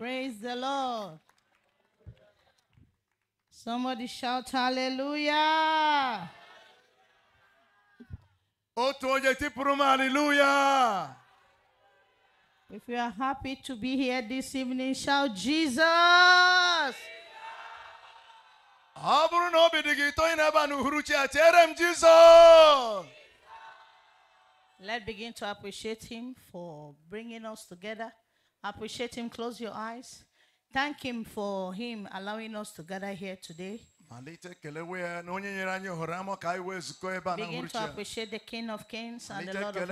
Praise the Lord. Somebody shout hallelujah. hallelujah. If you are happy to be here this evening, shout Jesus. let Let's begin to appreciate him for bringing us together. Appreciate Him. Close your eyes. Thank Him for Him allowing us to gather here today. Begin to appreciate the King of Kings and the Lord of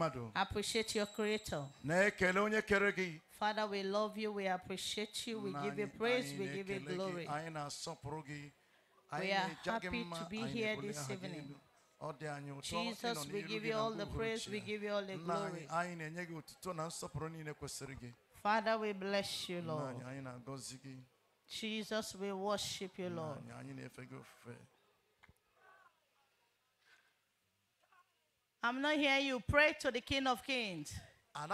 Lords. Appreciate your Creator. Father, we love you. We appreciate you. We give you praise. We give you glory. We are happy to be here this evening. Jesus, we give you all the praise, we give you all the glory. Father, we bless you, Lord. Jesus, we worship you, Lord. I'm not here. you. Pray to the King of Kings. Tell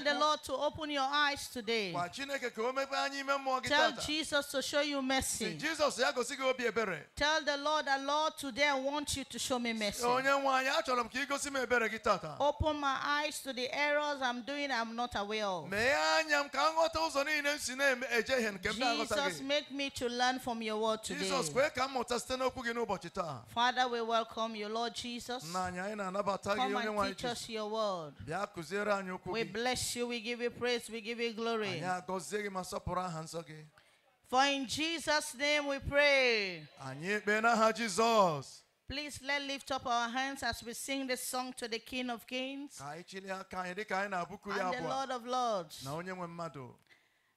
the Lord to open your eyes today. Tell Jesus to show you mercy. Tell the Lord that Lord today I want you to show me mercy. Open my eyes to the errors I'm doing I'm not aware of. Jesus make me to learn from your word today. Father we welcome you Lord Jesus. Come and teach us your word. Lord. We bless you, we give you praise, we give you glory. For in Jesus' name we pray. Please let lift up our hands as we sing this song to the King of Kings and the Lord of Lords.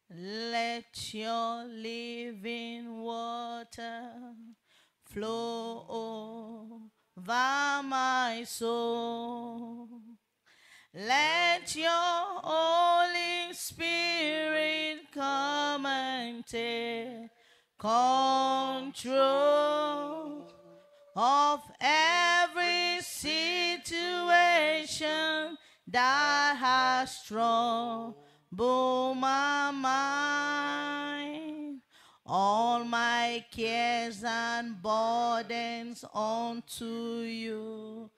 Let your living water flow over my soul. Let your Holy Spirit come and take control of every situation that has troubled my mind. All my cares and burdens unto you.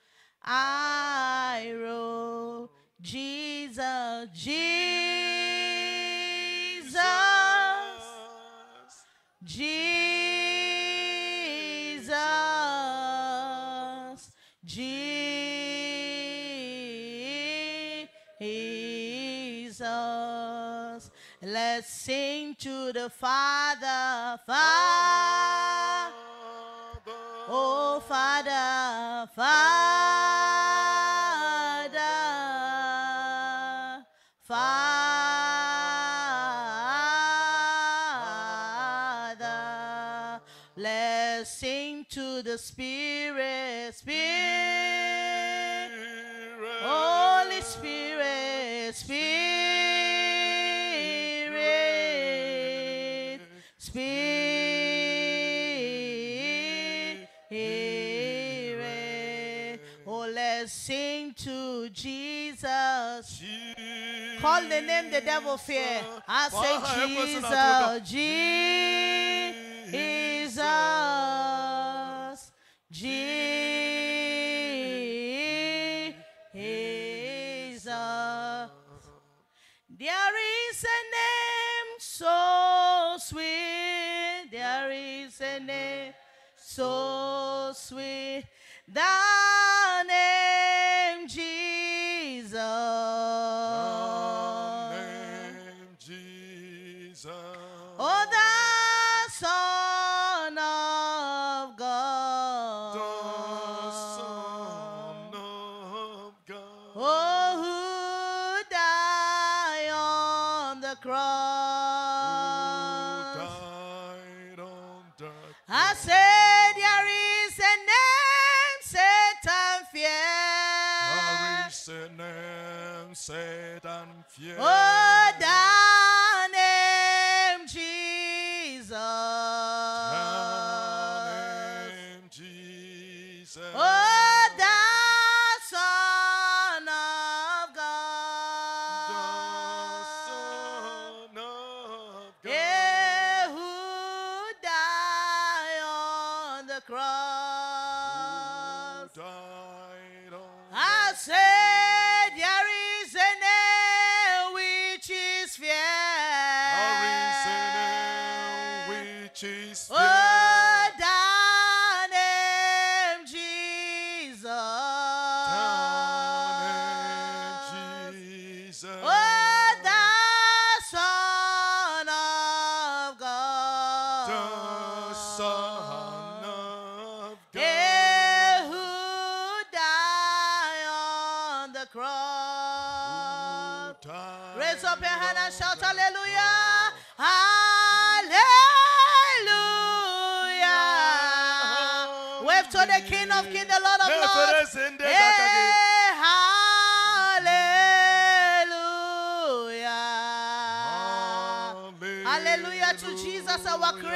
I roll. Jesus, Jesus, Jesus, Jesus. Let's sing to the Father, Father. Oh, Father, Father. the Spirit, Spirit, Spirit. Holy Spirit, Spirit, Spirit. Oh, let's sing to Jesus. Call the name the devil fear. I say Jesus, Jesus. Jesus. There is a name so sweet. There is a name so sweet. That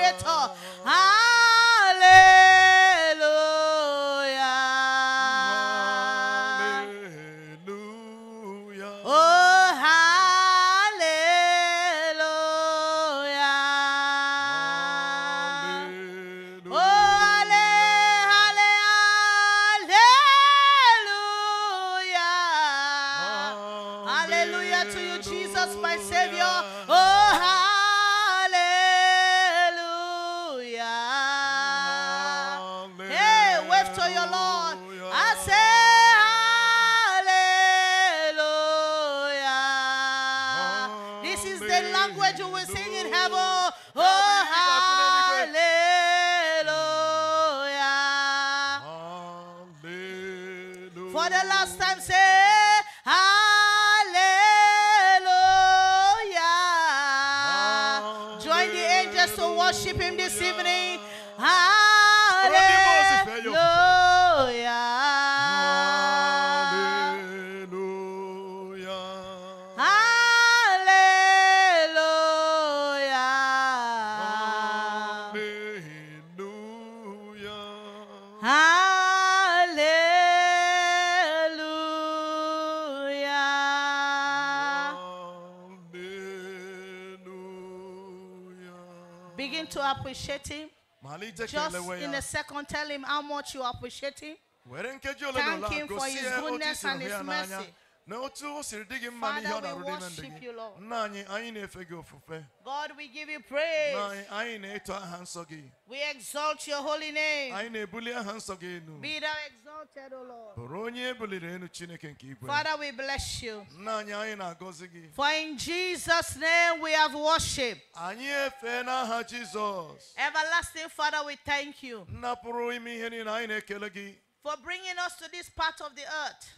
creator. I appreciate him. Just in a second, tell him how much you appreciate him. Thank him for his goodness and his mercy. Lord, Father, we worship you, Lord. God, we give you praise. We exalt your holy name. We thou exalted, O Lord. Father, we bless you. For in Jesus' name we have worshipped. Everlasting Father, we thank you for bringing us to this part of the earth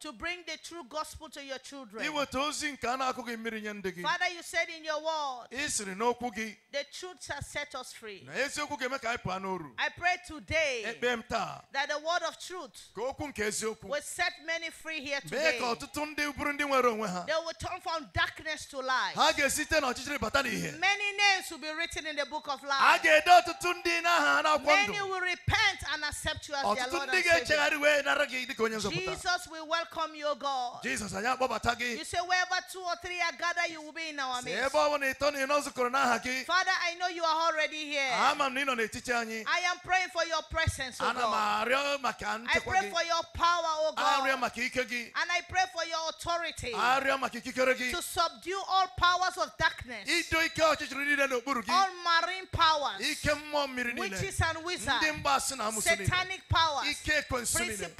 to bring the true gospel to your children. Father, you said in your word, the truth has set us free. I pray today that the word of truth will set many free here today. They will turn from darkness to light. Many names will be written in the book of life. Many will repent accept you as their Lord and Savior. Jesus will welcome you, God. Jesus, you say, wherever two or three are gathered, you will be in our midst. Father, I know you are already here. I am praying for your presence, oh God. I pray for your power, oh God. And I pray for your authority to subdue all powers of darkness, all marine powers, witches and wizards, satanic powers, principalities and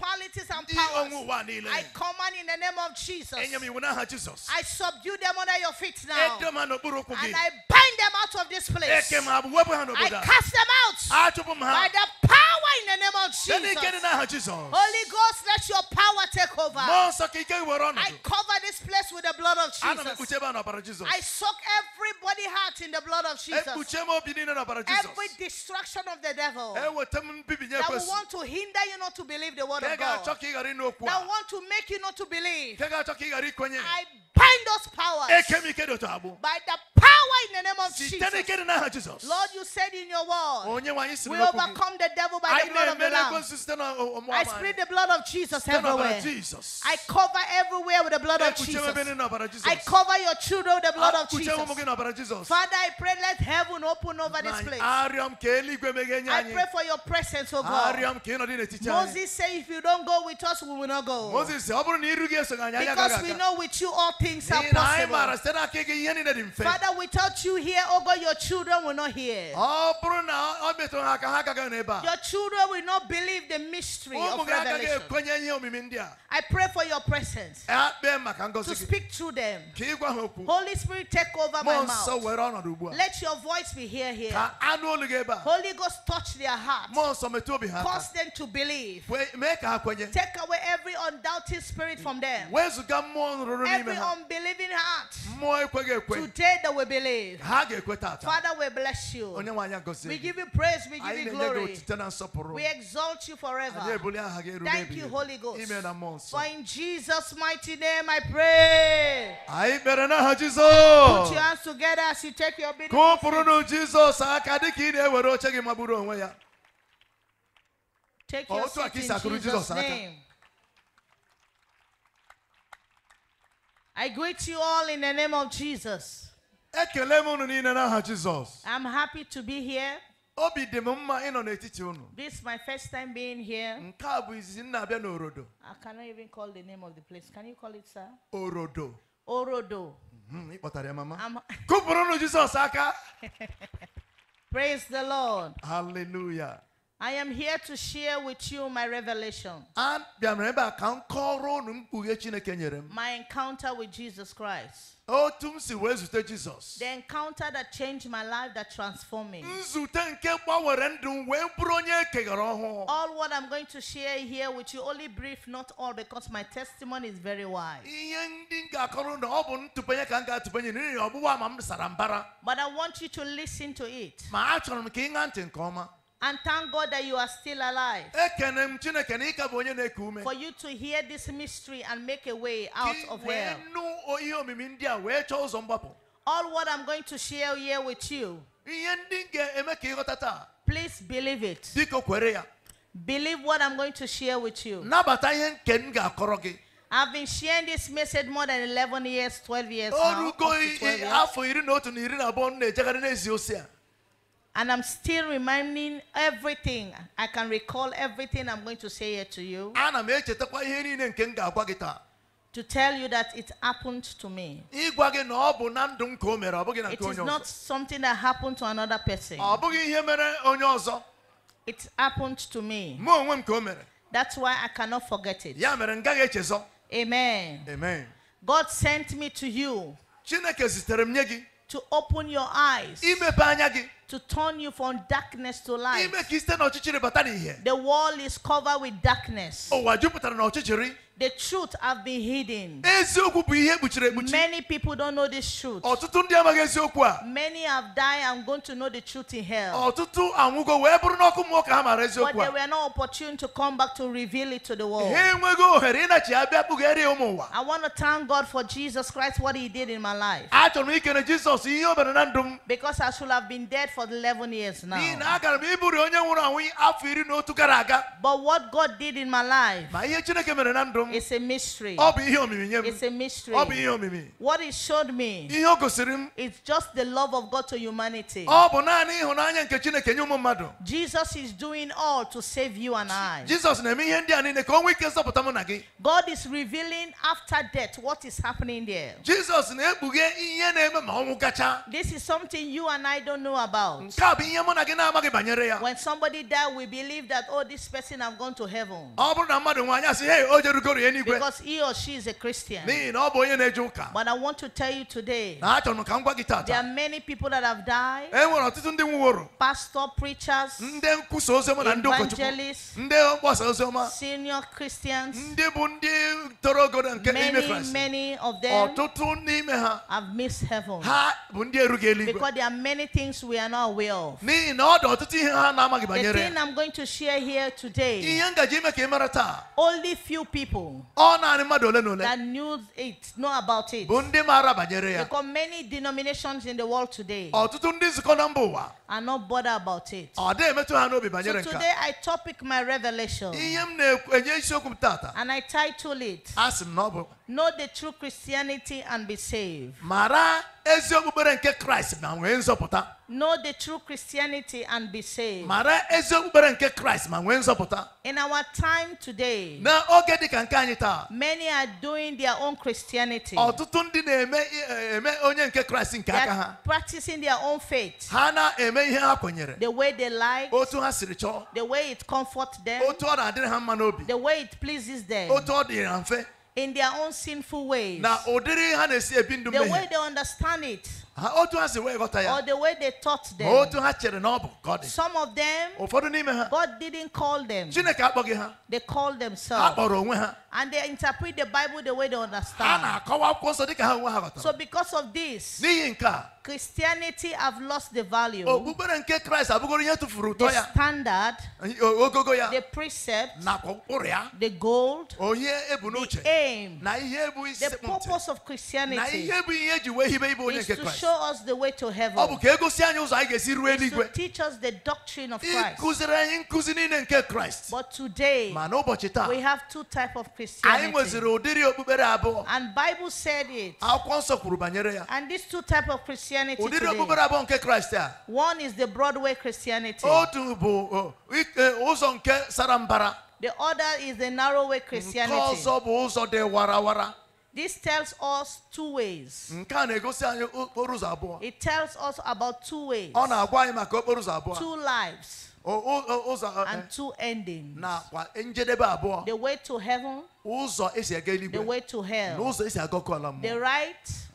powers, I command in the name of Jesus. I subdue them under your feet now. And I bind them out of this place. I cast them out by the power in the name of Jesus. Holy Ghost, let your power take over. I cover this place with the blood of Jesus. I soak everybody heart in the blood of eh, Jesus. Every destruction of the devil eh, that that want to hinder you not to believe the word of God. That want to make you not to believe. I bind those powers by the power in the name of Jesus. Lord, you said in your word, we overcome the devil by the blood of the Lamb. Oh, oh, I spread the blood of Jesus everywhere. I cover everywhere with the blood of Jesus. I cover your children with the blood of Jesus. Father, I pray let heaven open over this place. I pray for your presence, oh God. Moses said, If you don't go with us, we will not go. Because we know with you all things are possible. Father, without you here, oh God, your children will not hear. Your children will not believe the mystery of revelation. I pray for your presence eh, to speak through them. Holy Spirit, take over my mouth. Let your voice be here here. Holy Ghost, touch their hearts. Cause them to believe. Take away every undoubting spirit from them. Every unbelieving heart. Today they will believe. Father, we bless you. We give you praise. We give you glory. We exalt you forever. Thank you, Holy Ghost. For in Jesus' mighty name I pray. Put your hands together as you take your bid. Take your seat in Jesus' name. I greet you all in the name of Jesus. I'm happy to be here. This is my first time being here. I cannot even call the name of the place. Can you call it, sir? Orodo. Orodo. Mhm, Praise the Lord. Hallelujah. I am here to share with you my revelation. My encounter with Jesus Christ. Oh, the encounter that changed my life, that transformed me. All what I'm going to share here with you, only brief, not all, because my testimony is very wide. But I want you to listen to it. And thank God that you are still alive. For you to hear this mystery and make a way out of hell. All what I'm going to share here with you. Please believe it. Believe what I'm going to share with you. I've been sharing this message more than 11 years, 12 years now. 12 years. And I'm still reminding everything. I can recall everything I'm going to say here to you. To tell you that it happened to me. It is not something that happened to another person. It happened to me. That's why I cannot forget it. Amen. Amen. God sent me to you to open your eyes, to turn you from darkness to light. The wall is covered with darkness. The truth have been hidden. Many people don't know this truth. Many have died and going to know the truth in hell. But they were not opportune to come back to reveal it to the world. I want to thank God for Jesus Christ, what he did in my life. Because I should have been dead for 11 years now. But what God did in my life. It's a mystery. It's a mystery. What it showed me It's just the love of God to humanity. Jesus is doing all to save you and I. God is revealing after death what is happening there. This is something you and I don't know about. When somebody dies, we believe that, oh, this person has gone to heaven because he or she is a Christian. But I want to tell you today there are many people that have died pastor, preachers, evangelists, senior Christians. Many, many of them have missed heaven because there are many things we are not aware of. The thing I'm going to share here today, only few people. That news it, know about it. Because many denominations in the world today oh, are not bothered about it. Oh, so today I topic my revelation. And I title it Know the true Christianity and be saved. Know the true Christianity and be saved. In our time today, many are doing their own Christianity. practicing their own faith. The way they like, the way it comforts them, the way it pleases them in their own sinful ways. The way they understand it or the way they taught them some of them God didn't call them they call themselves and they interpret the Bible the way they understand so because of this Christianity have lost the value. The standard. The precept. The gold. The aim. The purpose of Christianity. Na ihe show us the way to heaven. It's teach us the doctrine of Christ. But today, we have two type of Christianity. And Bible said it. And these two type of Christianity today, one is the Broadway Christianity. The other is the narrow way Christianity. This tells us two ways. It tells us about two ways. Two lives. and two endings. The way to heaven. The way to hell. The right.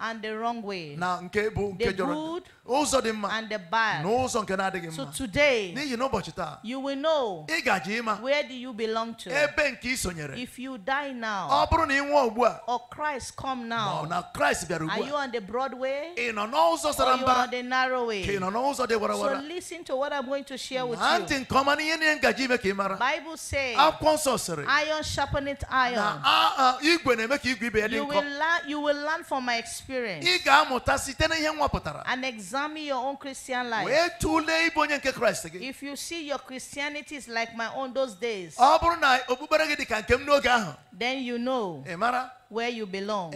And the wrong way. The good ụzọ dị mma and the bad. n'ụzọ nke mma so today n'ihi taa you will know ị ịma where do you belong to ebe nke ị sonyere if you die now ọ bụrụ na ị nwụọ ugbu a or Christ come now ma na Christ bịara ugbu a are you on the broad way ị nọ n'ụzọ sara mbara on the narrow way ka ị nọ n'ụzọ dị so listen to what I'm going to share with you ntị nke ọma n'ihe niile ngaji ime ka ị mara Bible says akwụkwọ nsọ sịrị iron iron na igwe na-eme ka igwe ibe ya dị nkọ you will learn from my experience ị ga-amụta site n'ihe an Examine your own Christian life. If you see your Christianity is like my own those days, then you know where you belong.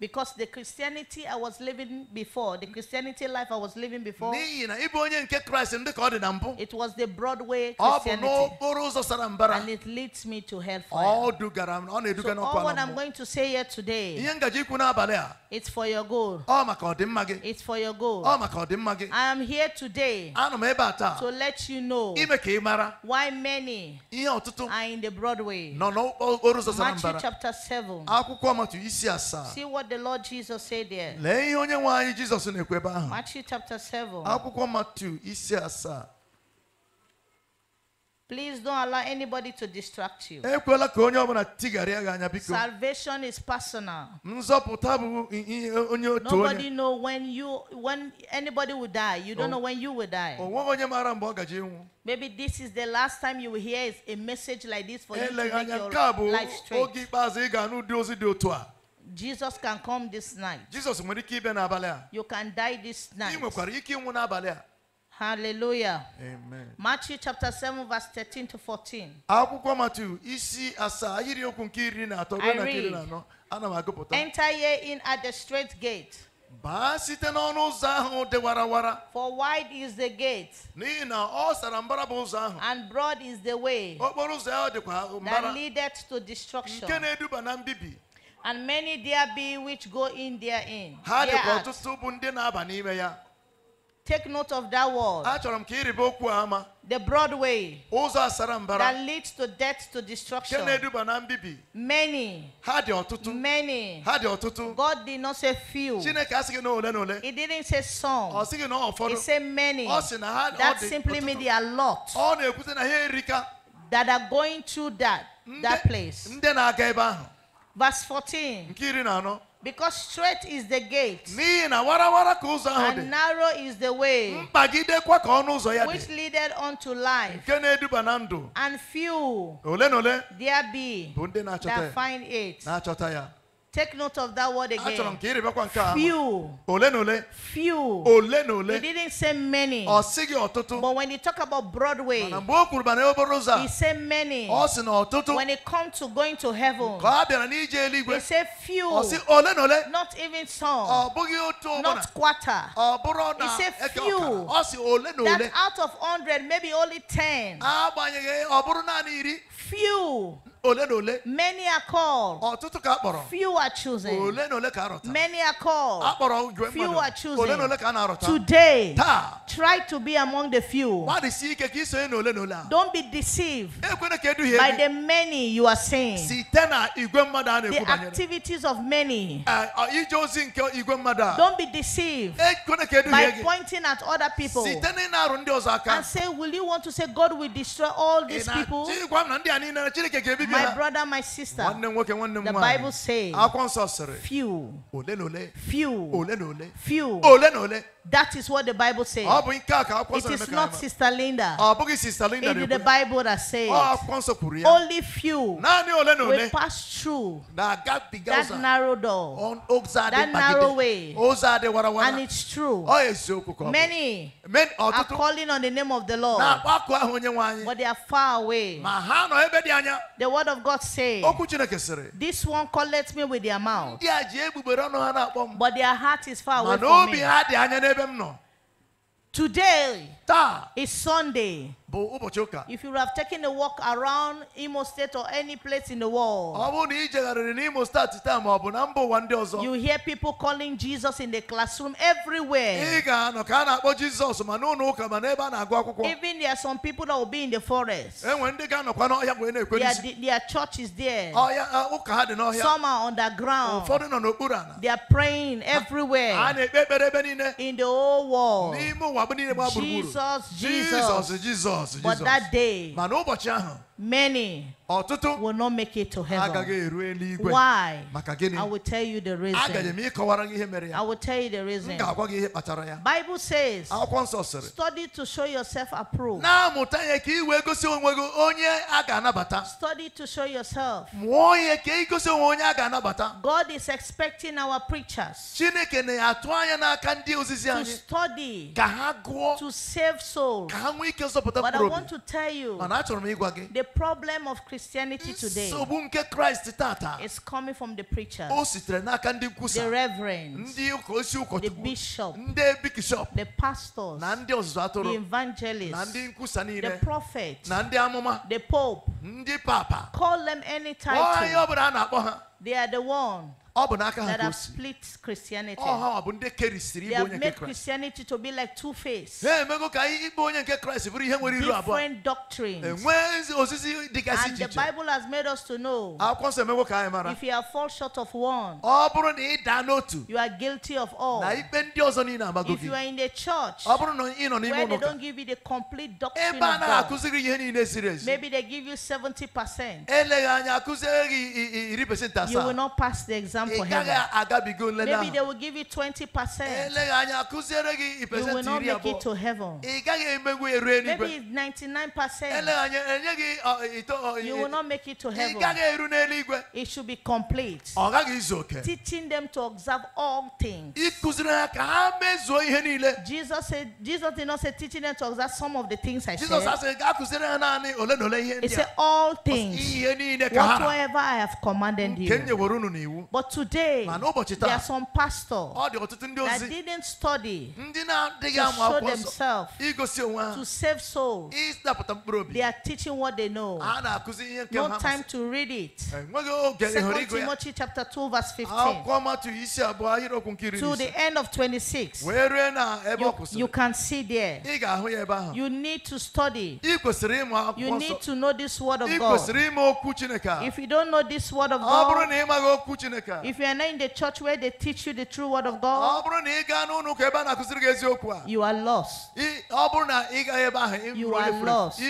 Because the Christianity I was living before, the Christianity life I was living before, it was the Broadway Christianity. And it leads me to hellfire. So all what I'm going to say here today, it's for your goal. It's for your good. I am here today to let you know why many are in the Broadway. Matthew chapter 7. See what the Lord Jesus said there. Matthew chapter 7. Please don't allow anybody to distract you. Salvation is personal. Nobody know when you when anybody will die. You don't know when you will die. Maybe this is the last time you will hear a message like this for you to make your life straight. Jesus can come this night. Jesus You can die this night. Hallelujah. Amen. Matthew chapter 7 verse 13 to 14. Akwụkwọ Matthew isi asaa okwu nke iri na atọ na iri na anọ ana m agụpụta. Enter ye in at the straight gate. Baa site n'ọnụ ụzọ ahụ dị warawara. For wide is the gate. N'ihi na ọ sara mbara bụ ụzọ ahụ. And broad is the way. Okporo ụzọ ahụ dịkwa mbara. That leadeth to destruction. Nke na-eduba na mbibi. And many there be which go in there Ha dịkwa ọtụtụ bụ ndị na-aba n'ime ya. Take note of that word. The Broadway, That leads to death to destruction. Many. Many. God did not say few. He didn't say some. He said many. That simply means they are lot. That are going through that that place. Verse 14. Because straight is the gate. And narrow is the way. Which dị. unto life. And few. There be. That find it. Take note of that word again. Few. Few. He didn't say many. But when he talk about Broadway, he said many. When it comes to going to heaven, he said few. Not even some. Not quarter. He said few. That out of 100, maybe only 10. Few. Many are called. Few are chosen. Many are called. Few are chosen. Today, try to be among the few. Don't be deceived by the many you are saying. The activities of many. Eh, Don't be deceived by pointing at other people and say, Will you want to say God will destroy all these people? My brother, my sister. The Bible says few. Few. Few. That is what the Bible says. Ah, it is not ah, Sister Linda. It is the Bible that says ah, only few will pass through that narrow door, that narrow way. And it's true. Oh, Many oh, are calling on the name of the Lord, but they are far away. The word word of God say, This one collect me with their mouth, but their heart is far away from me. Today, it's Sunday. If you have taken a walk around Imo State or any place in the world, you hear people calling Jesus in the classroom everywhere. Even there are some people that will be in the forest. Their, their church is there. Some are underground. They are praying everywhere in the whole world. Jesus Jesus, Jesus, Jesus. But that day, Many ọtụtụ will not make it to heaven. Why? I will tell you the reason. I will tell you the reason. Bible says study to show yourself approved. study to show yourself. God is expecting our preachers. to study to save souls. but I want to tell you mana the problem of Christianity today is coming from the preachers, the reverends, the bishop, the pastors, the atụrụ evangelists, the niile prophets, the pope. Call them any title. They are the one that have split Christianity. They have made Christianity to be like two faced. Different doctrines. And the Bible has made us to know if you are fall short of one, you are guilty of all. If you are in the church where they don't give you the complete doctrine of God, maybe they give you 70%. You will not pass the exam exam for heaven. Maybe they will give you 20%. Eh, you will not make it to heaven. Maybe 99%. You will not make it to heaven. It should be complete. Teaching them to observe all things. Jesus said, Jesus did not say teaching them to observe some of the things I said. He said all things. Whatsoever I have commanded you. But today, there are some pastors that didn't study to show themselves to save souls. They are teaching what they know. No time to read it. 2 Timothy chapter 2 verse 15. To the end of 26. You, you can see there. You need to study. You need to know this word of God. If you don't know this word of God, if you are not in the church where they teach you the true word of God, you are lost. You are lost.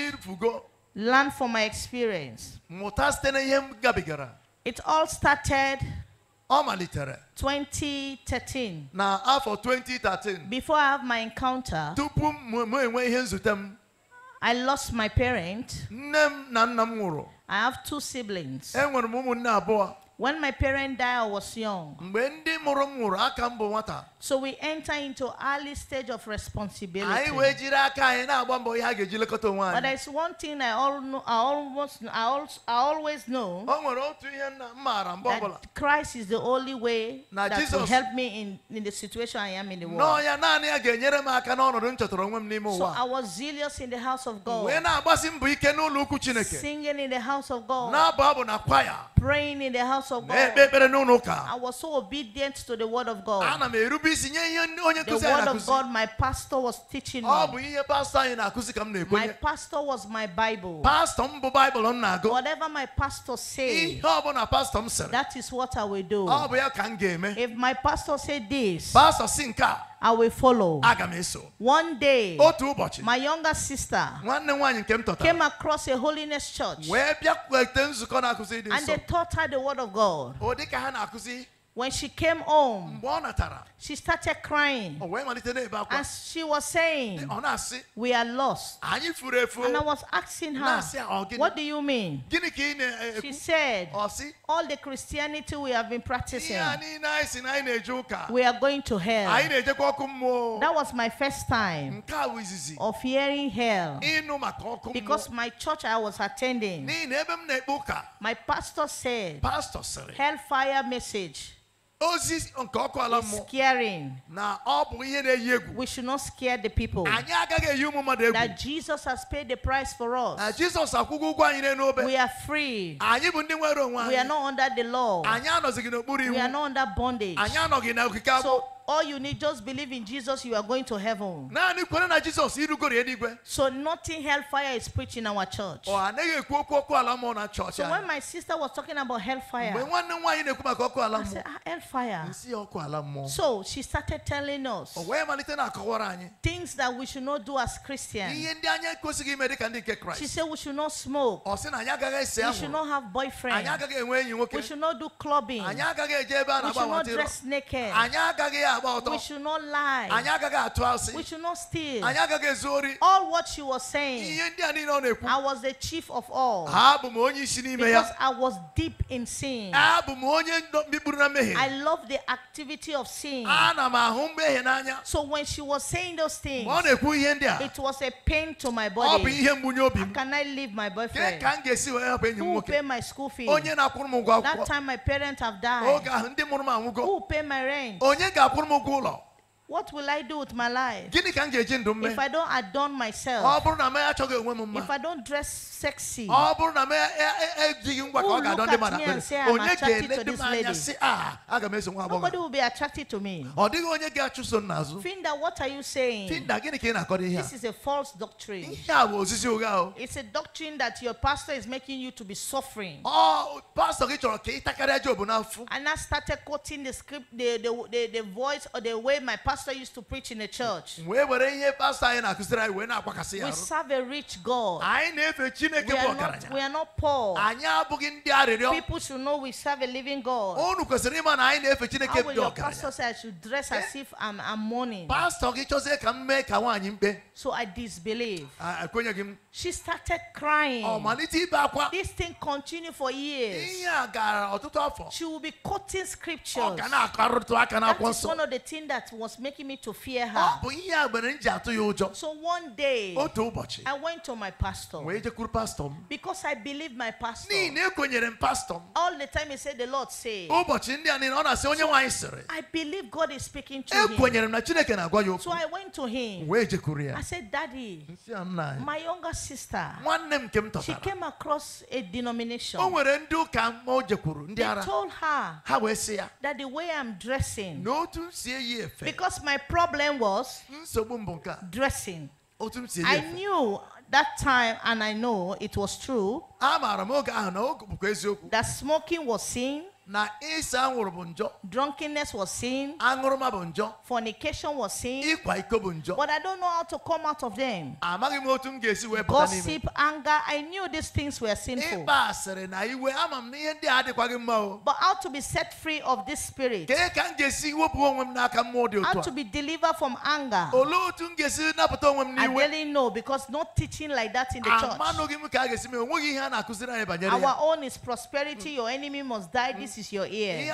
Learn from my experience. It all started 2013. Now, after 2013. Before I have my encounter, I lost my parent. I have two siblings. When my parents died, I was young. So we enter into early stage of responsibility. But there's one thing I, all know, I almost, I, I always know that Christ is the only way that will help me in, in the situation I am in the world. So I was zealous in the house of God, singing in the house of God, praying in the house of God. I was so obedient to the word of God. The word of God, my pastor was teaching me. My pastor was my Bible. Whatever my pastor says, that is what I will do. If my pastor said this, I will follow. One day, my younger sister came across a holiness church and they taught her the word of God. When she came home, she started crying. Oh, and she was saying, eh, We are lost. And I was asking her, oh, What do you mean? Eh, she said, All the Christianity we have been practicing, we are going to hell. That was my first time of hearing hell. Because my church I was attending, my pastor said, Hellfire message. It's scaring. Oh, we should not scare the people that Jesus has paid the price for us. We are free. We are not under the law. We are not under bondage. All you need just believe in Jesus, you are going to heaven. So nothing hellfire is preached in our church. Oh, so when my sister was talking about hellfire, I said, ah, hellfire. So she started telling us things that we should not do as Christians. She said we should not smoke. We should not have boyfriends. We should not do clubbing. We should not dress naked. We should not lie. We should not steal. All what she was saying, I was the chief of all. Because I was deep in sin. I love the activity of sin. So when she was saying those things, it was a pain to my body. How can I leave my boyfriend? Who will pay my school fees? That time my parents have died. Who will pay my rent? I'm a law. What will I do with my life? If I don't adorn myself, if I don't dress sexy, who look at me and say I'm attracted to this lady? Ah, Nobody will be attracted to me. Find what are you saying? This is a false doctrine. It's a doctrine that your pastor is making you to be suffering. And I started quoting the script, the, the, the, the voice or the way my pastor pastor used to preach in the church. We serve a rich God. We are not, we are not poor. People should know we serve a living God. How will your pastor say I should dress as eh? if I'm, I'm mourning? So I disbelieve. She started crying. This thing continued for years. She will be quoting scriptures. That is one of the things that was making me to fear her. Oh, so one day, oh, I went to my pastor. Because I believe my pastor. All the time he said, The Lord said. Oh, so I believe God is speaking to eh, him. So I went to him. I said, Daddy, my younger sister, she came across a denomination. They told her that the way I'm dressing. Because because my problem was dressing. Oh, I knew that time, and I know it was true, that smoking was seen na ịsa anwụrụ bụ njọ drunkenness was sin aṅụrụma bụ njọ fornication was sin ịkwa iko bụ njọ but i don't know how to come out of them amaghị m otu m ga-esi wee pụta n'ime gossip anger i knew these things were sinful ịkpa asịrị na iwe ama m na ihe ndị a mma o but how to be set free of this spirit kee ka m ga-esi wepụ onwe m n'aka mmụọ dị otu a how to be delivered from anger olee otu m ga-esi napụta onwe m n'iwe i really know because no teaching like that in the church amanụghị m ka a ga-esi mee ihe a na-akụziri anyị banyere our own is prosperity your enemy must die this is your ear.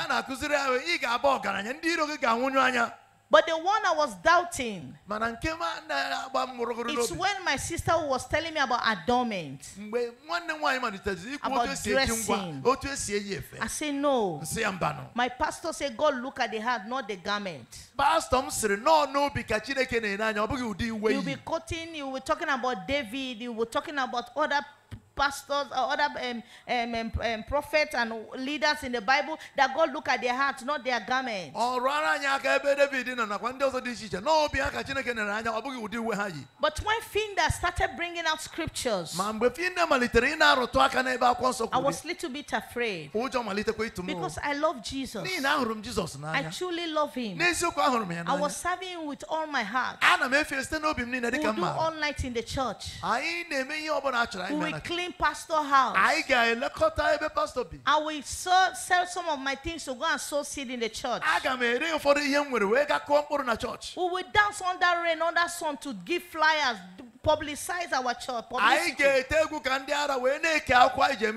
But the one I was doubting, it's when my sister was telling me about adornment, about dressing. Oh, I say no. My pastor said, God look at the heart, not the garment. Pastor you will be cutting, you will be talking about David, you will be talking about other pastors or other um, um, um, um, prophets and leaders in the Bible that God look at their hearts, not their garments. But when Finda started bringing out scriptures, I was little bit afraid because I love Jesus. I truly love him. I was serving him with all my heart. We'll do all night in the church. We will clean pastor house. I will sell, sell some of my things to go and sow seed in the church. We will dance under rain, under sun to give flyers, publicize our church.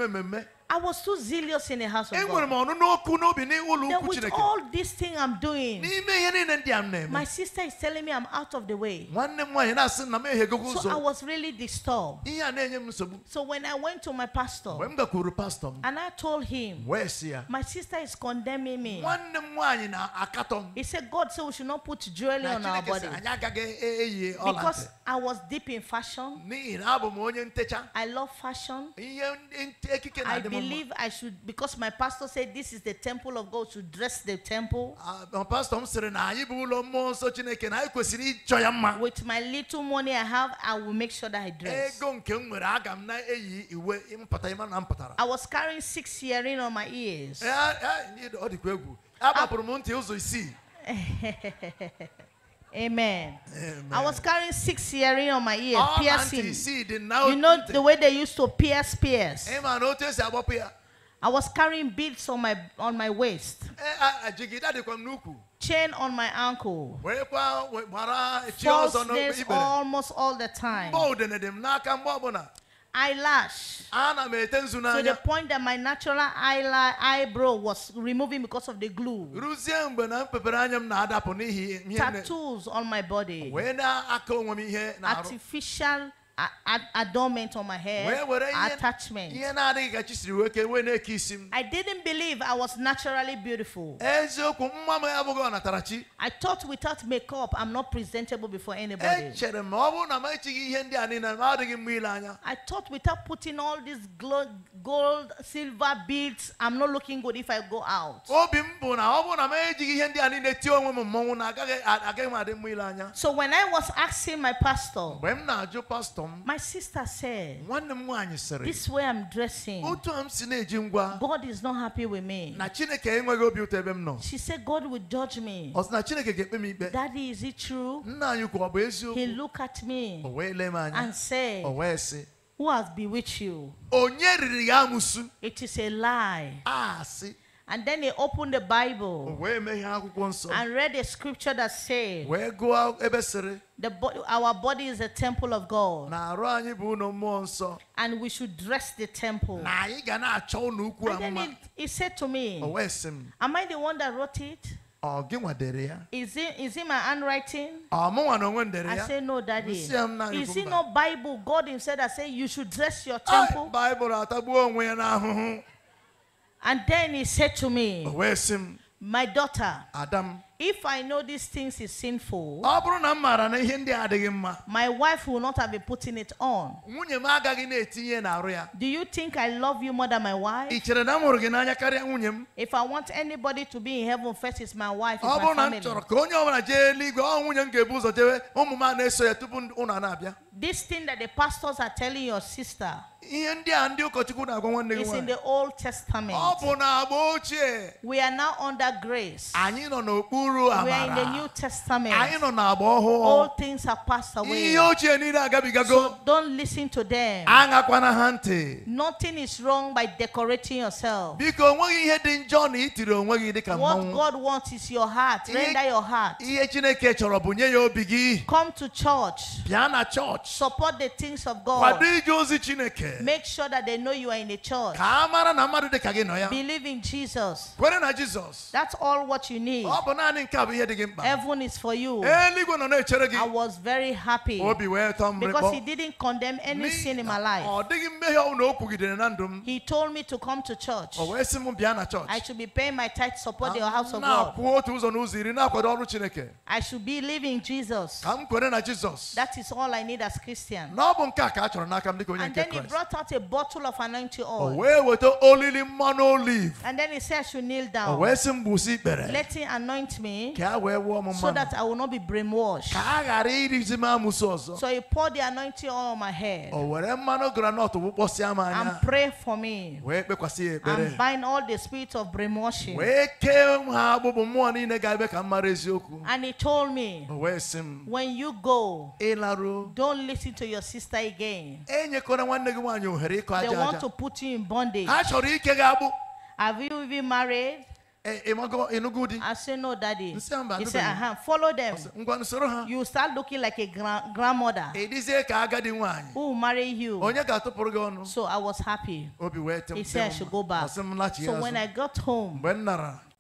Publicity. I was too zealous in the house of eh, God. Then with all this thing I'm doing, my sister is telling me I'm out of the way. So I was really disturbed. So when I went to my pastor, and I told him, my sister is condemning me. He said, God said we should not put jewelry on our body. Because I was deep in fashion. I love fashion. I believe believe I should, because my pastor said this is the temple of God, should dress the temple. Ah, pastor With my little money I have, I will make sure that I dress. Eh, I was carrying six earrings on my ears. Eh, ah, ah, Amen. Amen. I was carrying six earring on my ear, All piercing. See, now you know the way they used to pierce pierce. Amen. I was carrying beads on my on my waist. Chain on my ankle. almost all the time eyelash to the point that my natural eyelash, eyebrow was removing because of the glue. Tattoos on my body. Artificial adornment on my hair, attachment. I didn't believe I was naturally beautiful. I thought without makeup, I'm not presentable before anybody. Eh, I thought without putting all these gold, silver beads, I'm not looking good if I go out. So when I was asking my pastor, my sister said. this way i'm dressing. a m God is not happy with me. na Chineke nọ. she said God will judge me. na Chineke daddy is it true? he look at me. and said. who has bewitched you? it is a lie. a and then he opened the Bible and read a scripture that said, bo Our body is a temple of God. And we should dress the temple. And then he, he said to me, oh, Am I the one that wrote it? Oh, is it, is it my handwriting? Oh, I say no, daddy. Is it not Bible? God himself that say you should dress your temple. And then he said to me, My daughter, Adam, if I know these things is sinful, my wife will not have been putting it on. Do you think I love you more than my wife? If I want anybody to be in heaven, first is my wife. my family. This thing that the pastors are telling your sister is in the Old Testament. We are now under grace. We are in the New Testament. All things have passed away. So don't listen to them. Nothing is wrong by decorating yourself. What God wants is your heart. Render your heart. Come to church. Support the things of God. Make sure that they know you are in a church. Believe in Jesus. That's all what you need. Heaven is for you. I was very happy because he didn't condemn any sin in my life. Oh, oh, he told me to come to church. Oh, I should be paying my tithe to support the ah, house of God. I should be living Jesus. That is all I need as Christian. And then he brought out a bottle of anointing oil. And then he said I should kneel down. Let him anoint me so that I will not be brainwashed. So he poured the anointing on my head and pray for me and bind all the spirit of brainwashing. And he told me when you go, don't listen to your sister again. They want to put you in bondage. Have you been married? Eh, eh, eh, I said, No, daddy. He said, uh-huh. Follow them. You start looking like a grand- grandmother who marry you. So I was happy. He said, I should go back. So when I got home,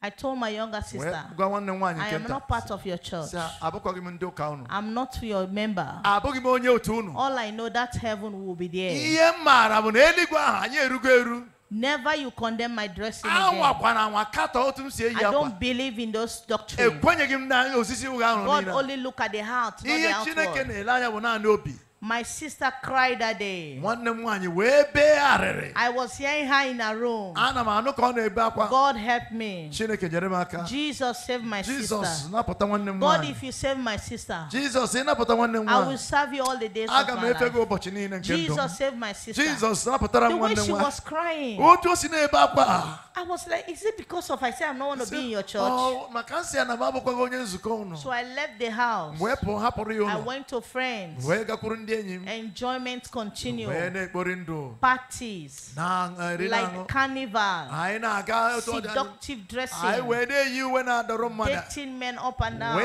I told my younger sister, I am not part of your church. I'm not your member. All I know that heaven will be there. Never you condemn my dressing again. I don't believe in those doctrines. God only look at the heart, not the outward. My sister cried that day. I was hearing her in a room. God help me. Jesus save my Jesus, sister. God, if you save my sister, Jesus, I will serve you all the days of my life. Jesus save my sister. Jesus, the way she was crying. I was like, is it because of I said I am not want to be in your church? Oh, so I left the house. I went to friends. Enjoyment continued. Parties. Eh, like carnival. Eh, Seductive dressing. Dating men up and down.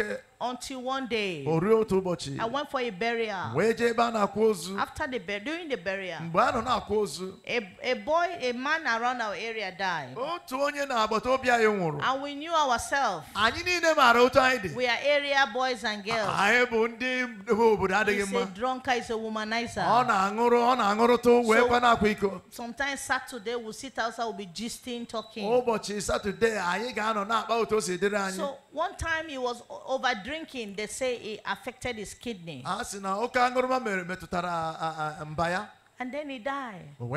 Eh, until one day, I went for a burial. After the burial, during the burial, a, a boy, a man around our area died. And we knew ourselves. We are area boys and girls. He's ah, a drunker he's a womanizer. So, sometimes Saturday we'll sit outside, we'll be gisting, talking. So one time he was overdue drinking, they say it affected his kidney. Ah, ah, ah, and then he died. So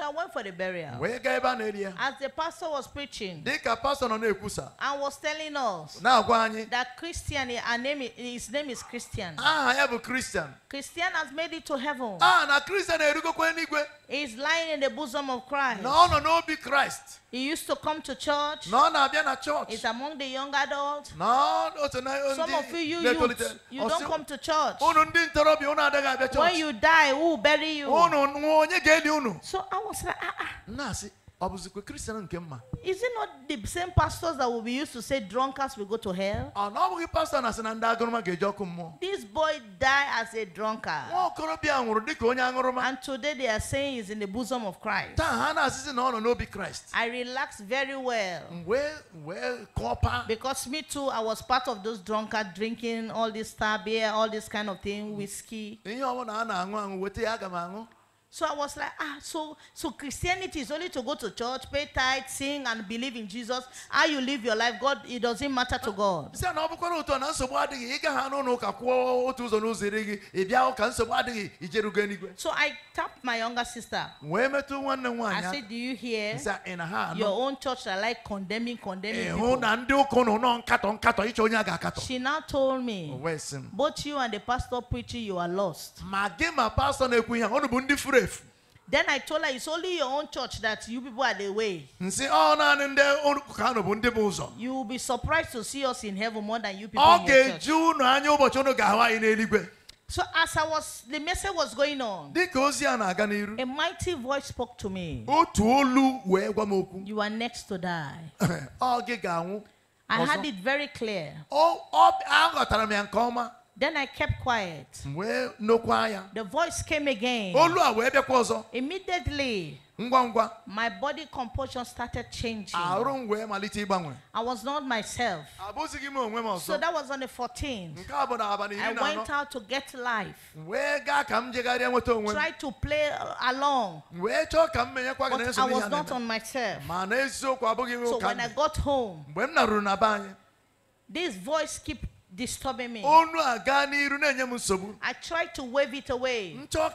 I went for the burial. As the pastor was preaching and was telling us that Christian, his name is Christian. Ah, I bụ a Christian has made it to heaven. a na kristian He's lying in the bosom of Christ. No, no, nọ be Christ. He used to come to church. No, None abịa na church. He's among the young adults. No, o so na ndị Some of you you youth, you don't come to church. Unu ndị ntorobịa unu adịghị abịa church. When you die, who will bury you? Unu onye ga-eli unu? So I was like, ah ah. Nna is it not the same pastors that will be used to say drunkards will go to hell? Ah, this boy died as a drunkard. And today they are saying he's in the bosom of Christ. I relaxed very well. Well, well, Because me too, I was part of those drunkards drinking all this star beer, all this kind of thing, whiskey. So I was like, ah, so, so Christianity is only to go to church, pay tithe, sing, and believe in Jesus. How you live your life, God, it doesn't matter to God. So I tapped my younger sister. I said, do you hear your own church are like condemning, condemning people. She now told me, both you and the pastor preaching, you are lost then I told her, it's only your own church that you people are the way. Oh, you will be surprised to see us in heaven more than you people okay. in your church. So as I was, the message was going on. A mighty voice spoke to me. You are next to die. I had it very clear. Then I kept quiet. The voice came again. Immediately, my body composition started changing. Ah, I was not myself. So that was on the 14th. I went out to get life. Tried to play along. But I was not on myself. So when I got home, this voice kept disturbing me. I tried to wave it away. I told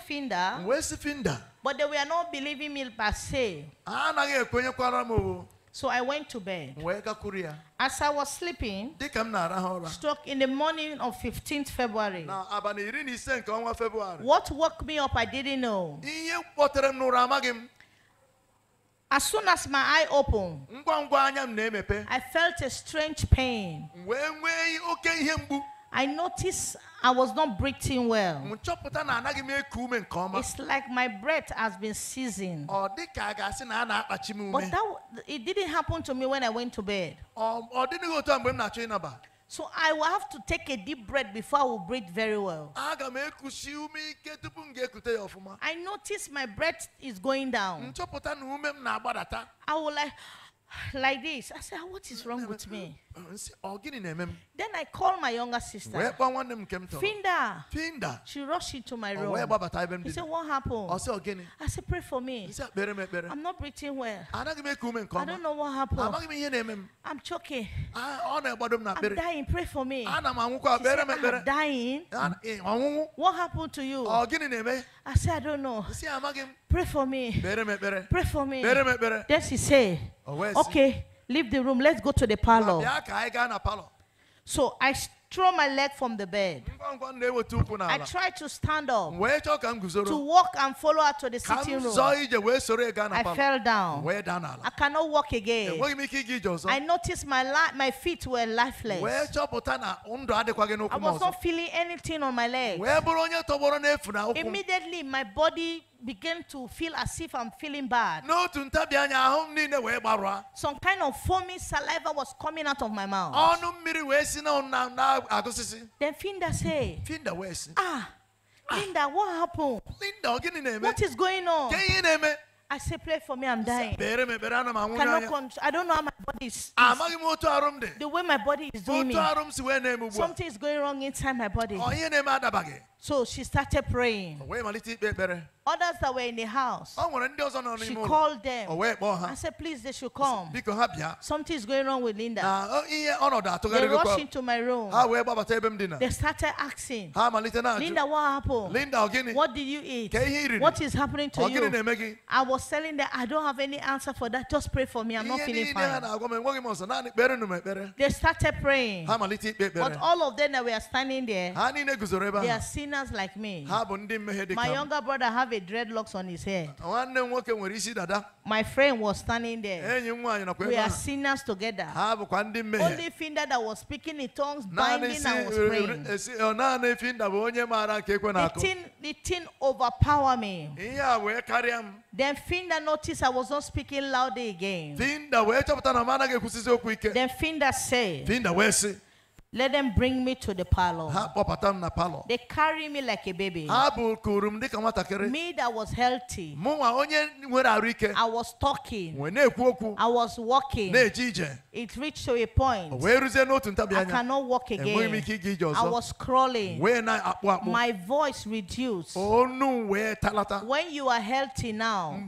Finda, Where's Finda? but they were not believing me per se. So I went to bed. As I was sleeping, struck in the morning of 15th February. What woke me up, I didn't know. As soon as my eye opened, I felt a strange pain. I noticed I was not breathing well. It's like my breath has been seizing. But that, it didn't happen to me when I went to bed. So I will have to take a deep breath before I will breathe very well. I notice my breath is going down. I will like, like this. I said, ah, what is wrong with me? Uh, then I call my younger sister. Finda. Finda. She rushed into my oh, room. He said, What happened? I said, Pray for me. I'm not breathing well. I don't know what happened. I'm choking. I'm dying. Pray for me. She said, I'm dying. Eh, what happened to you? I said, I don't know. Pray for me. Pray for me. Then she said, oh, Okay. Leave the room. Let's go to the parlor. So I throw my leg from the bed. I try to stand up to walk and follow her to the sitting room. I fell down. I cannot walk again. I noticed my, my feet were lifeless. I was not feeling anything on my leg. Immediately, my body begin to feel as if I'm feeling bad. Some kind of foamy saliva was coming out of my mouth. Then Finda said, Finda wee ah, ah, Linda, what happened? Linda, is going on? I say, pray for me, I'm dying. Cannot I don't know how my body is. is ah, the way my body is doing me. Something is going wrong inside my body. So she started praying. Others that were in the house, she called them I said, Please, they should come. Something is going wrong with Linda. They rushed into my room. They started asking, Linda, what happened? Linda, what did you eat? What is happening to you? I was telling them, I don't have any answer for that. Just pray for me. I'm not feeling fine. They started praying. But all of them that were standing there, they are seeing sinners like me. My younger brother have a dreadlocks on his head. My friend was standing there. We are sinners together. Only finger that was speaking in tongues, binding and was eh, praying. Eh, eh, the thing, the thing overpower me. E Then Finda noticed I was not speaking loudly again. Then Finda said, Let them bring me to the parlor. They carry me like a baby. Me that was healthy. I was talking. I was walking. It reached to a point. I cannot walk again. I was crawling. My voice reduced. When you are healthy now,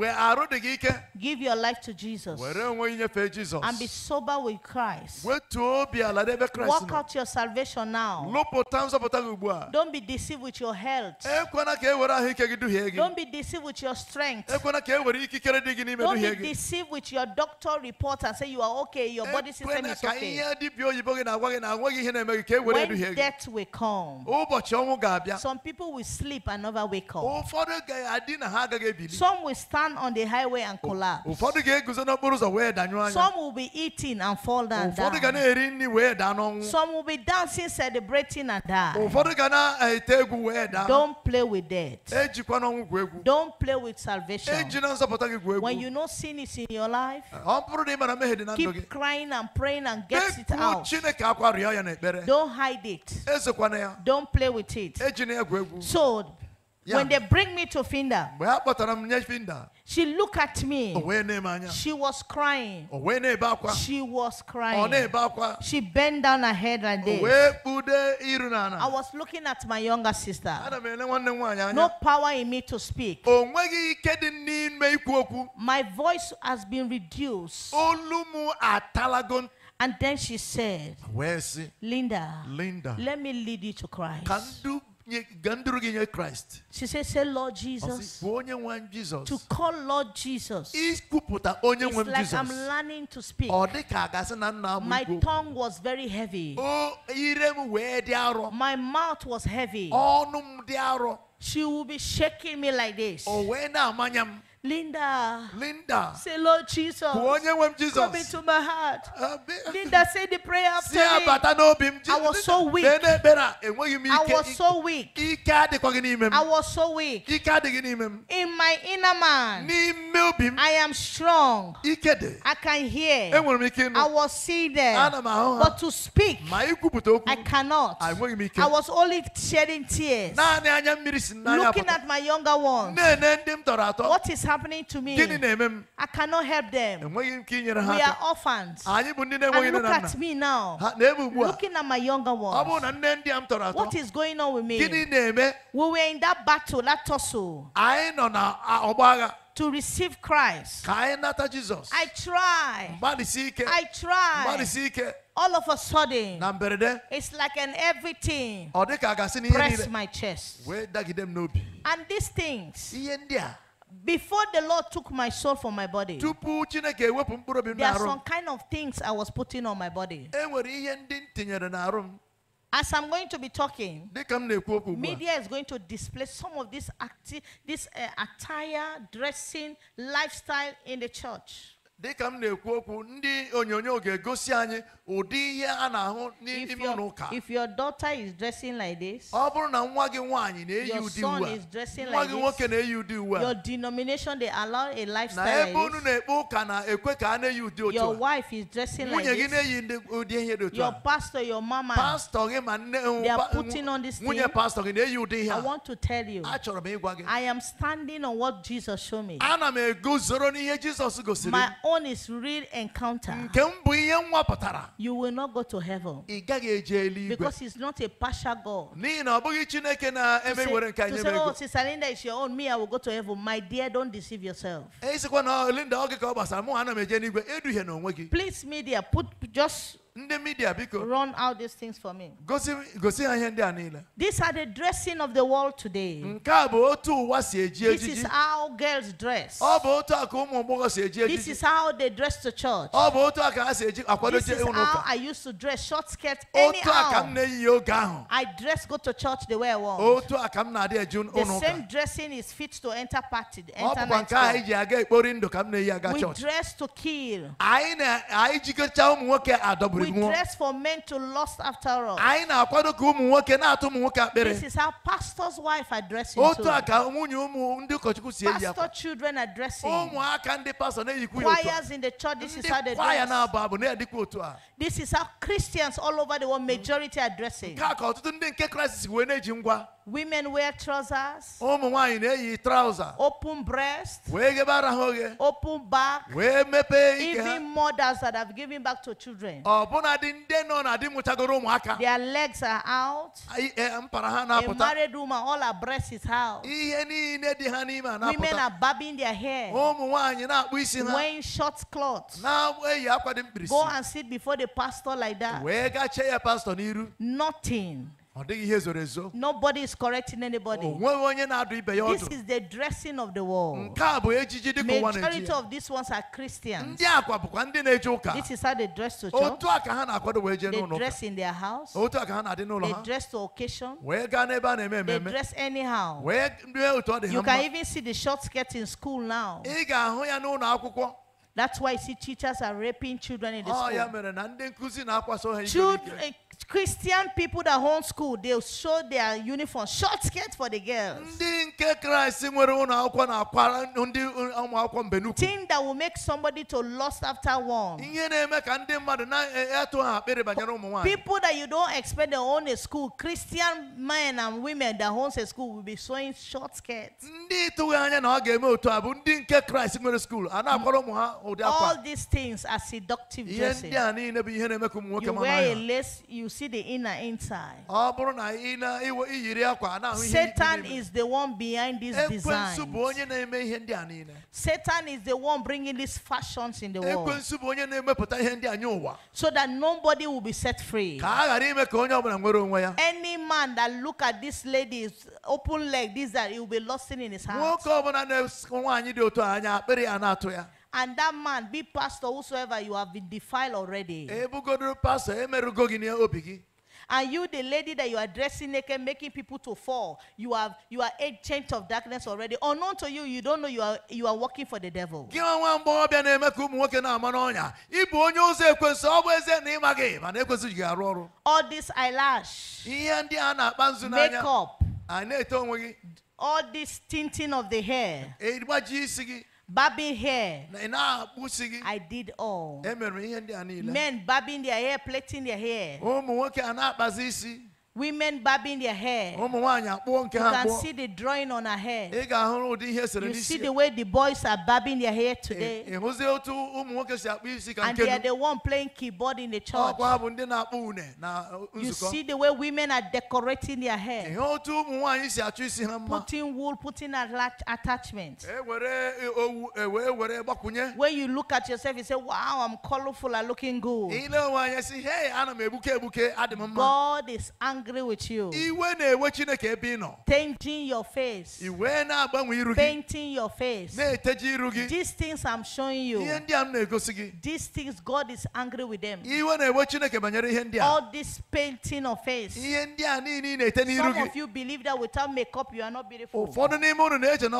give your life to Jesus and be sober with Christ. Walk out your salvation now. Don't be deceived with your health. Don't be deceived with your strength. Don't be deceived with your doctor report and say you are okay, your body system is okay. When death will come, some people will sleep and never wake up. Some will stand on the highway and collapse. Some will be eating and fall down. down. Some will will be dancing, celebrating, and die. Eh, Don't play with death. Eh, Don't play with salvation. Eh, when you know sin is in your life, keep crying and praying and get it out. Don't hide it. Don't play with it. So yeah. When they bring me to Finda, she looked at me. She was crying. She was crying. She bent down her head like this. I was looking at my younger sister. No power in me to speak. My voice has been reduced. And then she said, Linda, Linda, let me lead you to Christ. Christ. She said, say Lord Jesus. To call Lord Jesus. It's like I'm learning to speak. My tongue was very heavy. My mouth was heavy. She will be shaking me like this. Linda. Linda. Say, Lord Jesus. Come Jesus. into my heart. Linda, say the prayer after me. I was so weak. I was so weak. I was so weak. In my inner man, I am strong. I can hear. I was seated. But to speak, I cannot. Ah, I was only shedding tears. Looking at my younger ones. What is happening? happening to me. I cannot help them. We are orphans. Ah, and look at me now. Looking at my younger ones. What is going on with me? We were in that battle, that tussle to receive Christ. I try. I try. All of a sudden, it's like an everything press my chest. And these things before the Lord took my soul from my body, there are some kind of things I was putting on my body. As I'm going to be talking, media is going to display some of this, acti- this uh, attire, dressing, lifestyle in the church dịka m na-ekwu okwu ndị onyonyo ga-egosi anyị ụdị ihe a na-ahụ n'ime ụlọ ụka if your daughter is dressing like this ọ bụrụ na nwa gị nwaanyị na-eyi ụdị uwe nwa gị nwoke na-eyi ụdị uwe your denomination they allow a lifestyle na ebe unu na-ekpe ụka na-ekwe ka a na-eyi ụdị otu your wife is dressing like this nwunye gị na-eyi ụdị ihe dị otu your pastor your mama pastor gị ma nne nwunye pastor gị na-eyi ụdị ihe I want to tell you m ịgwa gị I am standing on what Jesus showed me ana m eguzoro n'ihe gosiri one is real encounter, you will not go to heaven ị gaghị eje because he's not a partial God. To say, to say, oh, Sister Linda is your own, me, I will go to heaven. My dear, don't deceive yourself. ịsịkwa na Linda Please, media, put just ndị midia biko run out these things for me gosi gosi ha ihe ndị a niile these are the dressing of the world today nke a bụ otu ụwa si eji ejiji this is how girls dress ọ bụ otu a ka ụmụ si eji ejiji this is how they dress to church ọ bụ otu a ka ha si eji akwado this is how I used to dress short skirt anyhow otu a ka m na-eyi oge ahụ I dress go to church the way I want otu a ka m na-adị eji ụka the same dressing is fit to enter party enter night ọ bụkwa nke a iji aga ekpori ndụ ka m na-eyi aga church we dress to kill anyị na-anyị ụmụ nwoke adọburu we dress for men to lust after us. This is how pastor's wife are dressing Pastor children addressing. Choirs in the church, this is how they dress. This is how Christians all over the world majority are Women wear trousers, open breast, open back, even mothers that have given back to children. Their legs are out. Eh, eh, A married woman, all her breasts is out. Women are bobbing their hair. Wearing short clothes. Go and sit before the pastor like that. Nothing. Nobody is correcting anybody. This is the dressing of the world. Majority of these ones are Christians. This is how they dress to church. They dress in their house. They dress to occasion. They dress anyhow. You can even see the short skirt in school now. That's why you see teachers are raping children in the school. Children, Christian people that school, they show their uniform, short skirt for the girls. Thing that will make somebody to lust after one. People that you don't expect to own a school, Christian men and women that own a school will be showing short skirts. All these things are seductive dresses. You wear a lace, you see the inner inside. Satan is the one behind this design. Satan is the one bringing these fashions in the world. So that nobody will be set free. Any man that look at this lady's open leg, this that he will be lost in his hands and that man be pastor whosoever you have been defiled already. And you, the lady that you are dressing naked, making people to fall, you have you are change of darkness already. Unknown to you, you don't know you are you are working for the devil. All this eyelash, makeup, all this tinting of the hair. Barbing hair. I did all. Men barbing their hair, plaiting their hair. Women bobbing their hair. You can see the drawing on her hair. You see the way the boys are bobbing their hair today. And they are the one playing keyboard in the church. Uh, you see the way women are decorating their hair. Putting wool, putting attachments. When you look at yourself, you say, wow, I'm colorful, I'm looking good. God is angry angry with you. Changing your face. Painting your face. These things I'm showing you. These things God is angry with them. All this painting of face. Some of you believe that without makeup you are not beautiful. Satan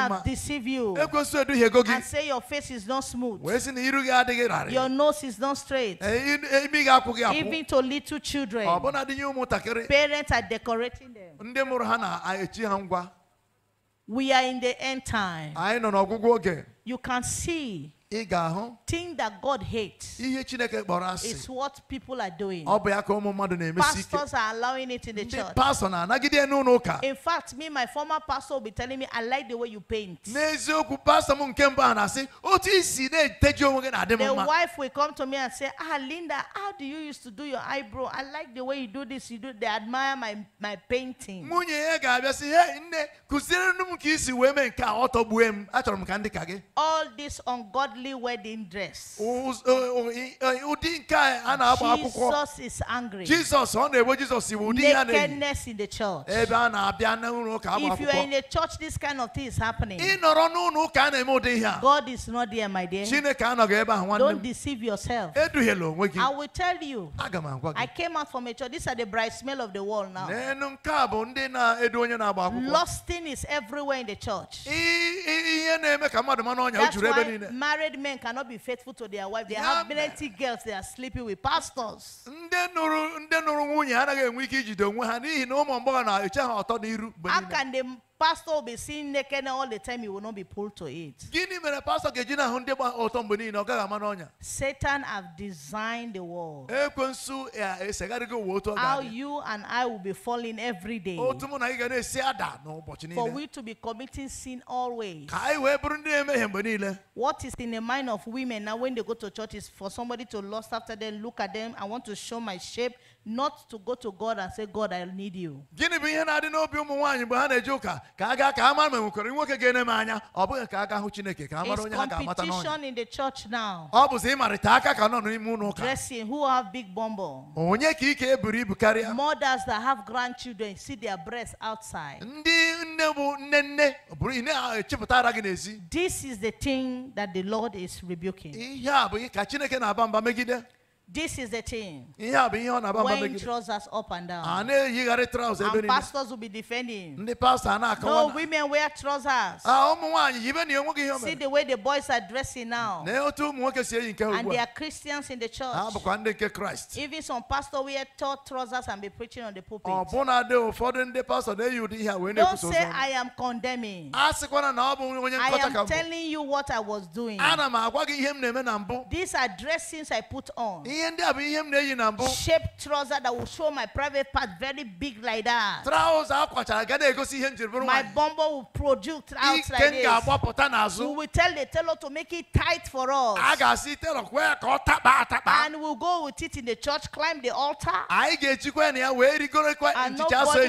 has deceived you. And say your face is not smooth. Your nose is not straight. Even to little children. Oh, parents are decorating them. we are in the end time. you can see thing that God hates It's is what people are doing pastors are allowing it in the church in fact me my former pastor will be telling me I like the way you paint the wife will come to me and say ah Linda how do you used to do your eyebrow I like the way you do this you do they admire my my painting all this ungodly worldly wedding dress. Uh, uh, Jesus is angry. Jesus Nakedness in the church. If you are in a church, this kind of thing is happening. God is not there, my dear. Don't deceive yourself. I will tell you. I came out from a church. These are the bright smell of the world now. Lusting is everywhere in the church. That's why married married men cannot be faithful to their wife. They yeah, have girls they sleeping with pastors. ndị anaghị enwe ike ijide onwe ha n'ihi na ụmụ mgbọghọ na-eche ha ọtọ n'iru. How Pastor will be seeing naked all the time, you will not be pulled to it. Satan have designed the world. How you and I will be falling every day. For we to be committing sin always. What is in the mind of women now when they go to church is for somebody to lust after them, look at them, I want to show my shape, not to go to God and say, God, I need you. Gịnị bụ ihe na-adị n'obi ụmụ nwaanyị mgbe ha na eji ụka ka a gaa ka a mara ma nwekwara nwoke ga-ene m anya ọ bụghị ka a ga hụ Chineke ka a mara onye ha ga-amata n'ọnya. It's competition in the church now. Ọ bụzi ịmarịta aka ka nọ n'ime ụlọ ụka. Dressing who have big bumble. Onye ka ike eburu ibu karịa. Mothers that have grandchildren see their breasts outside. Ndị nne bụ nne nne buru ihe na-echepụta ara gị n'ezi. This is the thing that the Lord is rebuking. Ihe a bụ ka Chineke na-aba mba megide. This is the thing. Wearing trousers up and down. And pastors will be defending. No, women wear trousers. Ah, See the way the boys are dressing now. And they are Christians in the church. Even some pastors wear tall trousers and be preaching on the pulpit. Don't say I am condemning. I am telling you what I was doing. These are dressings I put on. Shaped trouser that will show my private part very big like that. My bumbo will produce out like this. We will tell the tailor to make it tight for us. And we'll go with it in the church, climb the altar. And nobody will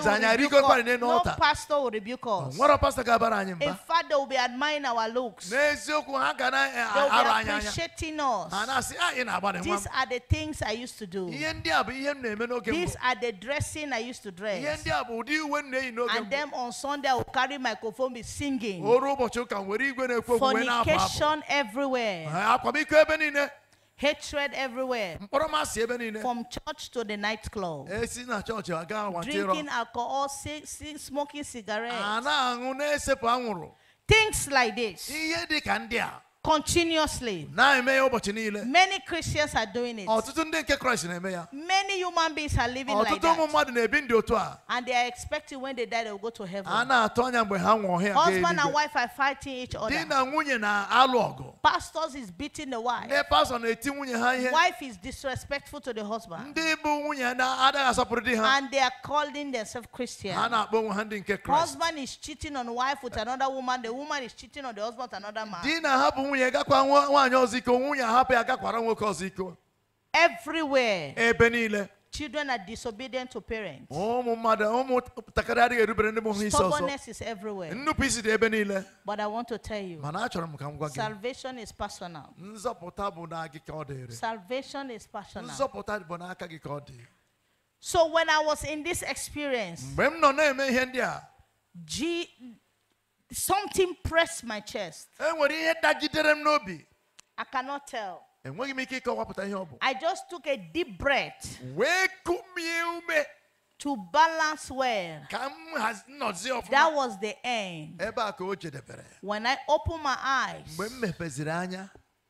rebuke us. No pastor will rebuke us. In fact, they will be admiring our looks. They will be appreciating us. These are the things I used to do. These are the dressing I used to dress. And then on Sunday, I will carry microphone, be singing. Oh, Fornication everywhere. Ah, ah, Hatred everywhere. From church to the nightclub. Eh, Drinking alcohol, smoking cigarettes. Ah, things like this continuously. Many Christians are doing it. Many human beings are living like that. And they are expecting when they die they will go to heaven. Husband and wife are fighting each other. Pastors is beating the wife. Wife is disrespectful to the husband. And they are calling themselves Christian. Husband is cheating on wife with another woman. The woman is cheating on the husband with another man nwunye gakwa nwaanyị ọzọ nwunye ahapụ ya gakwara nwoke ọzọ everywhere ebe niile Children are disobedient to parents. Oh, oh, Stubbornness is everywhere. But I want to tell you salvation is personal. Salvation is personal. So when I was in this experience, G something pressed my chest. I cannot tell. I just took a deep breath to balance well that was the end when I open my eyes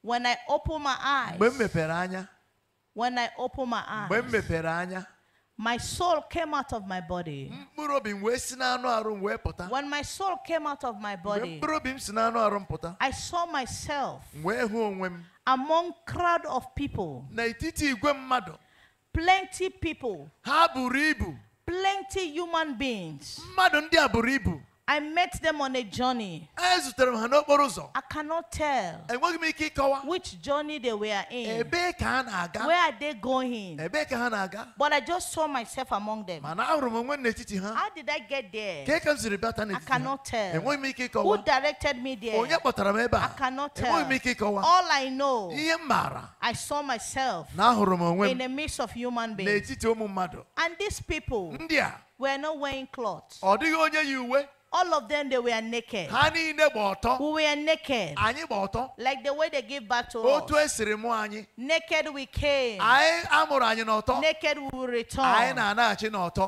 when I open my eyes when I open my eyes my soul came out of my body. When my soul came out of my body, I saw myself among crowd of people. Plenty people. Plenty human beings. I met them on a journey. I cannot tell which journey they were in. Where are they going? But I just saw myself among them. How did I get there? I cannot tell. Who directed me there? I cannot tell. All I know, I saw myself in the midst of human beings. And these people were not wearing clothes. All of them, they were naked. We were naked. Like the way they give back to us. Naked we came. Naked we will return.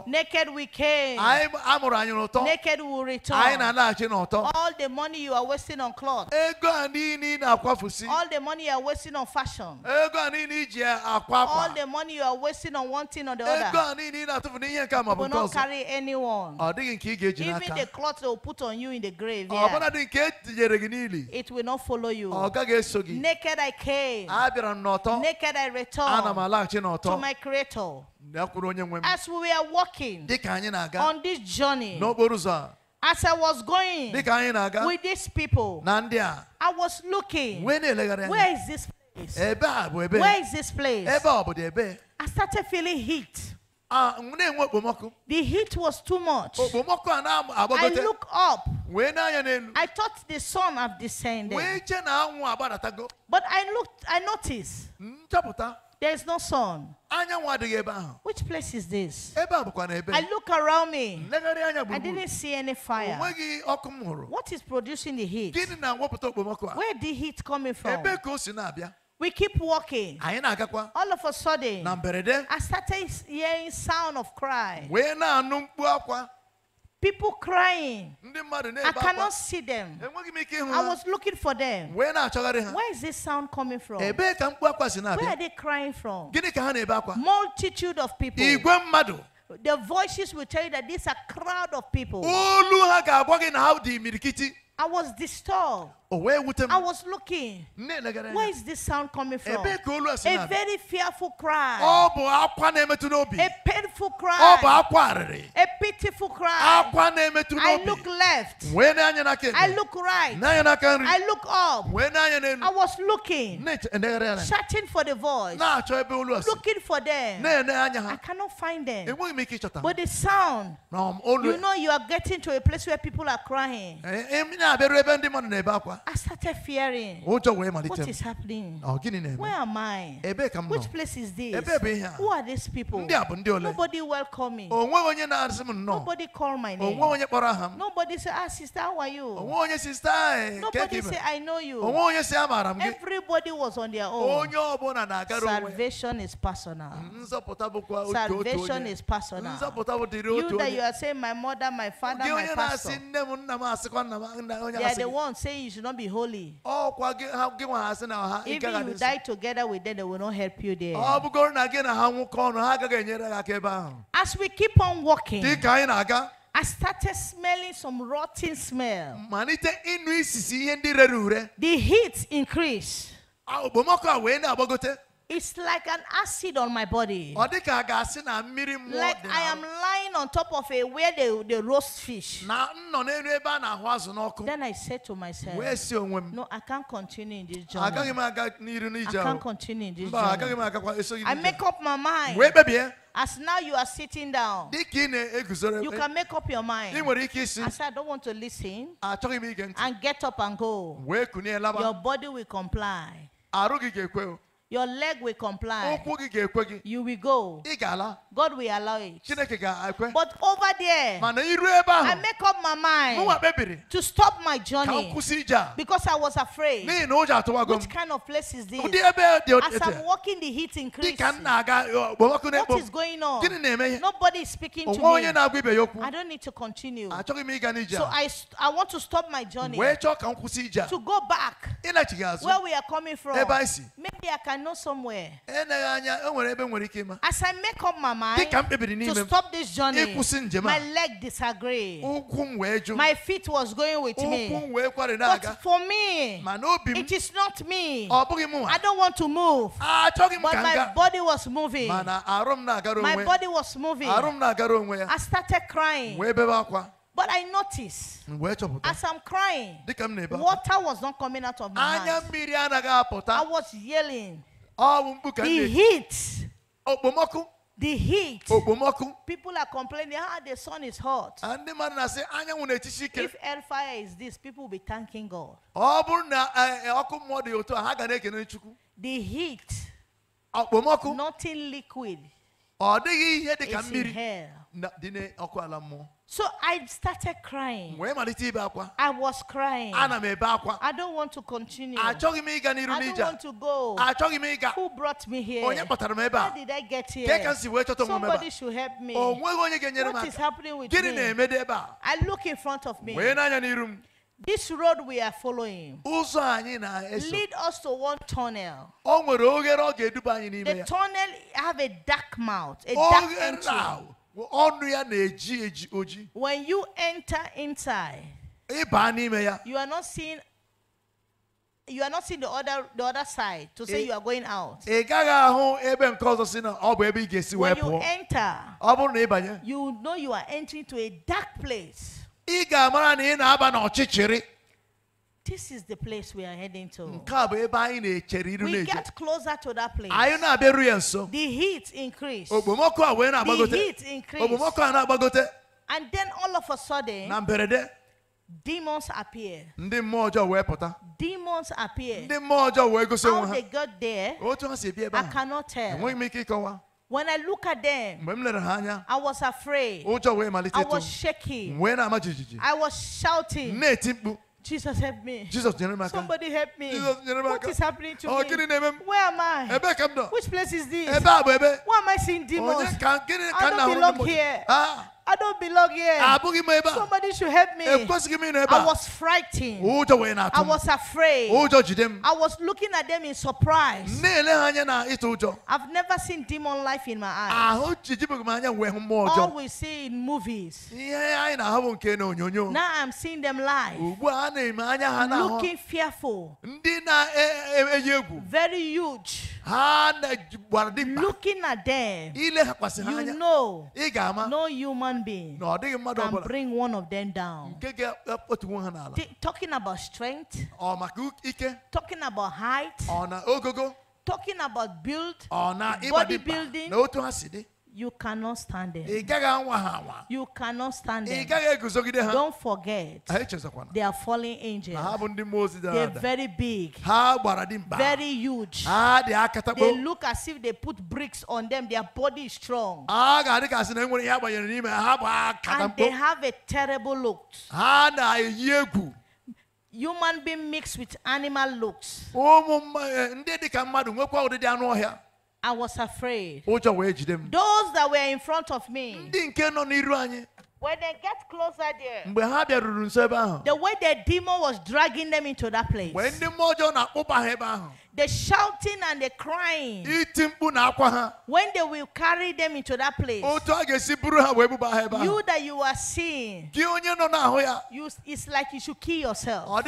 Naked we came. Naked we will return. All the money you are wasting on clothes. All the money you are wasting on fashion. All the money you are wasting on one thing or the other. You will not carry anyone. Even the clothes what they will put on you in the grave. Ah, it will not follow you. Ah, Naked I came. Naked I returned to my Creator. As we were walking on this journey, as I was going with these people, I was looking. Where is this place? Where is this place? I started feeling heat. Ah, the heat was too much. I look up. I thought the sun had descended. But I looked, I noticed. There is no sun. Which place is this? I look around me. I didn't see any fire. What is producing the heat? Where the heat coming from? We keep walking. All of a sudden, I started hearing sound of cry. People crying. I cannot see them. I was looking for them. Where is this sound coming from? Where are they crying from? Multitude of people. The voices will tell you that these are crowd of people. I was disturbed. I was looking. Where is this sound coming from? A very fearful cry. A painful cry. A pitiful cry. I look left. I look right. I look up. I was looking. Searching for the voice. Looking for them. I cannot find them. But the sound, you know, you are getting to a place where people are crying. I started fearing. What is happening? Where am I? Oh, Which place is this? Who are these people? Nobody welcomed me. Oh, Nobody called my oh, name. Nobody said, Ah, sister, how are you? Eh, Nobody said, I know you. Everybody was on their own. Salvation is personal. Salvation is personal. You that you are saying, My mother, my father, my pastor. They are the ones saying you should not not be holy. Oh, Even you die together with them, they will not help you there. Oh, As we keep on walking, I started smelling some rotten smell. The heat increased. It's like an acid on my body. Like I am lying on top of a where they, they roast fish. Then I said to myself, No, I can't continue in this job. I can't continue in this job. I make up my mind. Eh? As now you are sitting down, you eh? can make up your mind. I said, I don't want to listen, and get up and go. Your body will comply your leg will comply. You will go. God will allow it. But over there, I make up my mind to stop my journey because I was afraid. Which kind of place is this? As I'm walking, the heat increases. What is going on? Nobody is speaking to me. I don't need to continue. So I, I want to stop my journey to go back where we are coming from. Maybe I can know somewhere. Eh, as I make up my mind to stop this journey, my leg disagreed. My feet was going with me. But for me, it is not me. I don't want to move. Ah, but my body was moving. My body was moving. I started crying. But I noticed as I'm crying, water was not coming out of my eyes. I was yelling. The heat. Eh? The heat. People are complaining, ah, the sun is hot. If hellfire is this, people will be thanking God. Eh, the heat. Nothing liquid. It's in hell. So I started crying. I was crying. I don't want to continue. I don't want to go. Who brought me here? How did I get here? Somebody should help me. Oh, what is happening with me? I look in front of me. This road we are following lead us to one tunnel. The tunnel have a dark mouth, a dark entry. When you enter inside, you are not seeing you are not seeing the other the other side to say you are going out. When you enter, you know you are entering to a dark place. This is the place we are heading to. We get closer to that place. The heat increased. The heat increased. And then all of a sudden, demons appear. Demons appear. How they got there, I cannot tell. When I look at them, I was afraid. I was shaking. I was shouting. Jesus help me. Jesus Somebody help me. Jesus What is happening to oh, me? Where am I? Which place is this? Why am I seeing demons? Oh, I don't belong here. Ah. I don't belong here. Ah, Somebody should help me. I was frightened. Oh, I was afraid. Oh, I was looking at them in surprise. Oh, I've never seen demon life in my eyes. Ah, All we see in movies. Now I'm seeing them live. Looking fearful. Eh, eh, eh, Very huge. Looking at them, you know no human being can bring one of them down. Eh, talking about strength, talking about height, talking about build, building. You cannot stand them. You cannot stand them. Don't forget. They are fallen angels. They're very big. Very huge. They look as if they put bricks on them. Their body is strong. And they have a terrible look. Human being mixed with animal looks. I was afraid. Those that were in front of me. When they get closer there, the way the demon was dragging them into that place, the shouting and the crying. When they will carry them into that place. You that you are seeing. You, it's like you should kill yourself.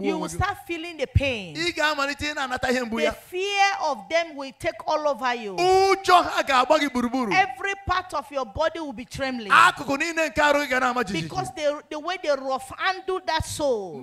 You will start feeling the pain. The fear of them will take all over you. Every part of your body will be trembling. Because the, the way they rough handle that soul.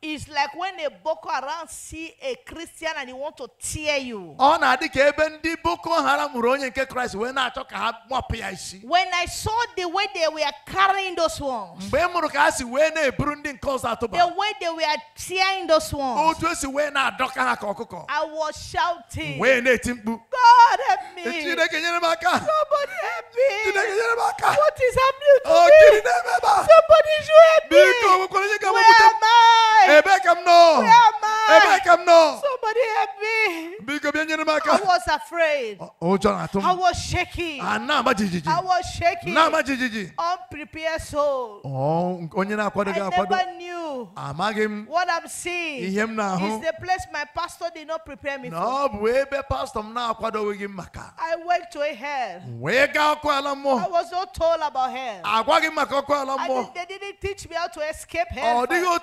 It's like when a Boko Haram see a Christian and he want to tear you. Ọ na-adị ka ebe ndị Boko Haram hụrụ onye nke Kraịst wee na-achọ ka ha gbapụ ya isi. When I saw the way they were carrying those ones. Mgbe m hụrụ ka ha si wee na-eburu ndị nke ọzọ atụba. The way they were tearing those ones. Otu esi wee na-adọka ha ka ọkụkọ. I was shouting. Wee na-eti mkpu. God help me. E, Chineke nyere m aka. Somebody help me. Chineke nyere m aka. What is happening to me? Ọ gịnị na-eme ebe a? Somebody should help me. Biko, onwe onye ga-amụpụta. Where am I? Hey, make Where am I? Somebody help me. I was afraid. Oh, oh Jonathan. Ah, I was shaking. I was shaking. Unprepared soul. Oh, I never knew. Amagim. What I'm seeing is the place my pastor did not prepare me for. No, pastor I went to a hell. I was not told about hell. I didn't, they didn't teach me how to escape hell. Oh,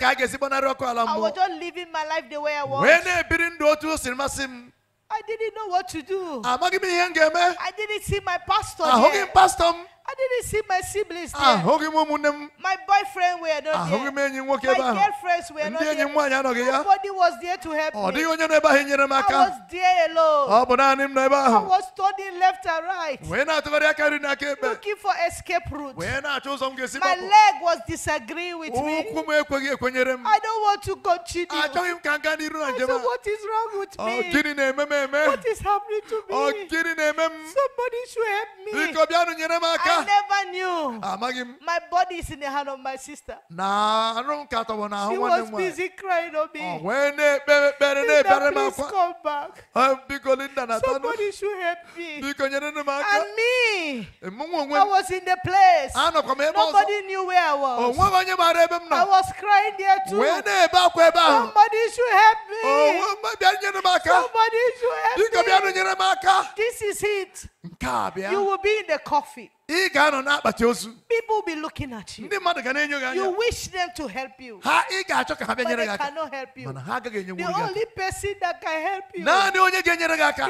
ka a ga-esi gbanarị ọkụ ala I was just living my life the way I was. wee na-ebiri ndụ otu o siri masị m I didn't know what to do. amaghị m ihe m ga-eme I didn't see my pastor. ahụghị m pastọ m I didn't see my siblings ah, there. My boyfriend were not ah, there. My girlfriends were not there. Ndị Nobody was there to help oh, me. I was there alone. Ah, I was turning left and right. Looking for escape routes. My leg was disagreeing with me. Oh, I I don't want to continue. Achọghị m What is wrong with oh, me? Eh, what is happening to me? Eh, Somebody should help me. I never knew. Ah, my body is in the hand of my sister. Na arụ m katọbọ n'ahụ nwanne m She was busy crying on me. Ọ oh, please come back. Ah, Biko Linda na tanụ. Somebody should help me. And me. Eh, I was in the place. Ah, Nobody knew where I was. Oh, I was crying there too. Somebody should help me. Oh, Somebody should help me. This is it. You will be in the coffee i people will be looking at you you wish them to help you But i cannot help you. the only person that can help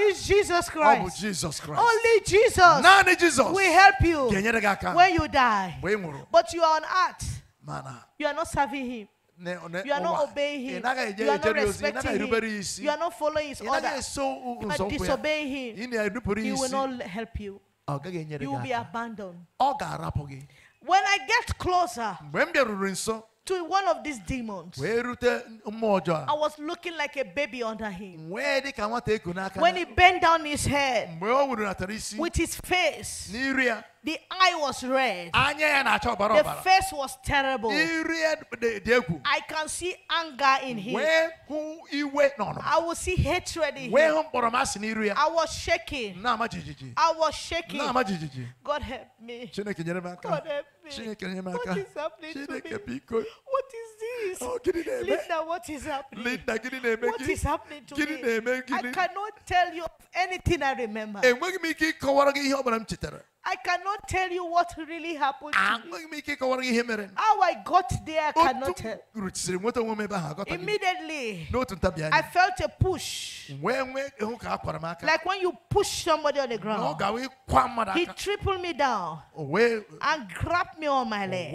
you is Jesus Christ Jesus Christ only Jesus naanị Jesus will help you when you die but you are on earth mana you are not serving him You are not obeying him. You are not respecting him. You are not following his order. You are disobeying him. He will not help you. You will be abandoned. When I get closer to one of these demons, I was looking like a baby under him. When he bent down his head with his face, the eye was red. The face was terrible. I can see anger in him. I will see hatred in him. I was shaking. I was shaking. God help me. God help me. What is happening to me? What is this? Oh, Linda, what is happening? What is happening to me? I cannot tell you of anything I remember. I cannot tell you what really happened. To me. How I got there, I cannot tell. Immediately, I felt a push. Like when you push somebody on the ground, he tripled me down and grabbed me on my leg.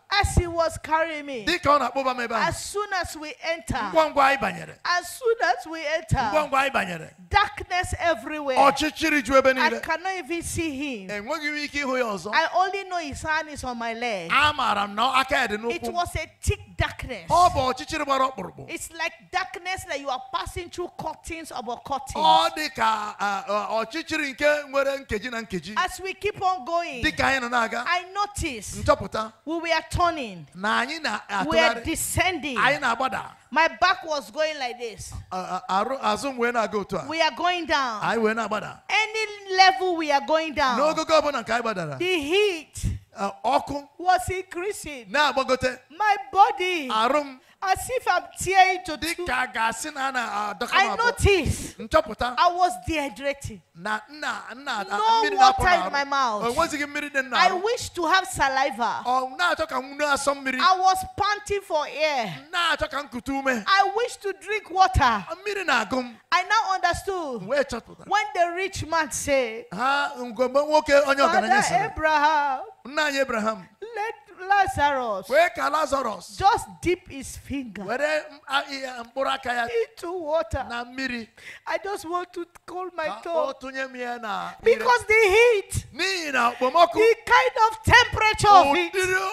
As he was carrying me, as soon as we enter, as soon as we enter, darkness everywhere. I cannot even see him. I only know his hand is on my leg. It was a thick darkness. It's like darkness that you are passing through curtains of curtains. As we keep on going, I noticed we were talking turning. We are descending. My back was going like this. We are going down. Any level we are going down. The heat was increasing. My body. As if I'm tearing to two. I noticed I was dehydrating. No water in my mouth. I wish to have saliva. I was panting for air. I wish to drink water. I now understood when the rich man said, Father Abraham, let Lazarus. Weka Lazarus. Just dip his finger uh, uh, into water. na I just want to cool my ka Because the heat, the kind of temperature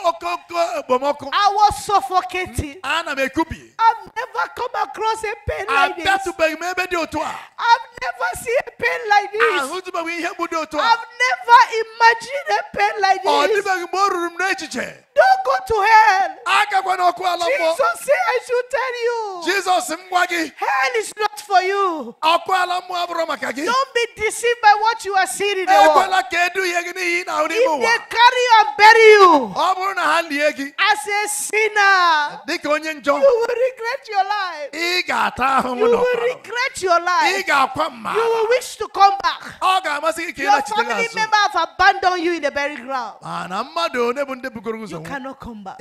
of I was suffocating. I've never come across a pain like this. i I've never seen a pain like this. Ah, i I've never imagined a pain like this there. Don't go to hell. Jesus say I should tell you. Jesus, hell is not for you. Don't be deceived by what you are seeing in the eh, world. If they carry you and bury you as a sinner, you will regret your life. You will regret your life. You will wish to come back. Your family member have abandoned you in the burial ground. You cannot come back.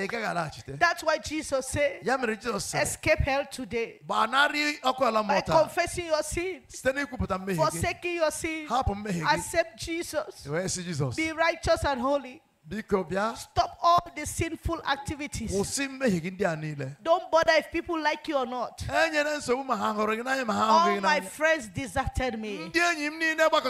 That's why Jesus said, Escape hell today by confessing your sins, forsaking your sins, accept Jesus, be righteous and holy. Stop all the sinful activities. Don't bother if people like you or not. All my friends deserted me. But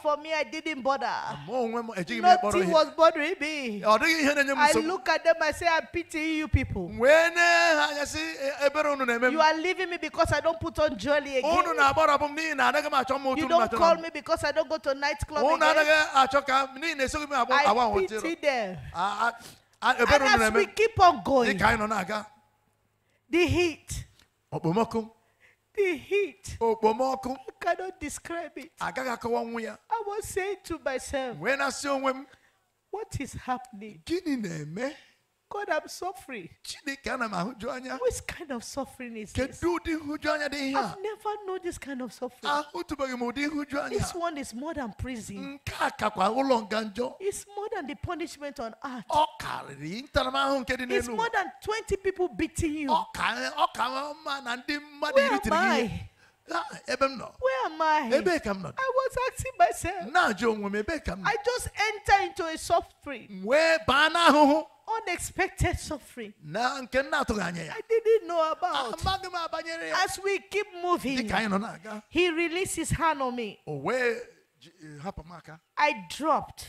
for me, I didn't bother. Nothing was bothering me. I look at them, I say, I pity you people. You are leaving me because I don't put on jewelry. again. You don't call me because I don't go to nightclub again. I pity See there. Uh, uh, and as we, keep on going, the heat, the heat, I cannot describe it. I was saying to myself, when I saw what is happening? God, I'm suffering. Which kind of suffering is this? I've never known this kind of suffering. This one is more than prison. It's more than the punishment on earth. It's more than 20 people beating you. Where am I? Ah, Where am I? I was asking myself. I just enter into a suffering. Unexpected suffering. I didn't know about. Ah, As we keep moving, he released his hand on me. I dropped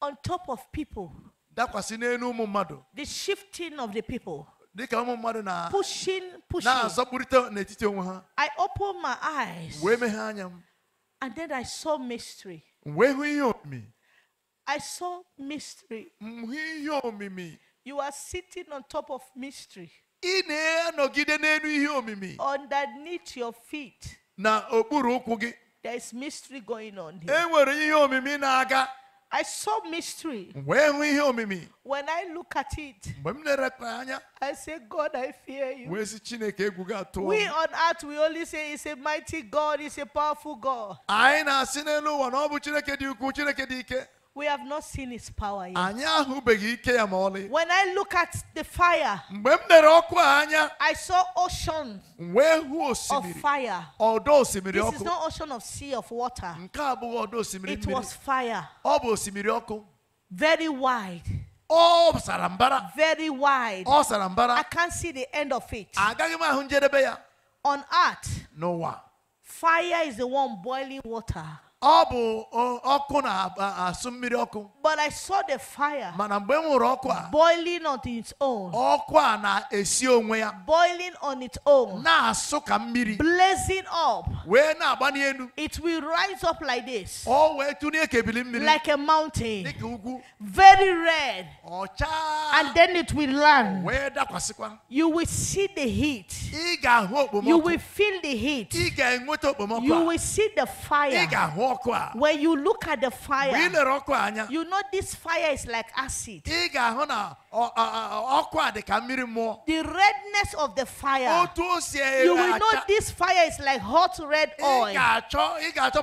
on top of people. The shifting of the people pushing, pushing. I opened my eyes. And then I saw mystery. I saw mystery. You are sitting on top of mystery. Underneath your feet. There is mystery going on here. I saw mystery. When I look at it, I say, God, I fear you. We on earth, we only say, He's a mighty God, He's a powerful God. We have not seen his power yet. Anyị ahụbeghị ike ya ma ọlị. When I look at the fire, mgbe m lere ọkụ a anya, I saw ocean wee hụ osimiri of fire. Ọdọ osimiri ọkụ. This is not ocean of sea of water. Nke a abụghị ọdọ osimiri mmiri. It was fire. Ọ bụ osimiri ọkụ. Very wide. Oh, sarambara. Very wide. Oh, sarambara. I can't see the end of it. Agaghị m ahụ njedebe ya. On earth. N'ụwa. Fire is the one boiling water. But I saw the fire boiling on its own, boiling on its own, blazing up. It will rise up like this, like a mountain, very red, and then it will land. You will see the heat, you will feel the heat, you will see the fire. When you look at the fire, you know this fire is like acid. The redness of the fire, you will know this fire is like hot red oil. That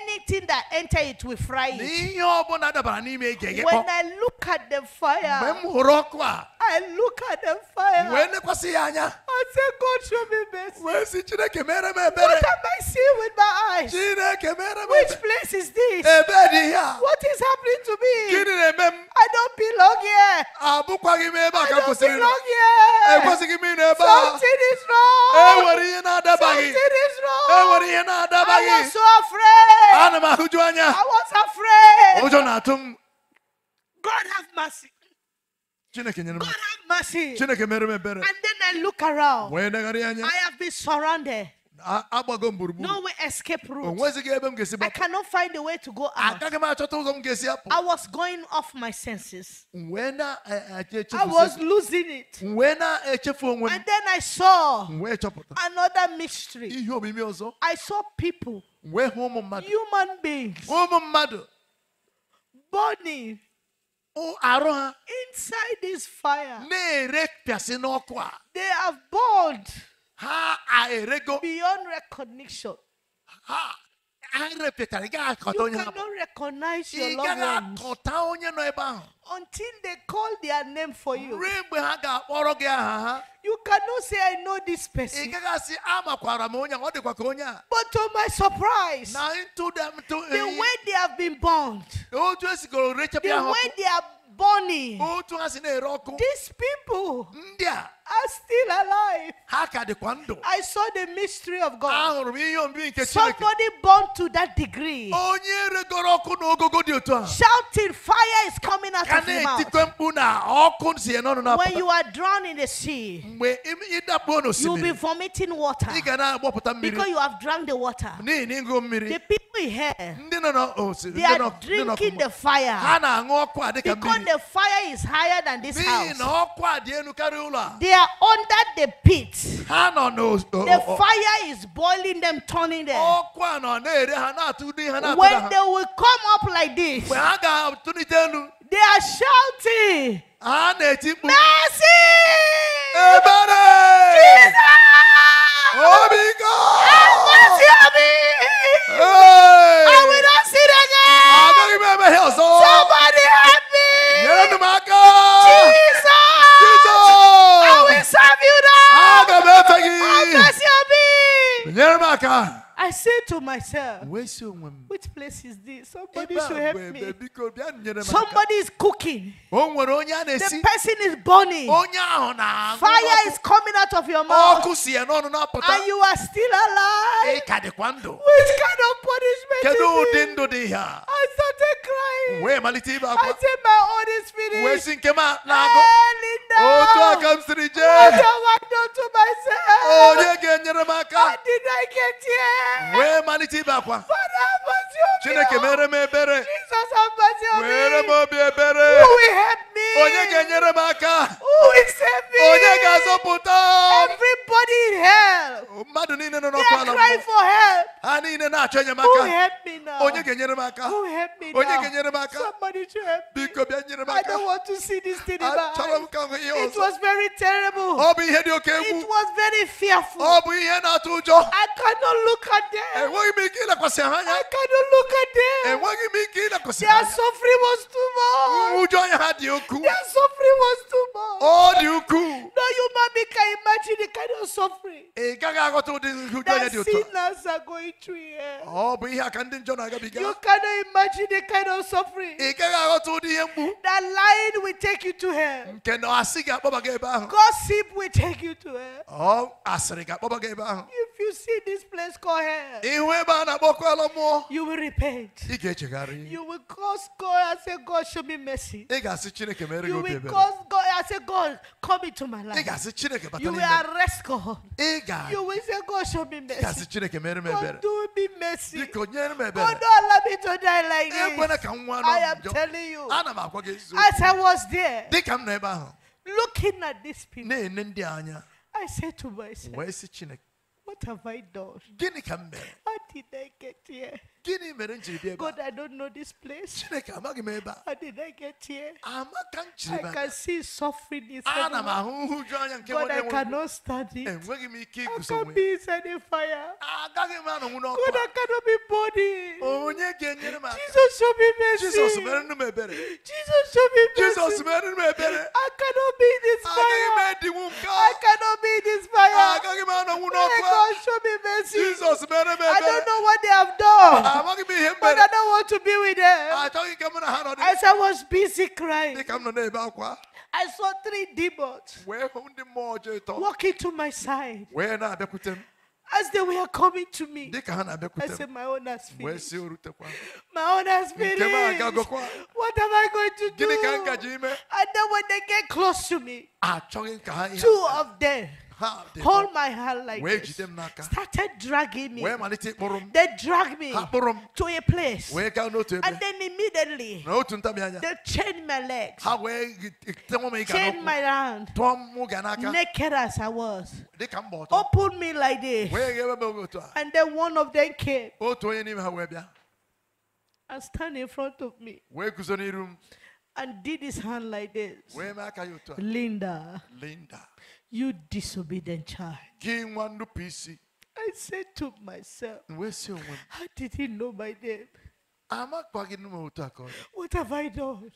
anything that enter it will fry it. When I look at the fire, I look at the fire. wee nekwasị ya anya I say God show me mercy. wee sị chineke mere m What am I seeing with my eyes? chineke mere m Which place is this? What is happening to me? I I don't belong here. I don't belong here. ekwesịghị m ịnọ Something is wrong. Something is wrong. I was so afraid. I'm ahụju I was afraid. God have mercy. God have mercy. And then I look around. I have been surrounded. No way escape route. I cannot find a way to go out. I was going off my senses. I was losing it. And then I saw another mystery. I saw people, human beings, burning Inside this fire. They have bored. Beyond recognition. You cannot recognize your loved ones until they call their name for you. You cannot say, I know this person. But to my surprise, the way they have been born, the way they are born, these people are still alive. Ha ka dịkwa ndụ. I saw the mystery of God. Somebody born to that degree. Shouting fire is coming out of your mouth. When you are drowned in the sea. You will be vomiting water. Because you have drunk the water. The people here. They are drinking the fire. Because the fire is higher than this house. They are under the pit. The fire is boiling them, turning them. When they will come up like this, they are shouting, Mercy! Jesus! Oh my God! I will not see sin again! Somebody help me! I said to myself, which place is this? Somebody should help me. Somebody is cooking. The person is burning. Fire is coming out of your mouth. And you are still alive. Which kind of punishment is this? I started crying. I said, my Holy Spirit. Hey, Linda. What am onye ga-enyere m aka wee malite ibe akwa chineke oh. mere m ebere were m obi ebere onye ga-enyere m aka Who is heavy? Everybody in hell. Oh, no no They are crying for help. Who help me now? Who help me now? Somebody to help me. I don't want to see this thing in my eyes. It was very terrible. It was very fearful. I cannot look at them. I cannot look at them. Their suffering was too much. Their suffering was too much old you cool. No human being can imagine the kind of suffering eh, that sinners are going through oh, here. You cannot imagine the kind of suffering eh, that lying will take you to hell. Mm, Gossip will take you to hell. Oh, if you see this place called hell, eh, you will repent. You will cause God and say, God, show me mercy. You will cause God and say, God, God, come into my life. You will arrest God. You will say, God, show me mercy. God, do me mercy. God, don't allow me to die like this. I am telling you. As I was there, looking at these people, I said to myself, What have I done? How did I get here? God, I don't know this place. How did I get here? I can see suffering is God, I cannot stand it. I can't be inside a fire. God, cannot be body. Jesus, show me mercy. Jesus, show me mercy. I cannot be in this fire. cannot be in this fire. God, show me mercy. I I don't know what they have done. Ah, but I don't want to be with them. I said, I was busy crying. I saw three demons walking to my side. As they were coming to me, I said, My own spirit." My own spirit. What am I going to do? Eh? And then when they get close to me, ah, two of them hold my hand like this, started dragging me. They dragged me to a place. And then immediately, they chained my legs, chained my hand, naked as I was, opened me like this. And then one of them came oh, and stand in front of me and did his hand like this. Linda. Linda. You disobedient child. I said to myself, How did he know my name? What have I done?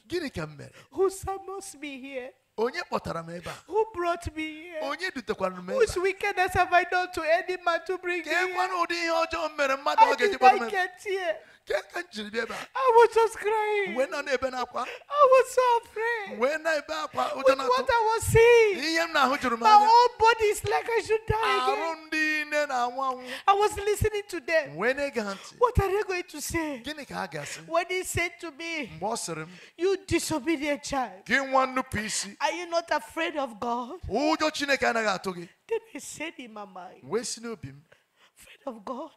Who summons me here? who brought me here onye a whose wickedness have I done to any man to bring me here ka did nwere get here? I was just crying. When I was so afraid. With what I was seeing, my whole body is like I should die again. I was listening to them. What are they going to say? When he said to me, You disobedient child, are you not afraid of God? Oh, then he said in my mind, Afraid of God?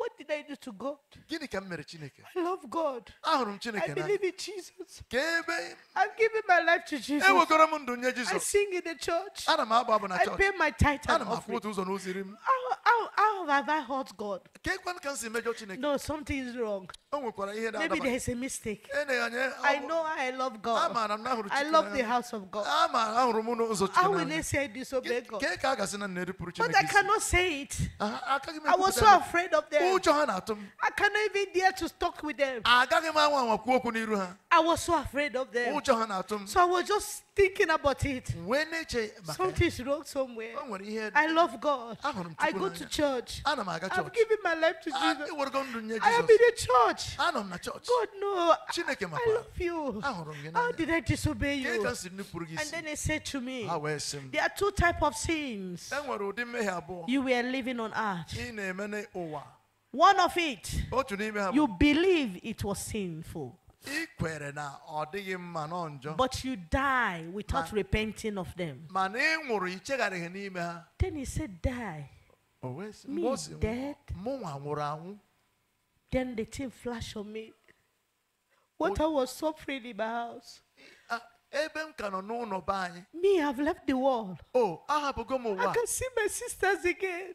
what did I do to God? I love God. I believe in Jesus. I've given my life to Jesus. I sing in the church. I pay my tithe How, how, how have I hurt God? No, something is wrong. Maybe there's a mistake. I know I love God. I love the house of God. Amaara How will I say I disobey God? But I cannot say it. I was so afraid of them ụjọ ha na-atụ m I cannot even dare to talk with them. agaghị m kwuo okwu n'iru ha I was so afraid of them. ụjọ ha na-atụ m So I was just thinking about it. wee na-eche maka ya. Something is wrong somewhere. o nwere ihe I love God. ahụrụ Chukwu go to church. ana m aga i am giving my life to ah, Jesus. nye I am in a church. anọ m na church. God no. I, Chineke I love you. Ahụrụ m gị How did I disobey ka you? nupụrụ gị And then he said to me, ha wee sị m There are two types of sins e nwere ụdị mmehie abụọ you were living on earth. ị na-eme n'ụwa one of it, you believe it was sinful. But you die without repenting of them. Then he said, Die. Me dead. Then the thing flashed on me. What I was suffering in my house. Me, I've left the world. Oh, I can see my sisters again.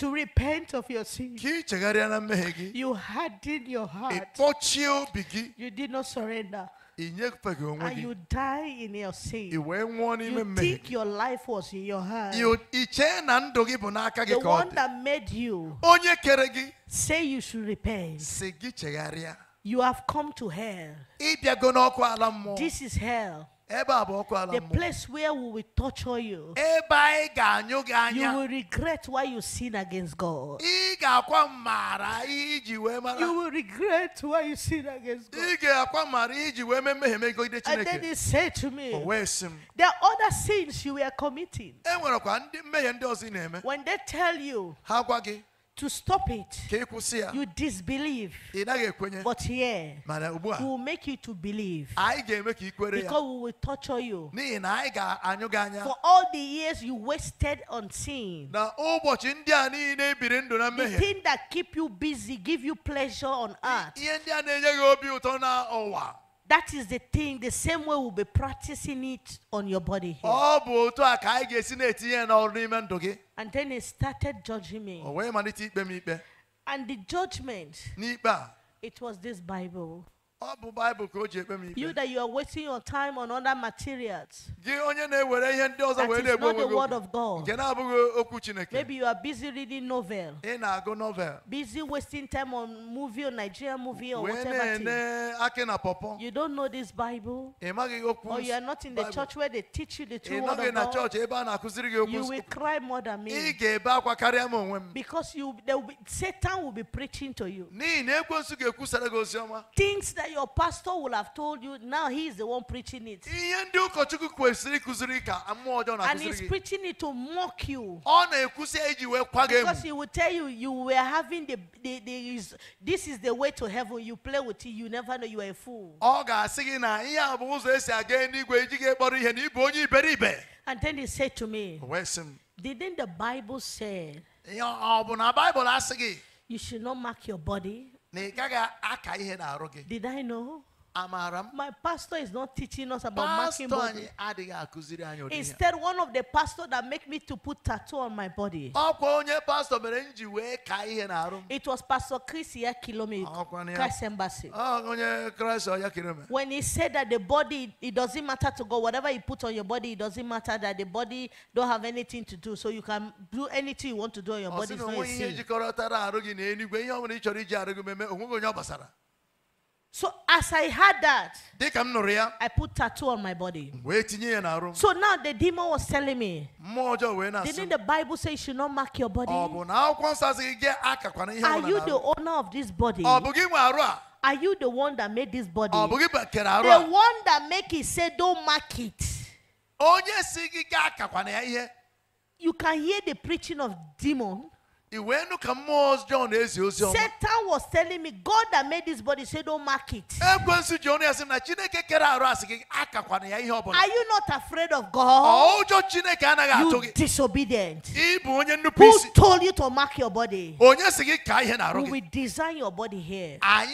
to repent of your sins. You hardened your heart. You did not surrender. And you die in your sin. You think your life was in your hand. The one that made you say you should repent. You have come to hell. This is hell. The place where we will torture you, you will regret why you sin against God. You will regret why you sin against God. And then he said to me, There are other sins you were committing. When they tell you, to stop it, you disbelieve. But here, we will make you to believe. Because we will torture you. For all the years you wasted on sin, the thing that keep you busy, give you pleasure on earth, that is the thing, the same way we'll be practicing it on your body. Here. And then he started judging me. And the judgment, it was this Bible. You that you are wasting your time on other materials. That is not the word of God. Maybe you are busy reading novel. Busy wasting time on movie or Nigerian movie or whatever. You don't know this Bible. Or you are not in the church where they teach you the true word of God. You will cry more than me. Because you, be, Satan will be preaching to you. Things that your pastor will have told you, now he is the one preaching it. And he's preaching it to mock you. Because he will tell you, you were having the, the, the, this is the way to heaven. You play with it, you never know you are a fool. And then he said to me, Didn't the Bible say? You should not mark your body did I know? amaara my pastor is not teaching us about marking body instead one of the pastor that make me to put tattoo on my body it was pastor chris ya embassy when he said that the body it doesn't matter to god whatever you put on your body it doesn't matter that the body don't have anything to do so you can do anything you want to do on your body it's not a sin So as I had that, I put tattoo on my body. So now the demon was telling me, didn't the Bible say you should not mark your body? Oh, Are you the owner of this body? Oh, Are you the one that made this body? Oh, the one that make it say don't mark it. You can hear the preaching of demon. Satan was telling me, God that made this body said, Don't mark it. Are you not afraid of God? You disobedient. Who told you to mark your body? We will design your body here. And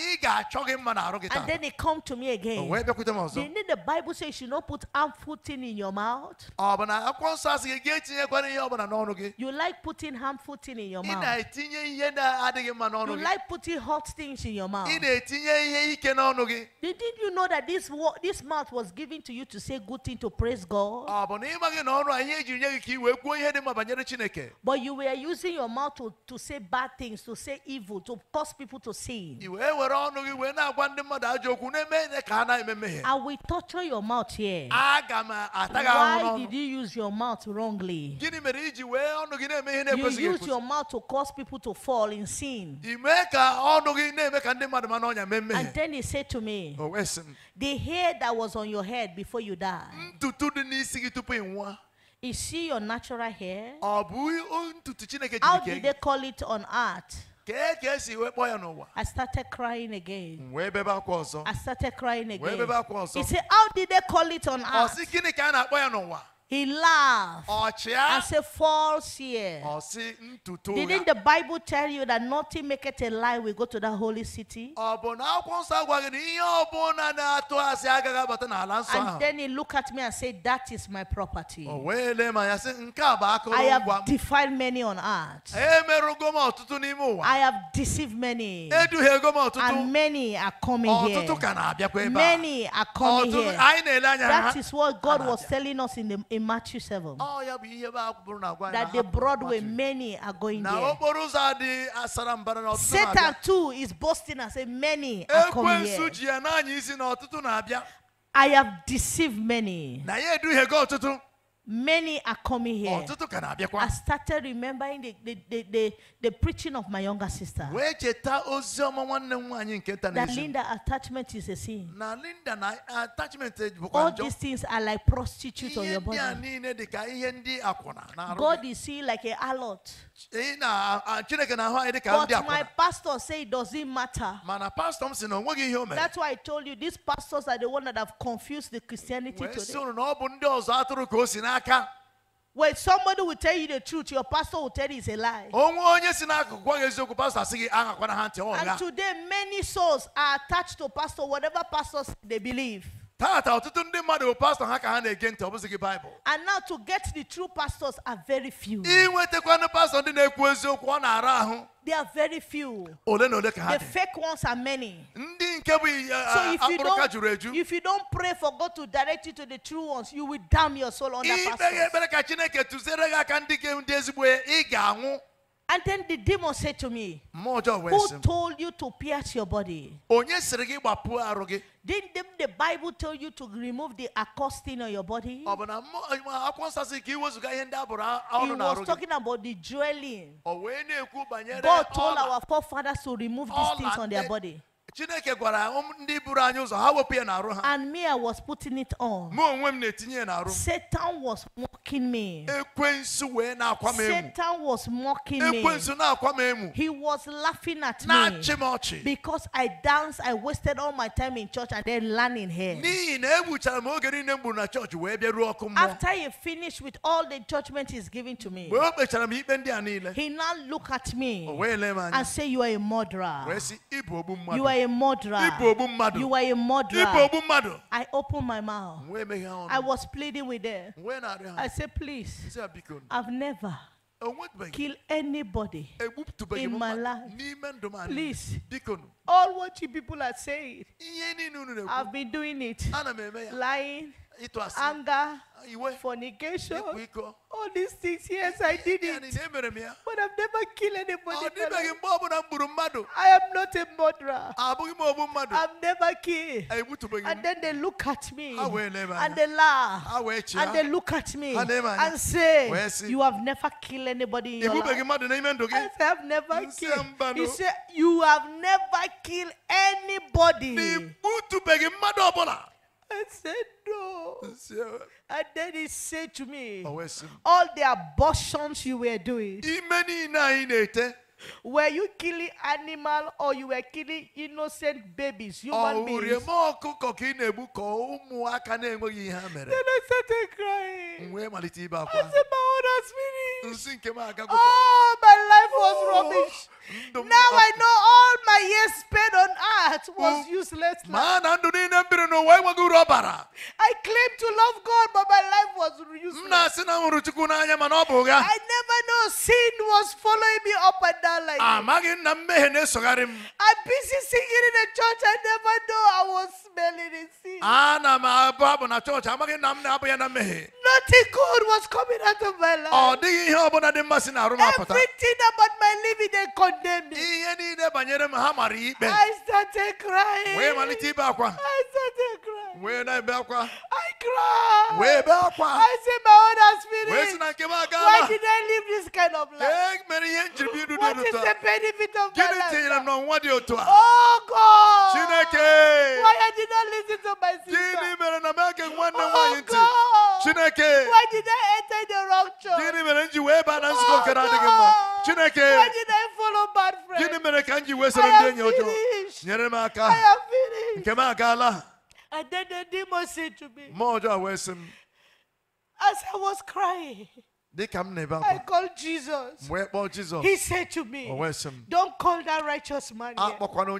then he come to me again. Didn't the Bible say you should not put harmful thing in your mouth? You like putting harmful thing in your mouth mouth. You like putting hot things in your mouth. Didn't you know that this, this mouth was given to you to say good things, to praise God? But you were using your mouth to, to say bad things, to say evil, to cause people to sin. I will torture your mouth here. Why did you use your mouth wrongly? You use your mouth to cause people to fall in sin. And then he said to me, oh, The hair that was on your head before you died, is she your natural hair? How did they call it on earth? I started crying again. I started crying again. He said, How did they call it on earth? He laughed as a false year. Didn't the Bible tell you that nothing maketh a lie? We go to the holy city. And then he looked at me and said, That is my property. I have defiled many on earth. I have deceived many. And many are coming here. Many are coming here. That is what God was telling us in the in Matthew 7 that the Broadway many are going there. Satan too is boasting and saying many are coming here. I have deceived many. Many are coming here. Oh, I started remembering the, the, the, the, the preaching of my younger sister. That Linda attachment is a sin. All these things are like prostitutes on your body. God is seen like a harlot. Eh, but my pastor say it doesn't matter. That's why I told you these pastors are the one that have confused the Christianity today. When somebody will tell you the truth, your pastor will tell you it's a lie. And today, many souls are attached to pastor, whatever pastors they believe. And now to get the true pastors are very few. They are very few. The fake ones are many. Eh, so eh, if you, don't, if you don't pray for God to direct you to the true ones, you will damn your soul under pastors. And then the demon said to me, Who told you to pierce your body? Didn't the Bible tell you to remove the accosting on your body? Oh, He was talking about the dwelling. Oh, God told our forefathers to remove these things on their body. Chineke gwara ndị buru anyị ụzọ ha wepụ ya n'arụ ha. And me I was putting it on. Mụ onwe m na-etinye ya n'arụ. Satan was mocking me. Ekwensu wee na-akwa m emu. Satan was mocking me. Ekwensu na-akwa m emu. He was laughing at me. Na-achị m ọchị. Because I danced, I wasted all my time in church and then learning here. N'ihi na egbuchara m oge niile m gburu na chọọchị wee bịa ruo ọkụ mmụọ. After he finished with all the judgment he's giving to me. Mgbe o kpechara m ikpe ndị a niile. He now look at me. O wee lee m anya. And say you are a murderer. Wee sị ịbụ ogbu mmadụ. You are a a murderer. You were a murderer. I opened my mouth. I was pleading with them. I said, please, I've never kill anybody in my life. Please, all what you people are saying, I've been doing it, lying anger, fornication, all these things. Yes, I did it. But I've never killed anybody. Oh, I am not a murderer. Ah, I've never killed. And then they look at me ah, and they laugh ah, and they look at me and say, You have never killed anybody. In your life. I say, I've never killed. You oh. said, You have never killed anybody. I said, no. And then he said to me, oh, All the abortions you were doing were you killing animal or you were killing innocent babies, human beings? Then I started crying. I said, my own has finished. Oh, my life was oh, rubbish. Now I know all my years spent on earth was oh, useless. I claim to love God, but my life was useless. I never know sin was following me up and down down like amaghị ah, na mmehie na-esogharị m I'm busy singing in the church I never know I was smelling sin m abụ abụ na chọọchị amaghị na ah, m na-abụ ya na mmehie Nothing good was coming out of my life. Ọ oh, dịghị ihe ọbụla dị mmasị na arụ apụta. Everything about my living they condemned me. Ihe niile banyere m ha mara ikpe. I started crying. Wee malite ibe akwa. I started crying. Wee na-ebe akwa. I cried. Wee ebe akwa. I said my own spirit. Wee si na nke m agaala. Why did I live this kind of life? Ee mere ihe njiri m idu what is the benefit of gịnị tinyere Oh God! Why I did not listen to my sister? Oh God! Why did I enter the wrong church? Oh God! Why did I follow bad friends? Gịnị mere ka m ji wee soro ndị enyi ọjọọ? Nyere m aka nke m agaala And then the demon said to me. As I was crying. I called Jesus. Jesus. He said to me, oh, Don't call that righteous man. Ah,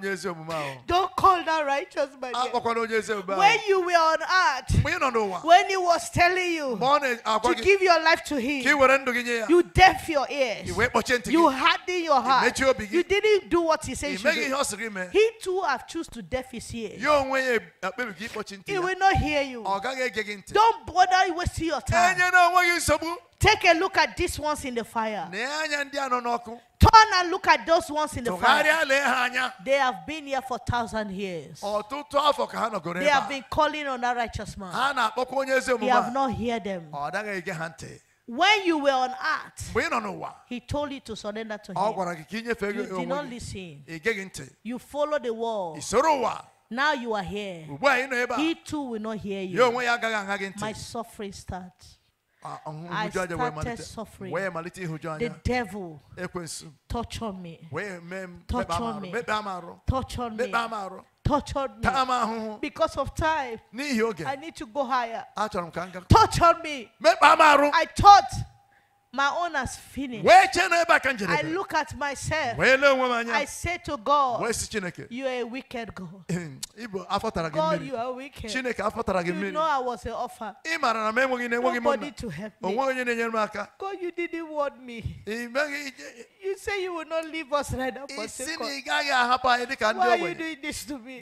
yet. Don't call that righteous man. Ah, yet. When you were on earth, when he was telling you to give your life to him, you deaf your ears, you harden your heart, you didn't do what he said. you He too have choose to deaf his ears. He will not hear you. Don't bother wasting your time. Take a look at these ones in the fire. Turn and look at those ones in the fire. They have been here for thousand years. Oh, they have been calling on a righteous man. They have not heard them. Oh, when you were on earth, he told you to surrender to oh, him. You did not listen. You follow the world. Now you are here. He too will not hear you. My suffering starts. Ah, ah, I started suffering. The devil tortured me. Tortured me. Tortured me. Tortured me. Because of time, I need to go higher. Tortured me. I thought. My own has finished. I look at myself. I say to God, You are a wicked God. God, you are wicked. You know I was an offer. Nobody to help me. God, you didn't want me. You say you will not leave us right now. Why are you doing this to me?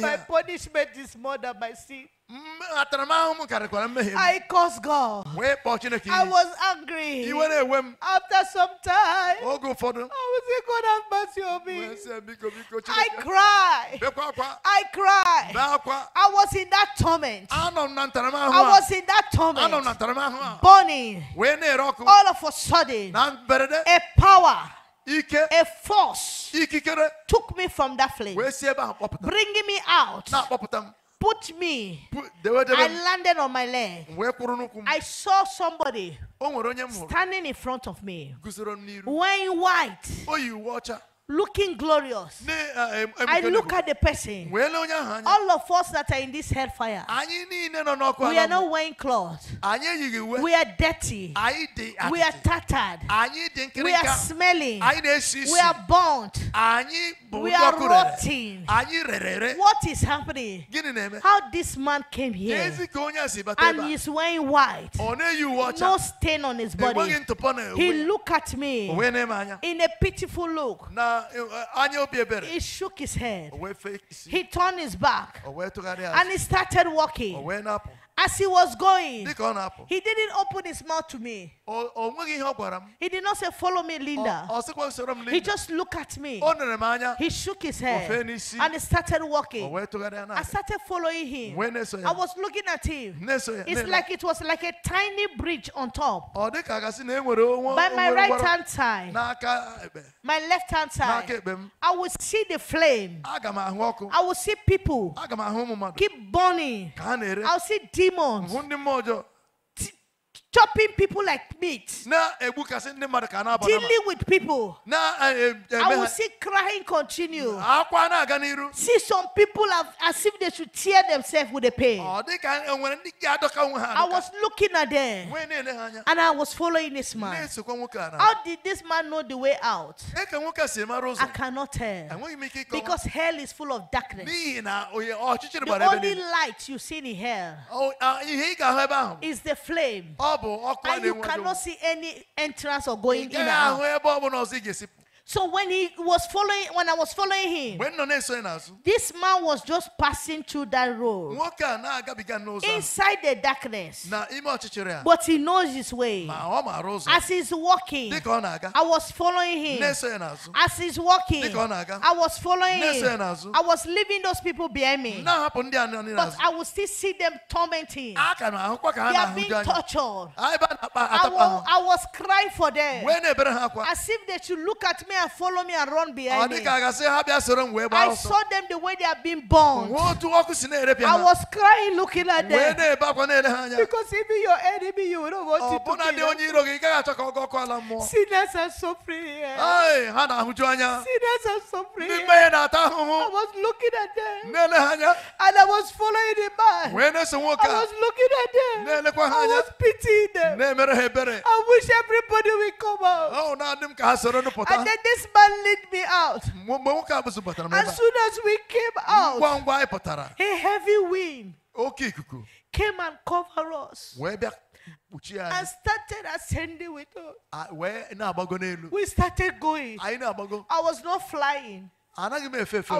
My punishment is more than my sin. I cursed God. I was angry. After some time, I was say, God have mercy on me. I cried. I cried. I was in that torment. I was in that torment. Burning. All of a sudden, a power a force took me from that flame, bringing me out put me. I landed on my leg. I saw somebody oh, standing in front of me wearing white. Oh, looking glorious. Eh, I look at the person. All of us that are in this hellfire, we are not wearing clothes. We are dirty. We are tattered. We are smelling. We are burnt. We are rotting. What is happening? How this man came here and he's wearing white, no stain on his body. He looked at me in a pitiful look. Uh, he shook his head. He turned his back. And he started walking. As he was going, he didn't open his mouth to me. He did not say, Follow me, Linda. He just looked at me. He shook his head and he started walking. I started following him. I was looking at him. It's like it was like a tiny bridge on top. By my right hand side, my left hand side, I would see the flame. I would see people keep burning. I'll see deep one more chopping people like meat, dealing with people. Eh, eh, I will see crying continue. See some people have, as if they should tear themselves with the pain. I was looking at them and I was following this man. How did this man know the way out? I cannot tell because hell is full of darkness. The only light you see in hell is the flame. bubble. And you cannot see any entrance or going in. So when he was following, when I was following him, this man was just passing through that road inside the darkness. But he knows his way. Oh, As he's walking, I was following him. As he's walking, I was following him. I was leaving those people behind me. But I will still see them tormenting. Ah, they are being tortured. I, was I was crying for them. As if they should look at me and follow me and run behind me. I saw them the way they are being born. I was crying looking at them. Because even your enemy, you don't want to kill oh, them. Sinners are suffering here. Sinners are suffering here. I was looking at them. And I was following the man. I was looking at them. I was pitying them. I wish everybody would come out. Oh, and then this man led me out. As soon as we came out, a heavy wind came and covered us. And started ascending with us. We started going. I was not flying. I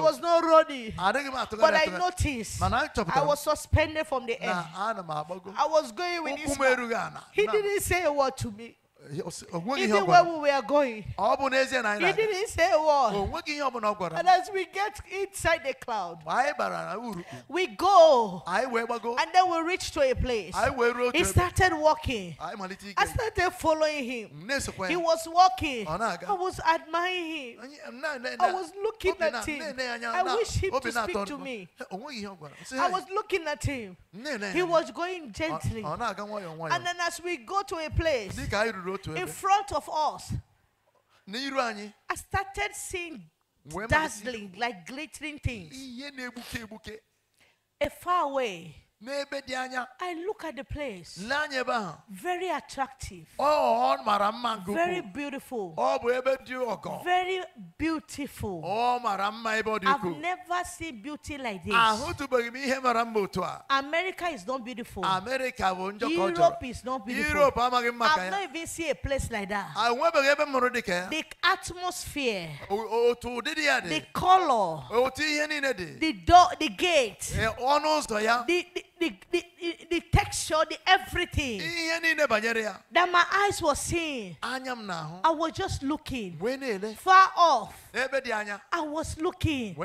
was not running. But I noticed. I was suspended from the air. I was going with this man. He didn't say a word to me. He uh, where we are going. He didn't say oh, what. And as we get inside the cloud, we go. And then we reach to a place. He started walking. I started following him. He was walking. Oh, I was admiring him. I was looking at him. I wish him to speak to me. I was looking at him. He was going oh, gently. And then as we go to a place, in front of us. I started seeing dazzling, like glittering things. A far away. n'ebe dị anya. I look at the place. N'anya ebe ahụ. Very attractive. Ọ oh, ọ mara mma nke ukwuu. Very beautiful. Ọ bụ ebe dị ọgọ. Very beautiful. Ọ oh, mara mma ebe ọ dị ukwuu. I've never seen beauty like this. Ahụtụbeghị m ihe mara mma otu a. America is not beautiful. America bụ njọ ka ọ jọrọ. Europe is not beautiful. Europe amaghị mma ka ya. I've not even seen a place like that. Enwebeghị ah, ebe m dị ka ya. The atmosphere. Otu ụdịdị ya dị. The color. Otu ihe niile dị. The door the gate. Eh, ọnụ ụzọ ya. The the di, di, the texture, the everything. That my eyes were seeing. I was just looking. Far off. I was looking.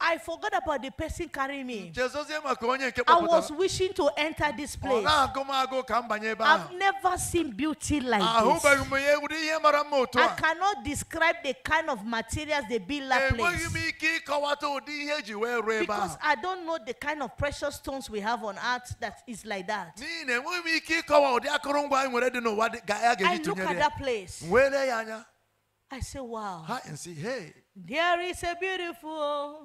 I forgot about the person carrying me. I was wishing to enter this place. I've never seen beauty like this. I cannot describe the kind of materials build Bila place. Because I don't know the kind of precious stones we have on earth that that is like that. I look at that place. I say, wow. And say, hey. There is a beautiful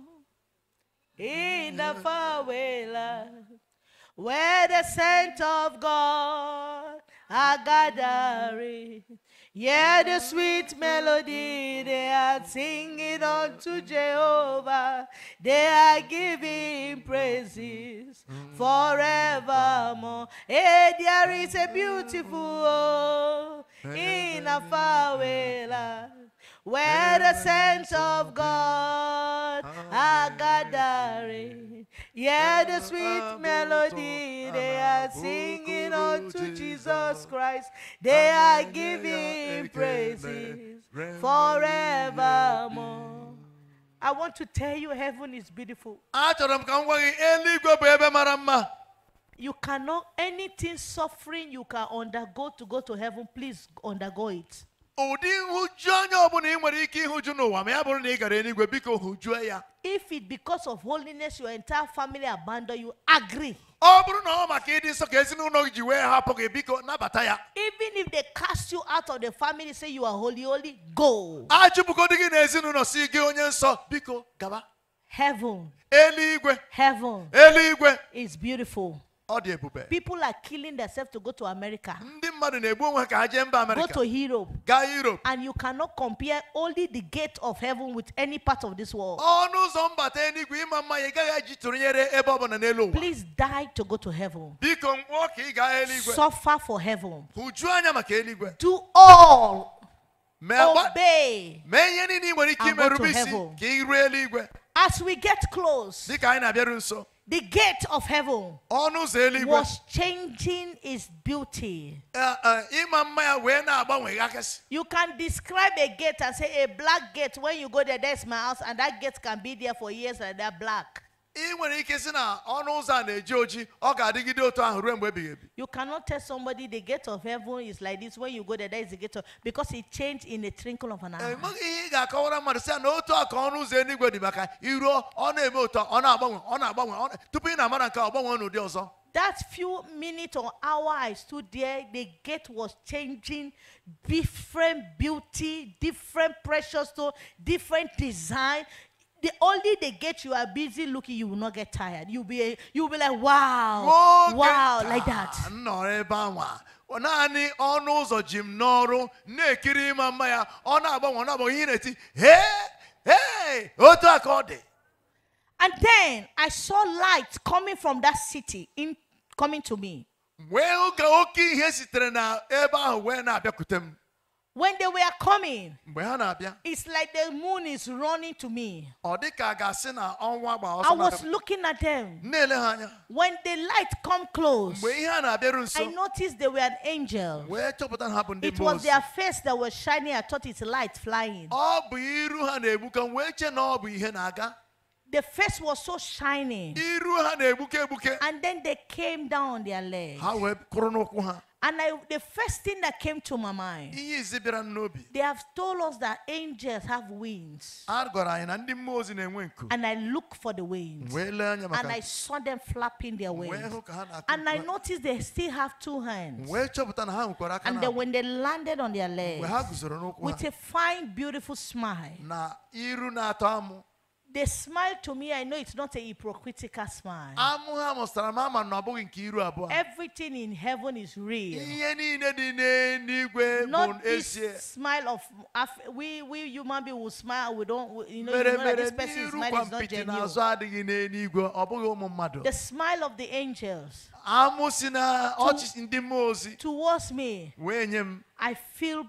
in the faraway land where the saints of God are gathering. Yeah, the sweet melody they are singing unto Jehovah. They are giving praises forevermore. Hey, eh, there is a beautiful oh, in a faraway land where the saints of God are gathering. Yeah, the sweet melody they are singing unto Jesus Christ. They are giving praises forevermore. I want to tell you, heaven is beautiful. You cannot, anything suffering you can undergo to go to heaven, please undergo it. ụdị nhụju anya ọbụla ị nwere ike ịhụ ịhụju n'ụwa ma ya bụrụ na ị gara eluigwe biko hụjuo ya if it because of holiness your entire family abandon you agree ọ bụrụ na ọ maka ịdị nsọ ka ezinụlọ gị ji wee hapụ gị biko nabata ya even if they cast you out of the family say you are holy holy go a gị na ezinụlọ si gị onye nsọ biko gaba heaven eluigwe heaven eluigwe is beautiful People are killing themselves to go to America. Go to Europe. Europe. And you cannot compare only the gate of heaven with any part of this world. Please die to go to heaven. Suffer for heaven. Do all. Obey. And go to heaven. As we get close. The gate of heaven was changing its beauty. Eh, eh, you can describe a gate and say, A black gate, when you go there, that's my house, and that gate can be there for years and that black. ị nwere ike si na ọnụ ụzọ na-eji oji ọ ga-adịgide otu ahụ ruo mgbe ebighị ebi you cannot tell somebody the gate of heaven is like this when you go there that is the gate of because it changed in a trinkle of an eye enweghị ihe ị ga-akọwara mmadụ si ya na otu a ọnụ ụzọ eluigwe dị maka iruo ọ na-eme otu ọ na-agbanwe ọ na-agbanwe tupu ị na-amara nke ọ gbanwe n'ụdị ọzọ that few minutes or hour I stood there, the gate was changing, different beauty, different precious stone, different design, the only they get you are busy looking, you will not get tired. You'll be you'll be like, wow, oh, wow, like that. No, naanị ọnụ ụzọ ji m n'ọrụ na-ekiri ịma mma ya ọ na-agbanwe ọ na-agbanwe ihe na-eti hee hee otu a ka ọ dị And then I saw light coming from that city in coming to me. Wee oge oke ihe sitere na ebe ahụ wee na-abịakwute m. When they were coming, it's like the moon is running to me. I was looking at them. When the light come close, I noticed they were an angel. It was their face that was shining. I thought it's light flying. The face was so shining. And then they came down on their legs. And I, the first thing that came to my mind, they have told us that angels have wings. And I looked for the wings. And I saw them flapping their wings. And I noticed they still have two hands. And then when they landed on their legs, with a fine, beautiful smile, they smile to me. I know it's not a hypocritical smile. Everything in heaven is real. Not this smile of we we human beings will smile. We don't you know, you know that this person's smile is not genuine. The smile of the angels. To, towards me. I feel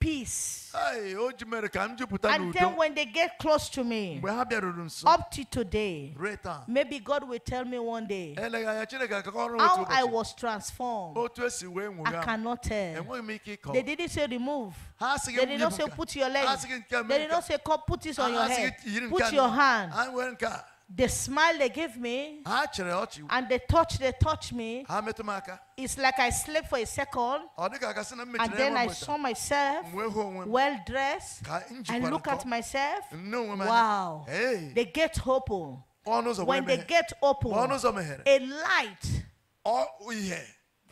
peace. And then when they get close to me, up to today, maybe God will tell me one day how I was transformed. I cannot tell. They didn't say remove. They did not say put your leg. They did not say put this on your head. Put your hand the smile they give me and the touch they touch me it's like i slept for a second and then i saw myself well dressed i look at myself wow hey. they get open when they get open a light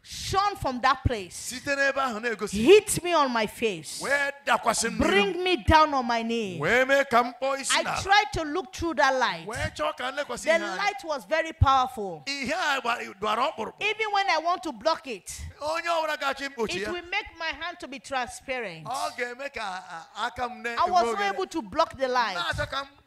shone from that place. Hit me on my face. Bring me down on my knees. I tried to look through that light. The light was very powerful. Even when I want to block it, it will make my hand to be transparent. Ah, ah, I was not able to block the light.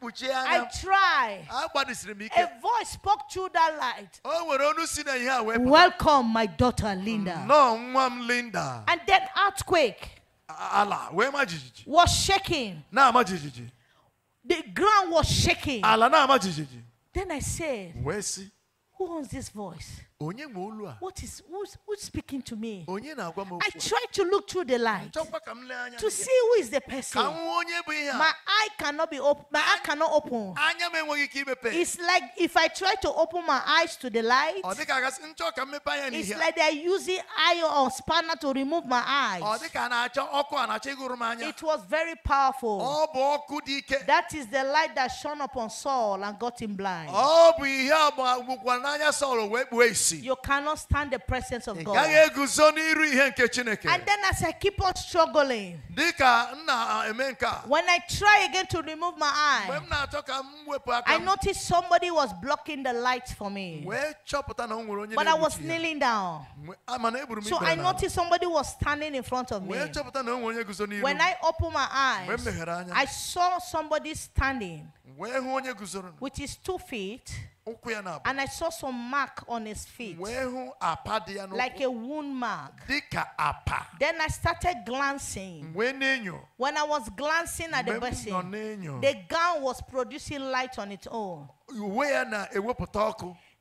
I tried. A voice spoke through that light. Welcome, my daughter. Linda. No, mom Linda. And then earthquake. Allah, where am I? Was shaking. Now am I? The ground was shaking. Allah, now am I? Then I said, Where is he? Who owns this voice? What is who's, who's speaking to me? I try to look through the light to see who is the person. My eye cannot be open. My eye cannot open. It's like if I try to open my eyes to the light, it's like they're using iron or spanner to remove my eyes. It was very powerful. That is the light that shone upon Saul and got him blind. You cannot stand the presence of God. And then as I keep on struggling, when I try again to remove my eye, I noticed somebody was blocking the light for me. But I was kneeling down. So I noticed somebody was standing in front of me. When I opened my eyes, I saw somebody standing, which is two feet. And I saw some mark on his feet, like a wound mark. Then I started glancing. When I was glancing at the person, the gun was producing light on its own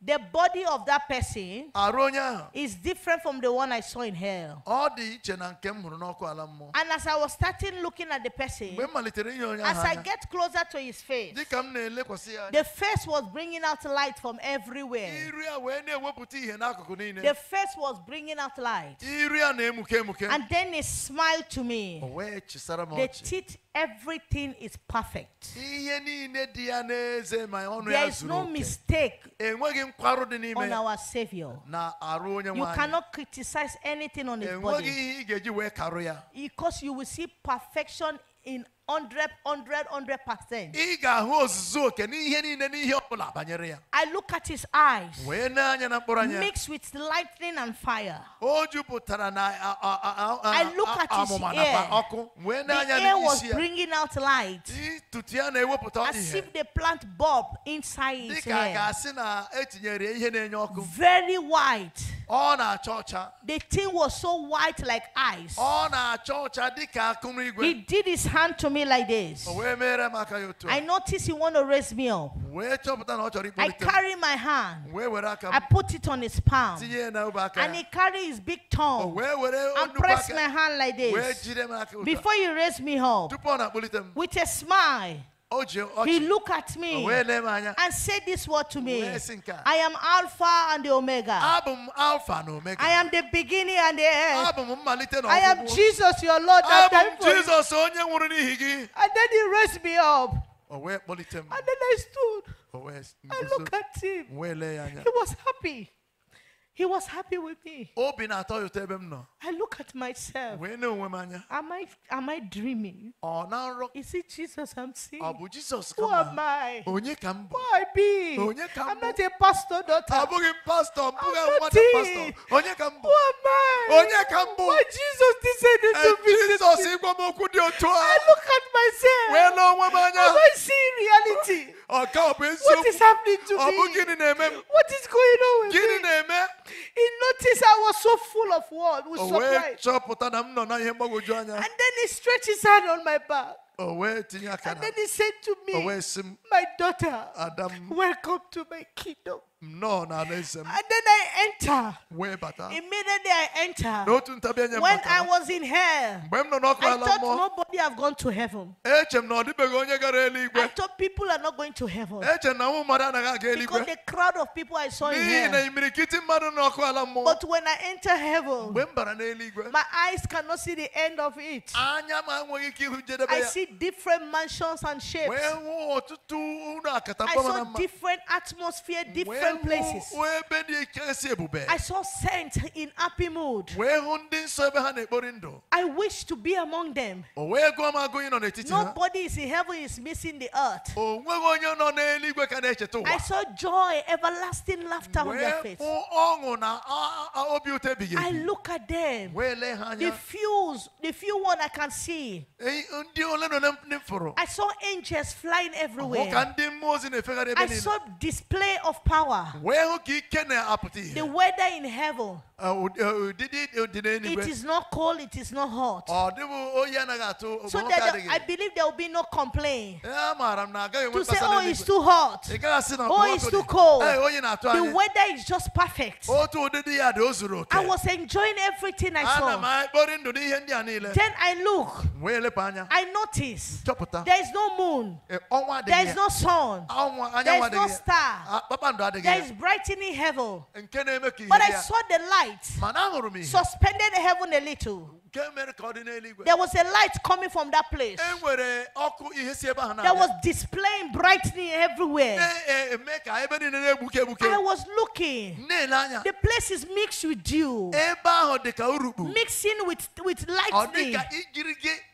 the body of that person is different from the one I saw in hell. And as I was starting looking at the person, as I get closer to his face, the face was bringing out light from everywhere. The face was bringing out light. And then he smiled to me. The teeth Everything is perfect. There is no mistake on our Savior. You cannot criticize anything on His body. Because you will see perfection in 100 100 100%. Ị look at his eyes. Mixed with lightning and fire. I look at his ear. The air was bringing out light. As if they plant bulb inside his Very white. The thing was so white like ice. He did his hand to me me like this. Oh, I notice you want to raise me up. I carry my hand. I put it on his palm. And he carry his big tongue. Oh, and press my hand like this. Before you raise me up. With a smile. He looked at me and said this word to me I am Alpha and the Omega. I am the beginning and the end. I am Jesus, your Lord. And Jesus. And then he raised me up. And then I stood. I looked at him. He was happy. He was happy with me. I look at myself. Am I am I dreaming? ọ na Is it Jesus I'm seeing? ọ bụ Who am I? onye ka Who I be? Onye ka I'm not a pastor daughter. abụghị m mbụghị I'm not a pastor. onye ka Who am I? Onye ka Why Jesus decided to visit me? jizọs ịgwa look at myself. na onwe m Am I seeing reality? ọ ka What is happening to ọ bụ me? gịnị na-eme What is going on with gịnị me? na-eme he noticed I was so full of what was surprise. And then he stretched his hand on my back. And then he said to me, My daughter, welcome to my kingdom. No, no, listen. And then I enter. Where better? Immediately I enter. When I was in hell, I thought nobody have gone to heaven. I thought people are not going to heaven. Because the crowd of people I saw in hell. But when I enter heaven, my eyes cannot see the end of it. I see different mansions and shapes. I saw different atmosphere, different different places. I saw saints in happy mood. I wish to be among them. Nobody is in heaven is missing the earth. Oh, I saw joy, everlasting laughter on their face. I look at them. The few, the few one I can see. I saw angels flying everywhere. I saw display of power. The weather in heaven. Uh, uh, it uh, is not cold, it is not hot. Oh, oh, so I believe there will be no complaint. To say, oh, it's too hot. Oh, it's too cold. Oh, the weather is just perfect. I was enjoying everything I ah, saw. Then I look. I notice there is no moon. Eh, there is no sun. There is no star. There ah, there is brightening heaven. But I saw the light suspended heaven a little. There was a light coming from that place. There was displaying brightening everywhere. I was looking. The place is mixed with dew. Mixing with, with lightning.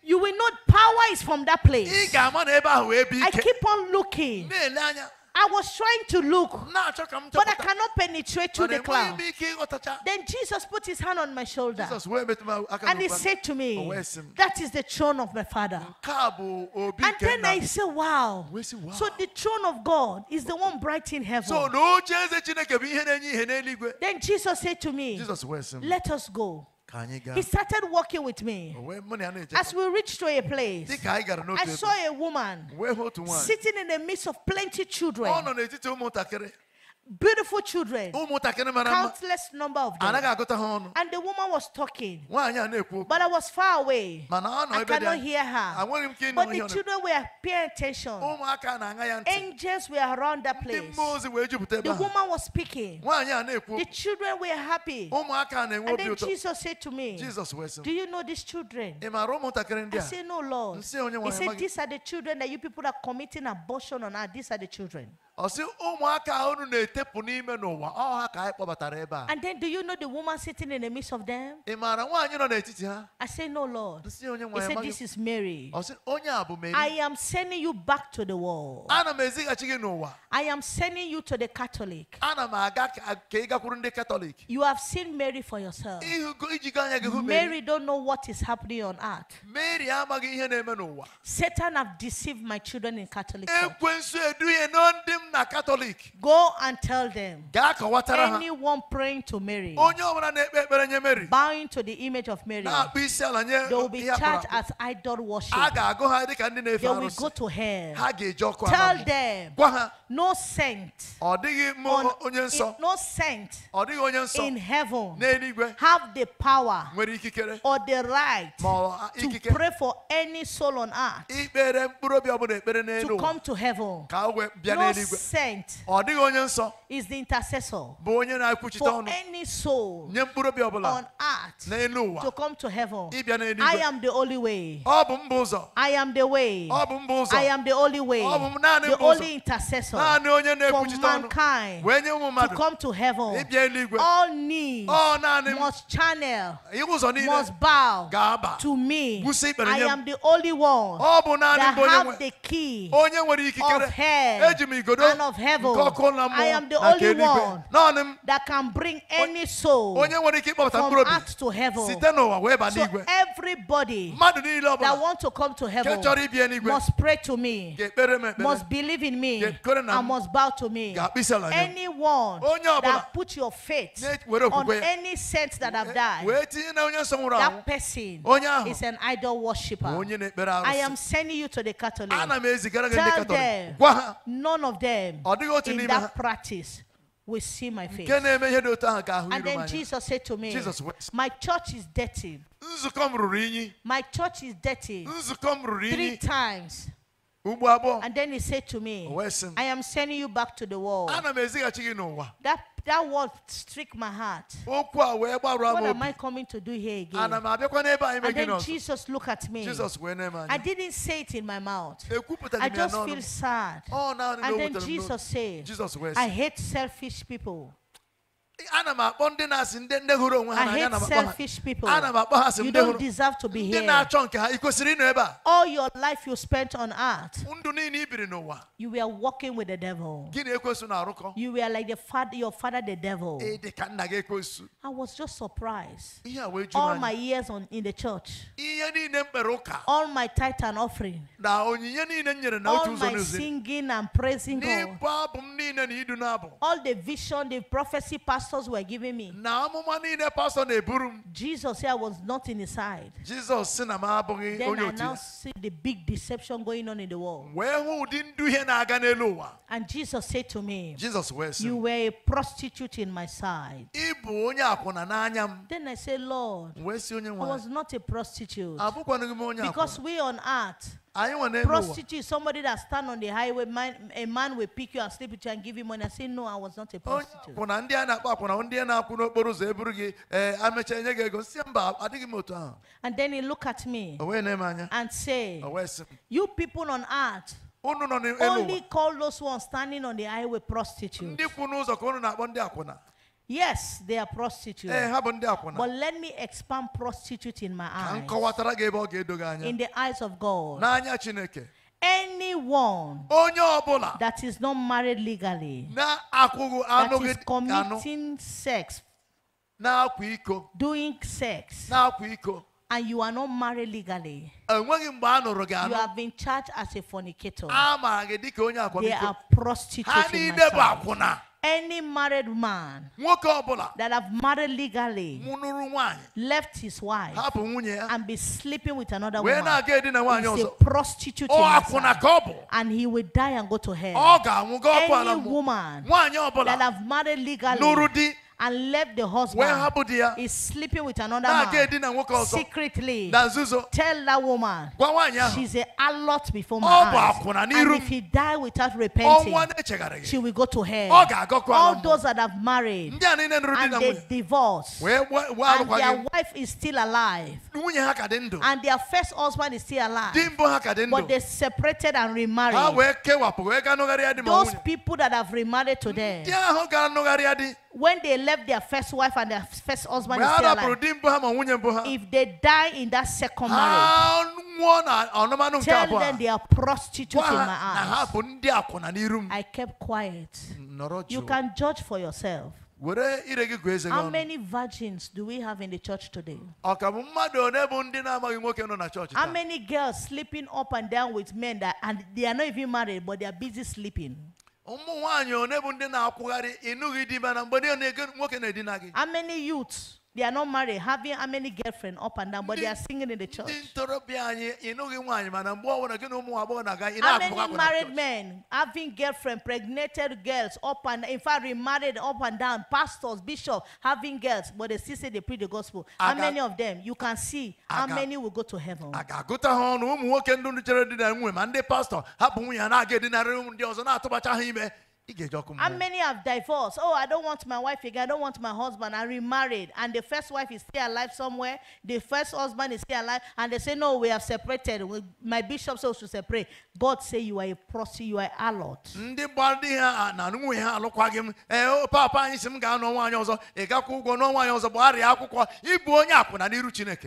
You will know power is from that place. I keep on looking. I was trying to look, but I cannot penetrate through the cloud. Then Jesus put his hand on my shoulder and he said to me, oh, That is the throne of my Father. And then I said, Wow. So the throne of God is the one bright in heaven. Then Jesus said to me, Let us go. He started walking with me. Oh, As we reached to a place, I saw a woman sitting in the midst of plenty children. Oh, beautiful children, countless number of them. And the woman was talking, but I was far away. I cannot hear her. But the children were paying attention. Angels were around that place. The woman was speaking. The children were happy. And then Jesus said to me, Do you know these children? I said, No, Lord. He said, These are the children that you people are committing abortion on. Ah, these are the children. And then do you know the woman sitting in the midst of them? Eh, I say, No, Lord. He said, This is oh, Mary. I am sending you back to the world. I am sending you to the Catholic. You have seen Mary for yourself. Mary don't know what is happening on earth. Satan have deceived my children in Catholic. Church. Go and tell them. Anyone praying to Mary, bowing to the image of Mary, they will be charged as idol worship. They will go to hell. Tell them no saint, on, no saint in heaven have the power or the right to pray for any soul on earth to come to heaven. No sent is the intercessor for any soul on earth to come to heaven. Oh, oh, I am the only way. I oh, am the way. I am the only way. The only intercessor for mankind to come to heaven. All knees must channel, must bow to me. I am the only one that have the key of hell man of heaven. I am the only one that can bring any soul from earth to heaven. So everybody that wants to come to heaven must pray to me, must believe in me, and must bow to me. Anyone oh, that put your faith on any saint that have eh, died, that person oh, is an idol worshiper. Oh, I am sending you to the Catholic. Tell them none of them them in that practice will see my face. And then Jesus said to me, Jesus, My church is dirty. My church is dirty. Three times. And then he said to me, I am sending you back to the world. That that word struck my heart. What am I coming to do here again? And then Jesus looked at me. I didn't say it in my mouth. I just feel sad. Oh, and then Jesus said, I hate selfish people ana m akpọ ndị na-asị ndị ndị hụrụ onwe ha n'anya ha ana m akpọ ha asị ndị hụrụ ndị na-achọ nke ha ị ịnọ ebe a all your life you spent on earth ndụ niile i biri n'ụwa you were working with the devil na-arụkọ you were like the father, your father the devil ị dị ka nna gị I was just surprised ihe a wee all my years on, in the church ihe niile m kpere ụka all my tithe and offering na onyinye niile m nyere na otu ụzọ all my singing and praising God n'ịbụ abụ m niile na idu n'abụ all the vision the prophecy pastor pastors were giving me. Jesus said I was not in his side. Jesus Then I now see the big deception going on in the world. And Jesus said to me. Jesus was You were a prostitute in my side. Then I said Lord. I was not a prostitute. Because we on earth prostitute, somebody that stand on the highway, man, a man will pick you and sleep with you and give you money I say, no, I was not a oh, prostitute. Eh, ah. And then he look at me and say, you people on earth, only call those who are standing on the highway prostitutes. Yes, they are prostitutes. Eh, but let me expand prostitute in my eyes. In the eyes of God. Anyone that is not married legally, that is committing sex, doing sex, and you are not married legally, you have been charged as a fornicator. They are prostitutes. in my niile any married man that have married legally left his wife and be sleeping with another woman a prostitute and he will die and go to hell any woman that have married legally and left the husband. When sleeping with another man. Secretly. Tell that woman. She's a lot before my eyes. And if he die without repenting, she will go to hell. All those that have married and they divorce and their wife is still alive and their first husband is still alive but they separated and remarried. Those people that have remarried today when they left their first wife and their first husband is still alive, if they die in that second marriage, tell them they are prostitutes in my eyes. I kept quiet. You can judge for yourself. How many virgins do we have in the church today? How many girls sleeping up and down with men that and they are not even married but they are busy sleeping? ụmụ nwaanyị one bụ ndị na-akwụgharị ịnụghị di na mgbe na-ege nwoke na-edina gị how many They are not married, having how many girlfriends up and down, but they are singing in the church. How many married men having girlfriends, pregnated girls up and in fact remarried up and down, pastors, bishops having girls, but they still say they preach the gospel. How many of them you can see how many will go to heaven? How many have divorced? Oh, I don't want my wife again. I don't want my husband. I remarried. And the first wife is still alive somewhere. The first husband is still alive. And they say, No, we have separated. My bishop says to separate. God say you are a prostitute, you are a lot.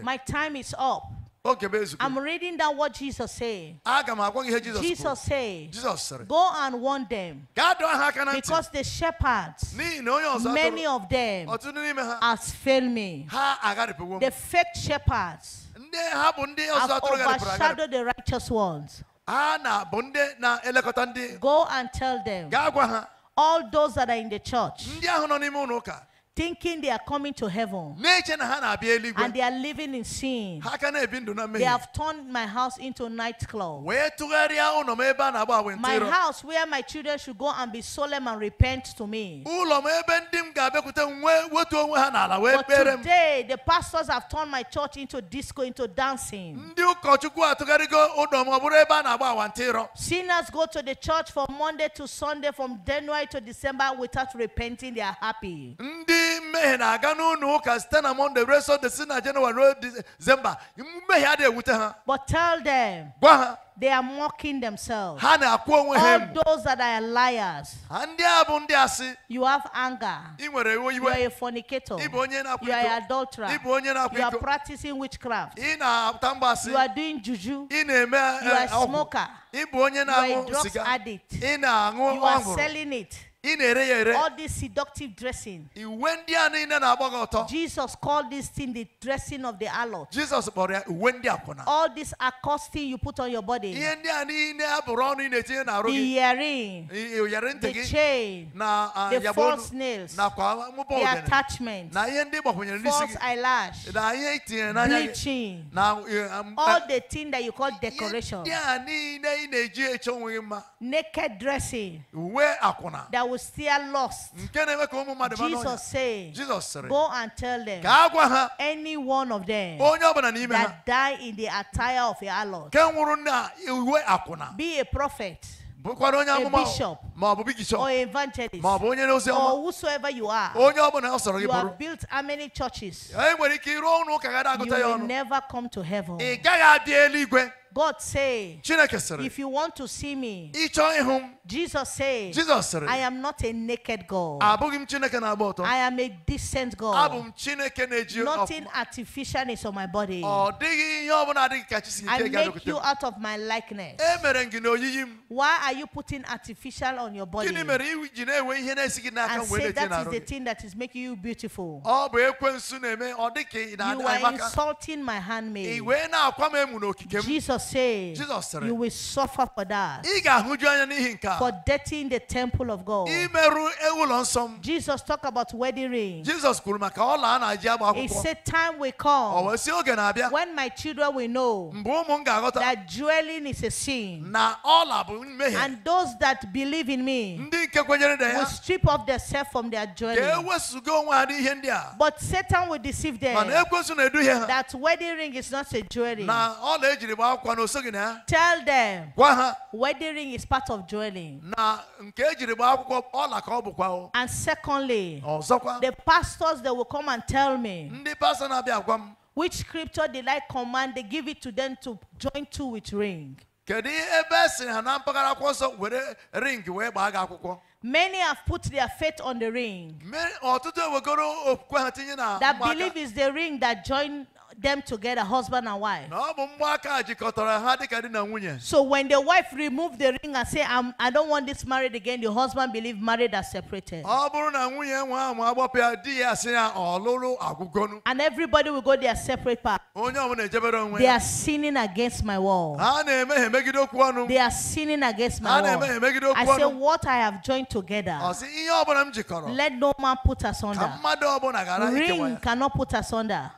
My time is up. I'm reading that what Jesus said. Jesus, Jesus said, Jesus Go and warn them. Because the shepherds, many of them, oh, has failed me. The fake shepherds oh, have overshadowed the righteous ones. Go and tell them all those that are in the church thinking they are coming to heaven. And they are living in sin. They have turned my house into a nightclub. My house where my children should go and be solemn and repent to me. But today, the pastors have turned my church into disco, into dancing. Sinners go to the church from Monday to Sunday, from January to December without repenting. They are happy ime na aga n'ụlọ ụka site na mọnde ruo sọnde si na jenụwarị ruo dizemba mmehie adịghị ewute ha but tell them gwa They are mocking themselves. All those that are liars. You have anger. You are a fornicator. You are an adulterer. You are practicing witchcraft. You are doing juju. Eh, eh, you are a smoker. You are a drug addict. You are selling it all this seductive dressing jesus called this thing the dressing of the alot jesus all this accosting you put on your body the earring the chain na the false nails the attachment false eyelash bleaching all the thing that you call decoration naked dressing uwe akwụna that were still lost, Jesus said, Jesus Go and tell them, any one of them that die in the attire of a harlot, be a prophet. A bishop or evangelist or whosoever you are, you have built how many churches? You will never come to heaven. God say, if you want to see me, Jesus say, I am not a naked God. I am a decent God. Nothing artificial is on my body. I make you out of my likeness. Why are you putting artificial on your body? And say that is the thing that is making you beautiful. You are insulting my handmaid. Jesus Jesus said, Jesus You will suffer for that. For dirtying the temple of God. Jesus talked about wedding ring. Jesus He said, Time will come when my children will know that dwelling is a sin. And those that believe in me will strip off their self from their dwelling. But Satan will deceive them that wedding ring is not a jewelry. Tell them ring is part of dwelling. And secondly, the pastors they will come and tell me which scripture did I command they give it to them to join to with ring. Many have put their faith on the ring. That believe is the ring that join them together, husband and wife. So when the wife removed the ring and said, I'm, I do not want this married again, the husband believed married are separated. And everybody will go their separate path. They are sinning against my wall. They are sinning against my wall. I say, what I have joined together, let no man put asunder. Ring cannot put asunder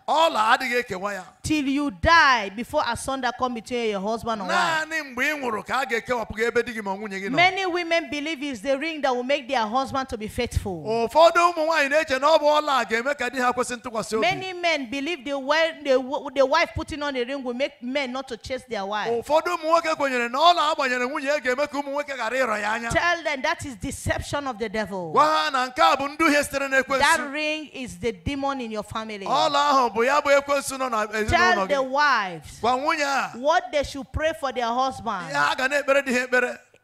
till you die before a son that come between your husband and wife. Many women believe it's the ring that will make their husband to be faithful. Many men believe the, wife, the, the wife putting on the ring will make men not to chase their wife. Tell them that is deception of the devil. That ring is the demon in your family no, no. Tell the wives what they should pray for their husband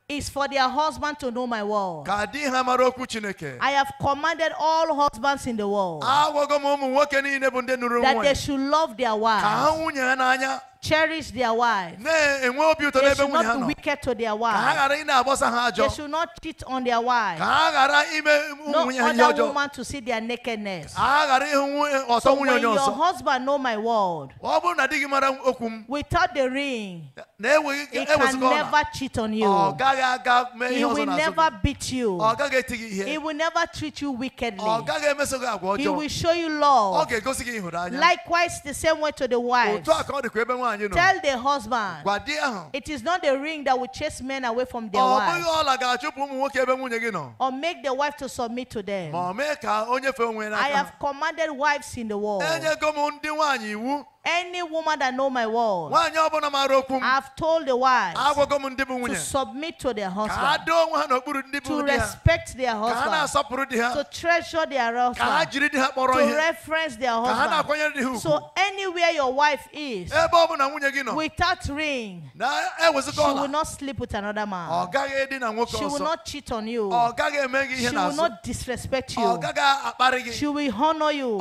is for their husband to know my word. I have commanded all husbands in the world that they should love their wives cherish their wives. They should not be wicked to their wives. They should not cheat on their wives. No other woman to see their nakedness. So when your husband know my word, without the ring, he can never cheat on you. He will never beat you. He will never treat you wickedly. He will show you love. Likewise, the same way to the wives husband, you know. Tell the husband. It is not the ring that will chase men away from their oh, wives. Ah, or make the wife to submit to them. I have commanded wives in the world. Any woman that know my word, I've told the wives to submit to their husband, to respect their husband, to treasure their husband, to reference their husband. So anywhere your wife is, eh, without ring, eh, she will not sleep with another man. Oh, she will not cheat on you. Oh, she will not disrespect oh, you. She will honor you.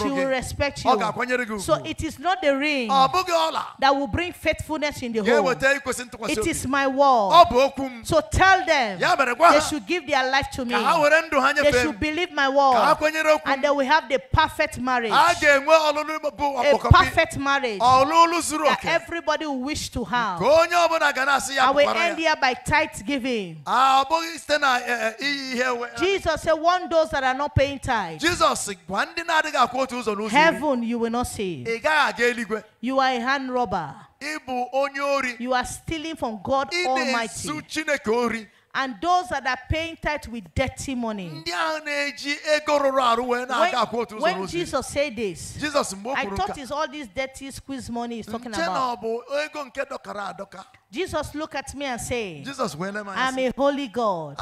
She will respect you. So it is is not the ring that will bring faithfulness in the home. It is my word. So tell them they should give their life to me. They should believe my word. And they will have the perfect marriage. A perfect marriage that everybody will wish to have. I will end here by tithe giving. Eh, eh, Jesus said, "One those that are not paying tithe. Heaven you will not see. You are a hand robber. You are stealing from God Almighty and those that are painted with dirty money. When, when Jesus said this, Jesus, I thought it's all this dirty squeeze money he's talking about. Jesus looked at me and said, Jesus, I'm a holy God.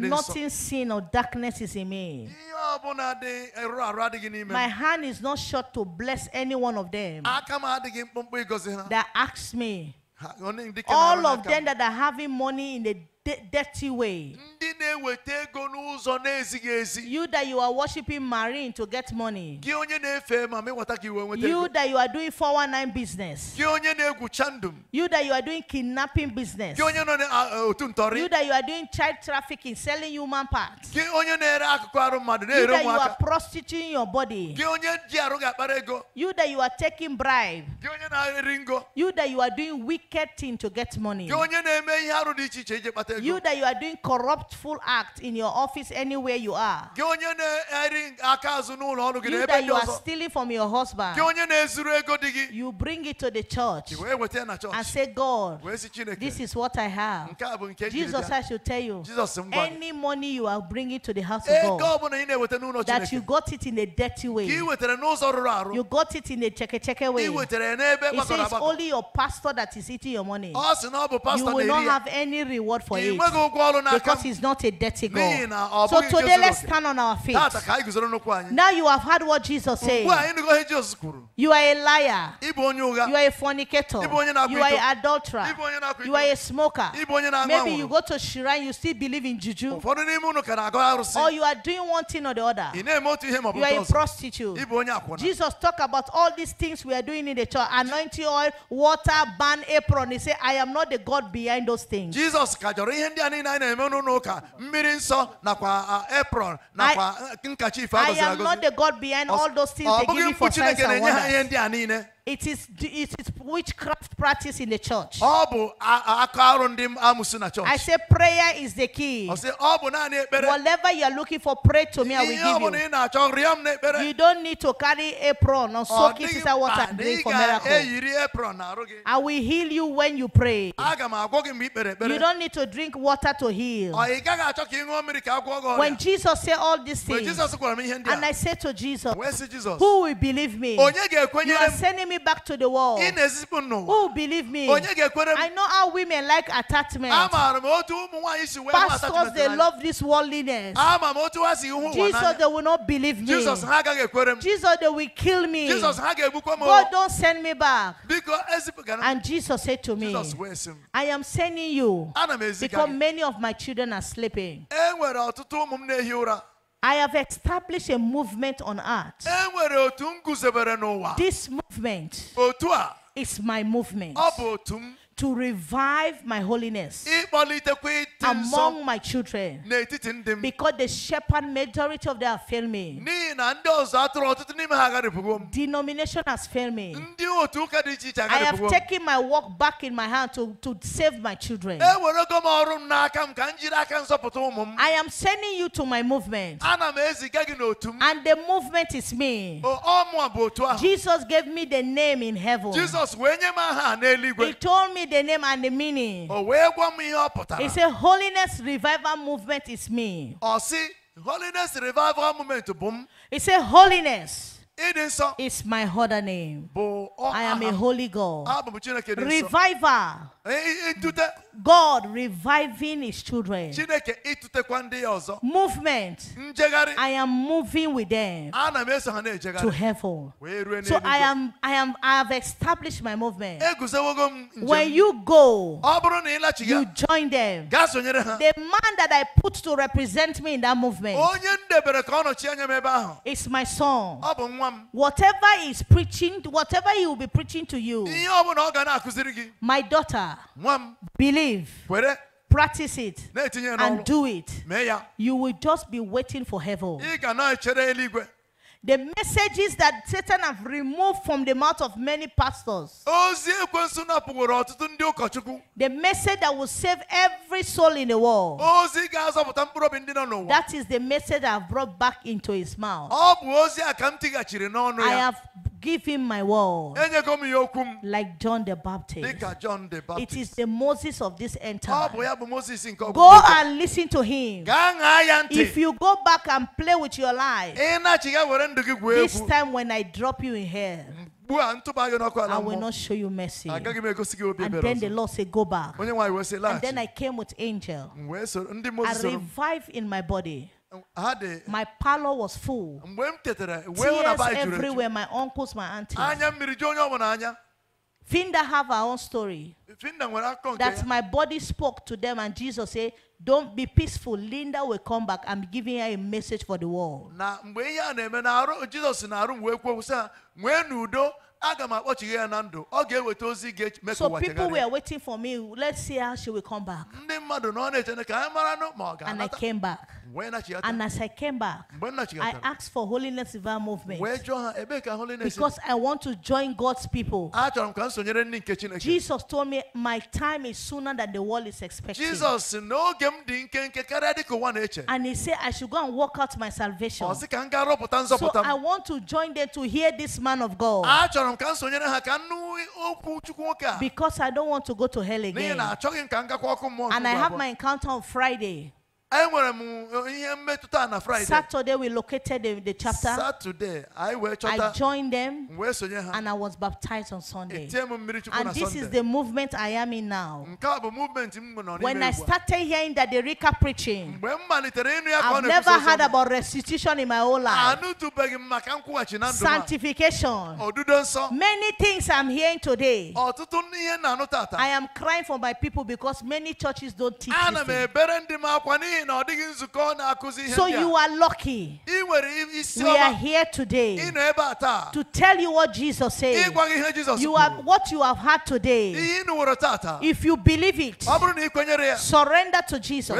Nothing sin or darkness is in me. My hand is not short to bless any one of them that asks me. All of them that are having money in the dirty way. You that you are worshiping marine to get money. You that you are doing 419 business. You that you are doing kidnapping business. You that you are doing child trafficking, selling human parts. You that you are prostituting your body. You that you are taking bribe. You that you are doing wicked thing to get money. You that you are doing corruptful act in your office anywhere you are. You that you are stealing from your husband. You bring it to the church. And say, God, this is what I have. Jesus, I should tell you. Any money you are bringing to the house of eh, God. That you got it in a dirty way. You got it in a cheke cheke way. It says only your pastor that is eating your money. You will not have any reward for because he's not a dirty goal. So today let's stand on our feet. Now you have heard what Jesus said. You are a liar. You are a fornicator. You are an adulterer. You are a smoker. Maybe you go to shrine, you still believe in juju. Or you are doing one thing or the other. You are a prostitute. Jesus talked about all these things we are doing in the church anointing oil, water, burn apron. He said, I am not the God behind those things. Jesus nwere ihe ndị a niile anyị na-eme n'ụlọ ụka mmiri nsọ nakwa apron nakwa eh, nkachi ife agọziri agọzi ọ bụghị mkpu Chineke na-enye ha ihe ndị a niile it is, it is witchcraft practice in the church. I say prayer is the key. Whatever you are looking for, pray to me. I will give you. i You don't need to carry apron or soak it in water and drink ị for miracle. I will heal you when you pray. ị You don't need to drink water to heal. When Jesus said all these things, and I said to Jesus, Who will believe me? You are sending me back to the wall. Who oh, believe me? I know how women like attachment. Pastors, they love this worldliness. Jesus, they will not believe me. Jesus, they will kill me. God, don't send me back. And Jesus said to me, I am sending you because many of my children are sleeping. I have established a movement on earth. This movement is my movement. to revive my holiness among my children because the shepherd majority of them have failed me. Denomination has failed me. I have taken my work back in my hand to, to save my children. I am sending you to my movement. And the movement is me. Jesus gave me the name in heaven. He told me the name and the meaning. It's a He said holiness revival movement is me. Oh, see, holiness revival movement Boom. m. He said holiness. It is. Is my other name. I am a holy God. Revival. Eh, eh, eh, God reviving his children. Movement. I am moving with them to heaven. So I am I am I have established my movement. When you go, you join them. The man that I put to represent me in that movement is my son. Whatever he is preaching, whatever he will be preaching to you, my daughter believe, practice it, and do it, you will just be waiting for heaven. The messages that Satan have removed from the mouth of many pastors. The message that will save every soul in the world. That is the message I have brought back into his mouth. I have Give him my word. Like John the Baptist. It is the Moses of this entire. Go and listen to him. If you go back and play with your life, this time when I drop you in hell, I will not show you mercy. And then the Lord said, Go back. And then I came with angel. I revived in my body. My parlor was full. Tears everywhere, my uncles, my aunties. Finda have her own story. That my body spoke to them and Jesus said, don't be peaceful. Linda will come back. I'm giving her a message for the world. So people were waiting for me. Let's see how she will come back. And I came back. And as I came back, I asked for Holiness River movement. Because I want to join God's people. Jesus told me my time is sooner than the world is expecting. And he said I should go and work out my salvation. So I want to join them to hear this man of God. Oh, because I don't want to go to hell again. And I have my encounter on Friday. Saturday, we located the, the chapter. Saturday, I, I joined them and I was baptized on Sunday. And this is the movement I am in now. When I started hearing that the Rika preaching, I've never heard about restitution in my whole life, sanctification, many things I'm hearing today. I am crying for my people because many churches don't teach. This thing. So you are lucky. We are here today to tell you what Jesus says. You are what you have had today. If you believe it, surrender to Jesus.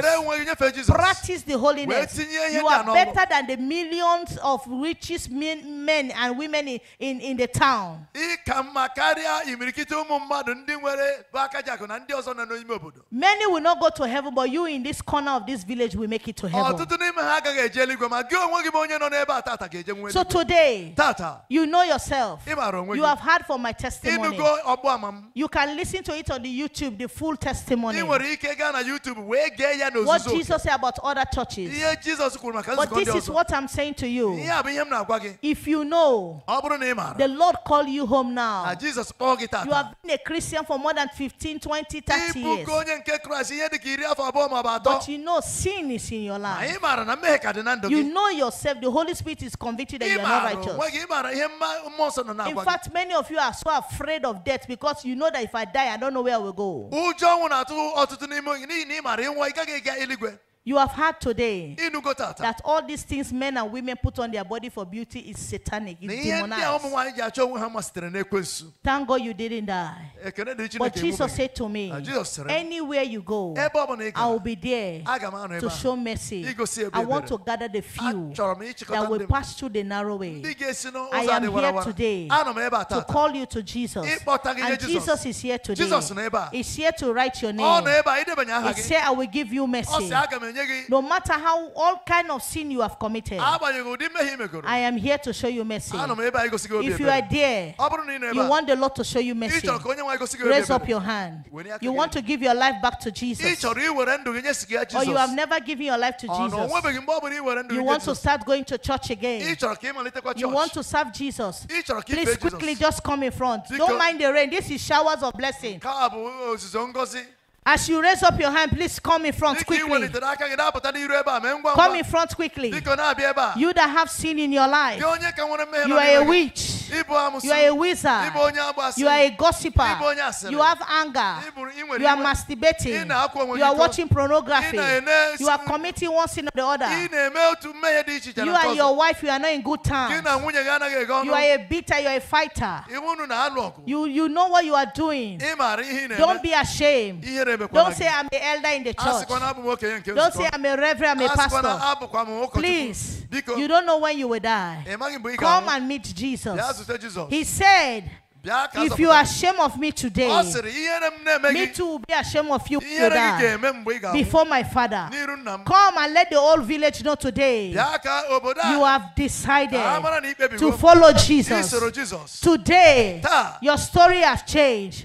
Practice the holiness. You are better than the millions of richest men, and women in, in the town. Many will not go to heaven, but you in this corner of this village will make it to oh, heaven. So today, tata you know yourself. you have heard from my testimony. You can listen to it on the YouTube, the full testimony. What Jesus said about other churches. But this is what I'm saying to you. If you know the Lord call you home now, you have been a Christian for more than 15, 20, 30 years. But you know sin is in your life. Ah, you know yourself, the Holy Spirit is convicted that you are not righteous. In fact, many of you are so afraid of death because you know that if I die, I don't know where I will go you have heard today that all these things men and women put on their body for beauty is satanic. It's demonized. Thank God you didn't die. But Jesus said to ah, me, anywhere you go, I will be there to show mercy. I want to gather the few that will pass through the narrow way. I am here today to call you to Jesus. And Jesus is here today. He's here to write your name. He said, I will give you mercy. No matter how all kind of sin you have committed, I am here to show you mercy. If you are there, you want the Lord to show you mercy. Raise up your hand. You want to give your life back to Jesus. Or you have never given your life to Jesus. You want to start going to church again. You want to serve Jesus. Please quickly just come in front. Don't mind the rain. This is showers of blessing. As you raise up your hand, please come in front quickly. Come in front quickly. You that have sin in your life, you are a witch. You are a wizard. You are a gossiper. You have anger. You are masturbating. You are watching pornography. You are committing one sin or the other. You and your wife, you are not in good terms. You are a bitter. You are a fighter. You, you know what you are doing. Don't be ashamed. Don't say I'm the elder in the church. Don't say I'm a reverend, I'm a pastor. Please, you don't know when you will die. Come and meet Jesus. He said, if you are ashamed of me today, me too will be ashamed of you before my father. Come and let the whole village know today you have decided to follow Jesus. Today, your story has changed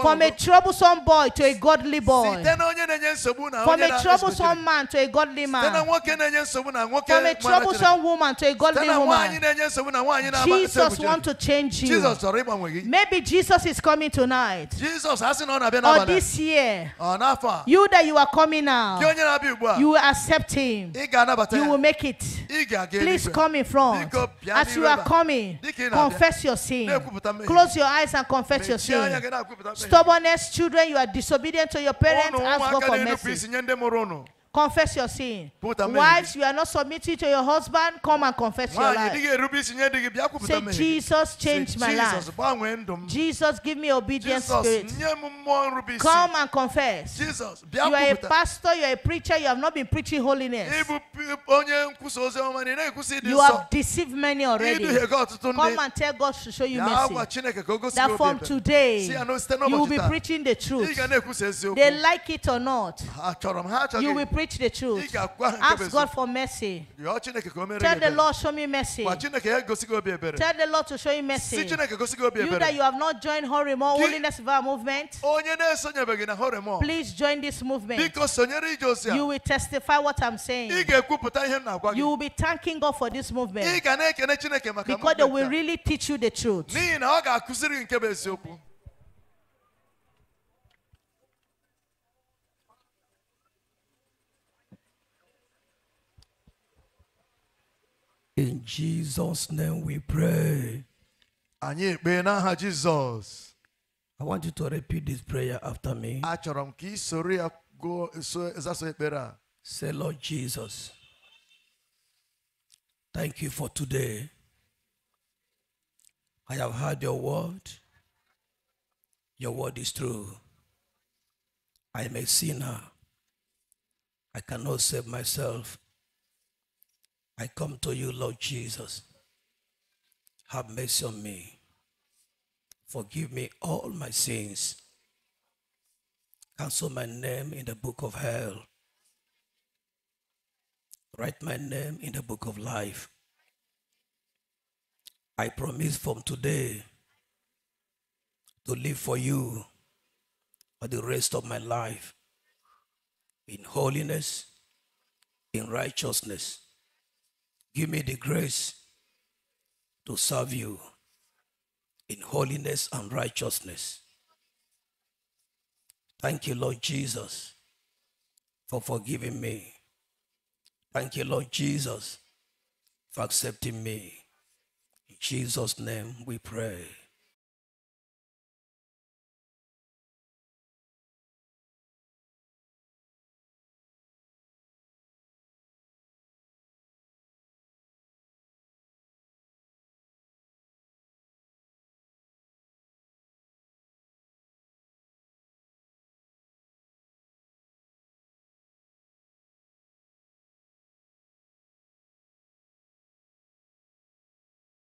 from a troublesome boy to a godly boy, from a troublesome man to a godly man, from a troublesome woman to a godly woman. Jesus wants to change you. Maybe Jesus is coming tonight. Jesus hasn't Or this year. Oh, you that you are coming now. You will accept him. You will make it. Please come in front. As you are coming, confess your sin. Close your eyes and confess your sin. Stubbornness, children, you are disobedient to your parents. Oh, Ask God for mercy. Confess your sin. Wives, you are not submitting to your husband. Come and confess your life. Say, Jesus, change my life. Jesus, give me obedience spirit. Come and confess. Jesus, you are a pastor, you are a preacher, you have not been preaching holiness. You have deceived many already. Come and tell God to show you mercy. That from today, you will be preaching the truth. They like it or not, you will preach preach the truth. Ask God for mercy. Tell the Lord, show me mercy. Tell the Lord to show you mercy. You that you have not joined Horimo, Holiness Vow Movement, please join this movement. You will testify what I'm saying. You will be thanking God for this movement. Because they will really teach you the truth. In Jesus' name we pray. Anyị ekpee n'aha Jizọs. I want you to repeat this prayer after me. Achọrọ m ka ị soro ya gụọ zaso ekpere a. Say Lord Jesus. Thank you for today. I have heard your word. Your word is true. I am a sinner. I cannot save myself. I come to you, Lord Jesus. Have mercy on me. Forgive me all my sins. Cancel my name in the book of hell. Write my name in the book of life. I promise from today to live for you for the rest of my life in holiness, in righteousness Give me the grace to serve you in holiness and righteousness. Thank you, Lord Jesus, for forgiving me. Thank you, Lord Jesus, for accepting me. In Jesus' name we pray.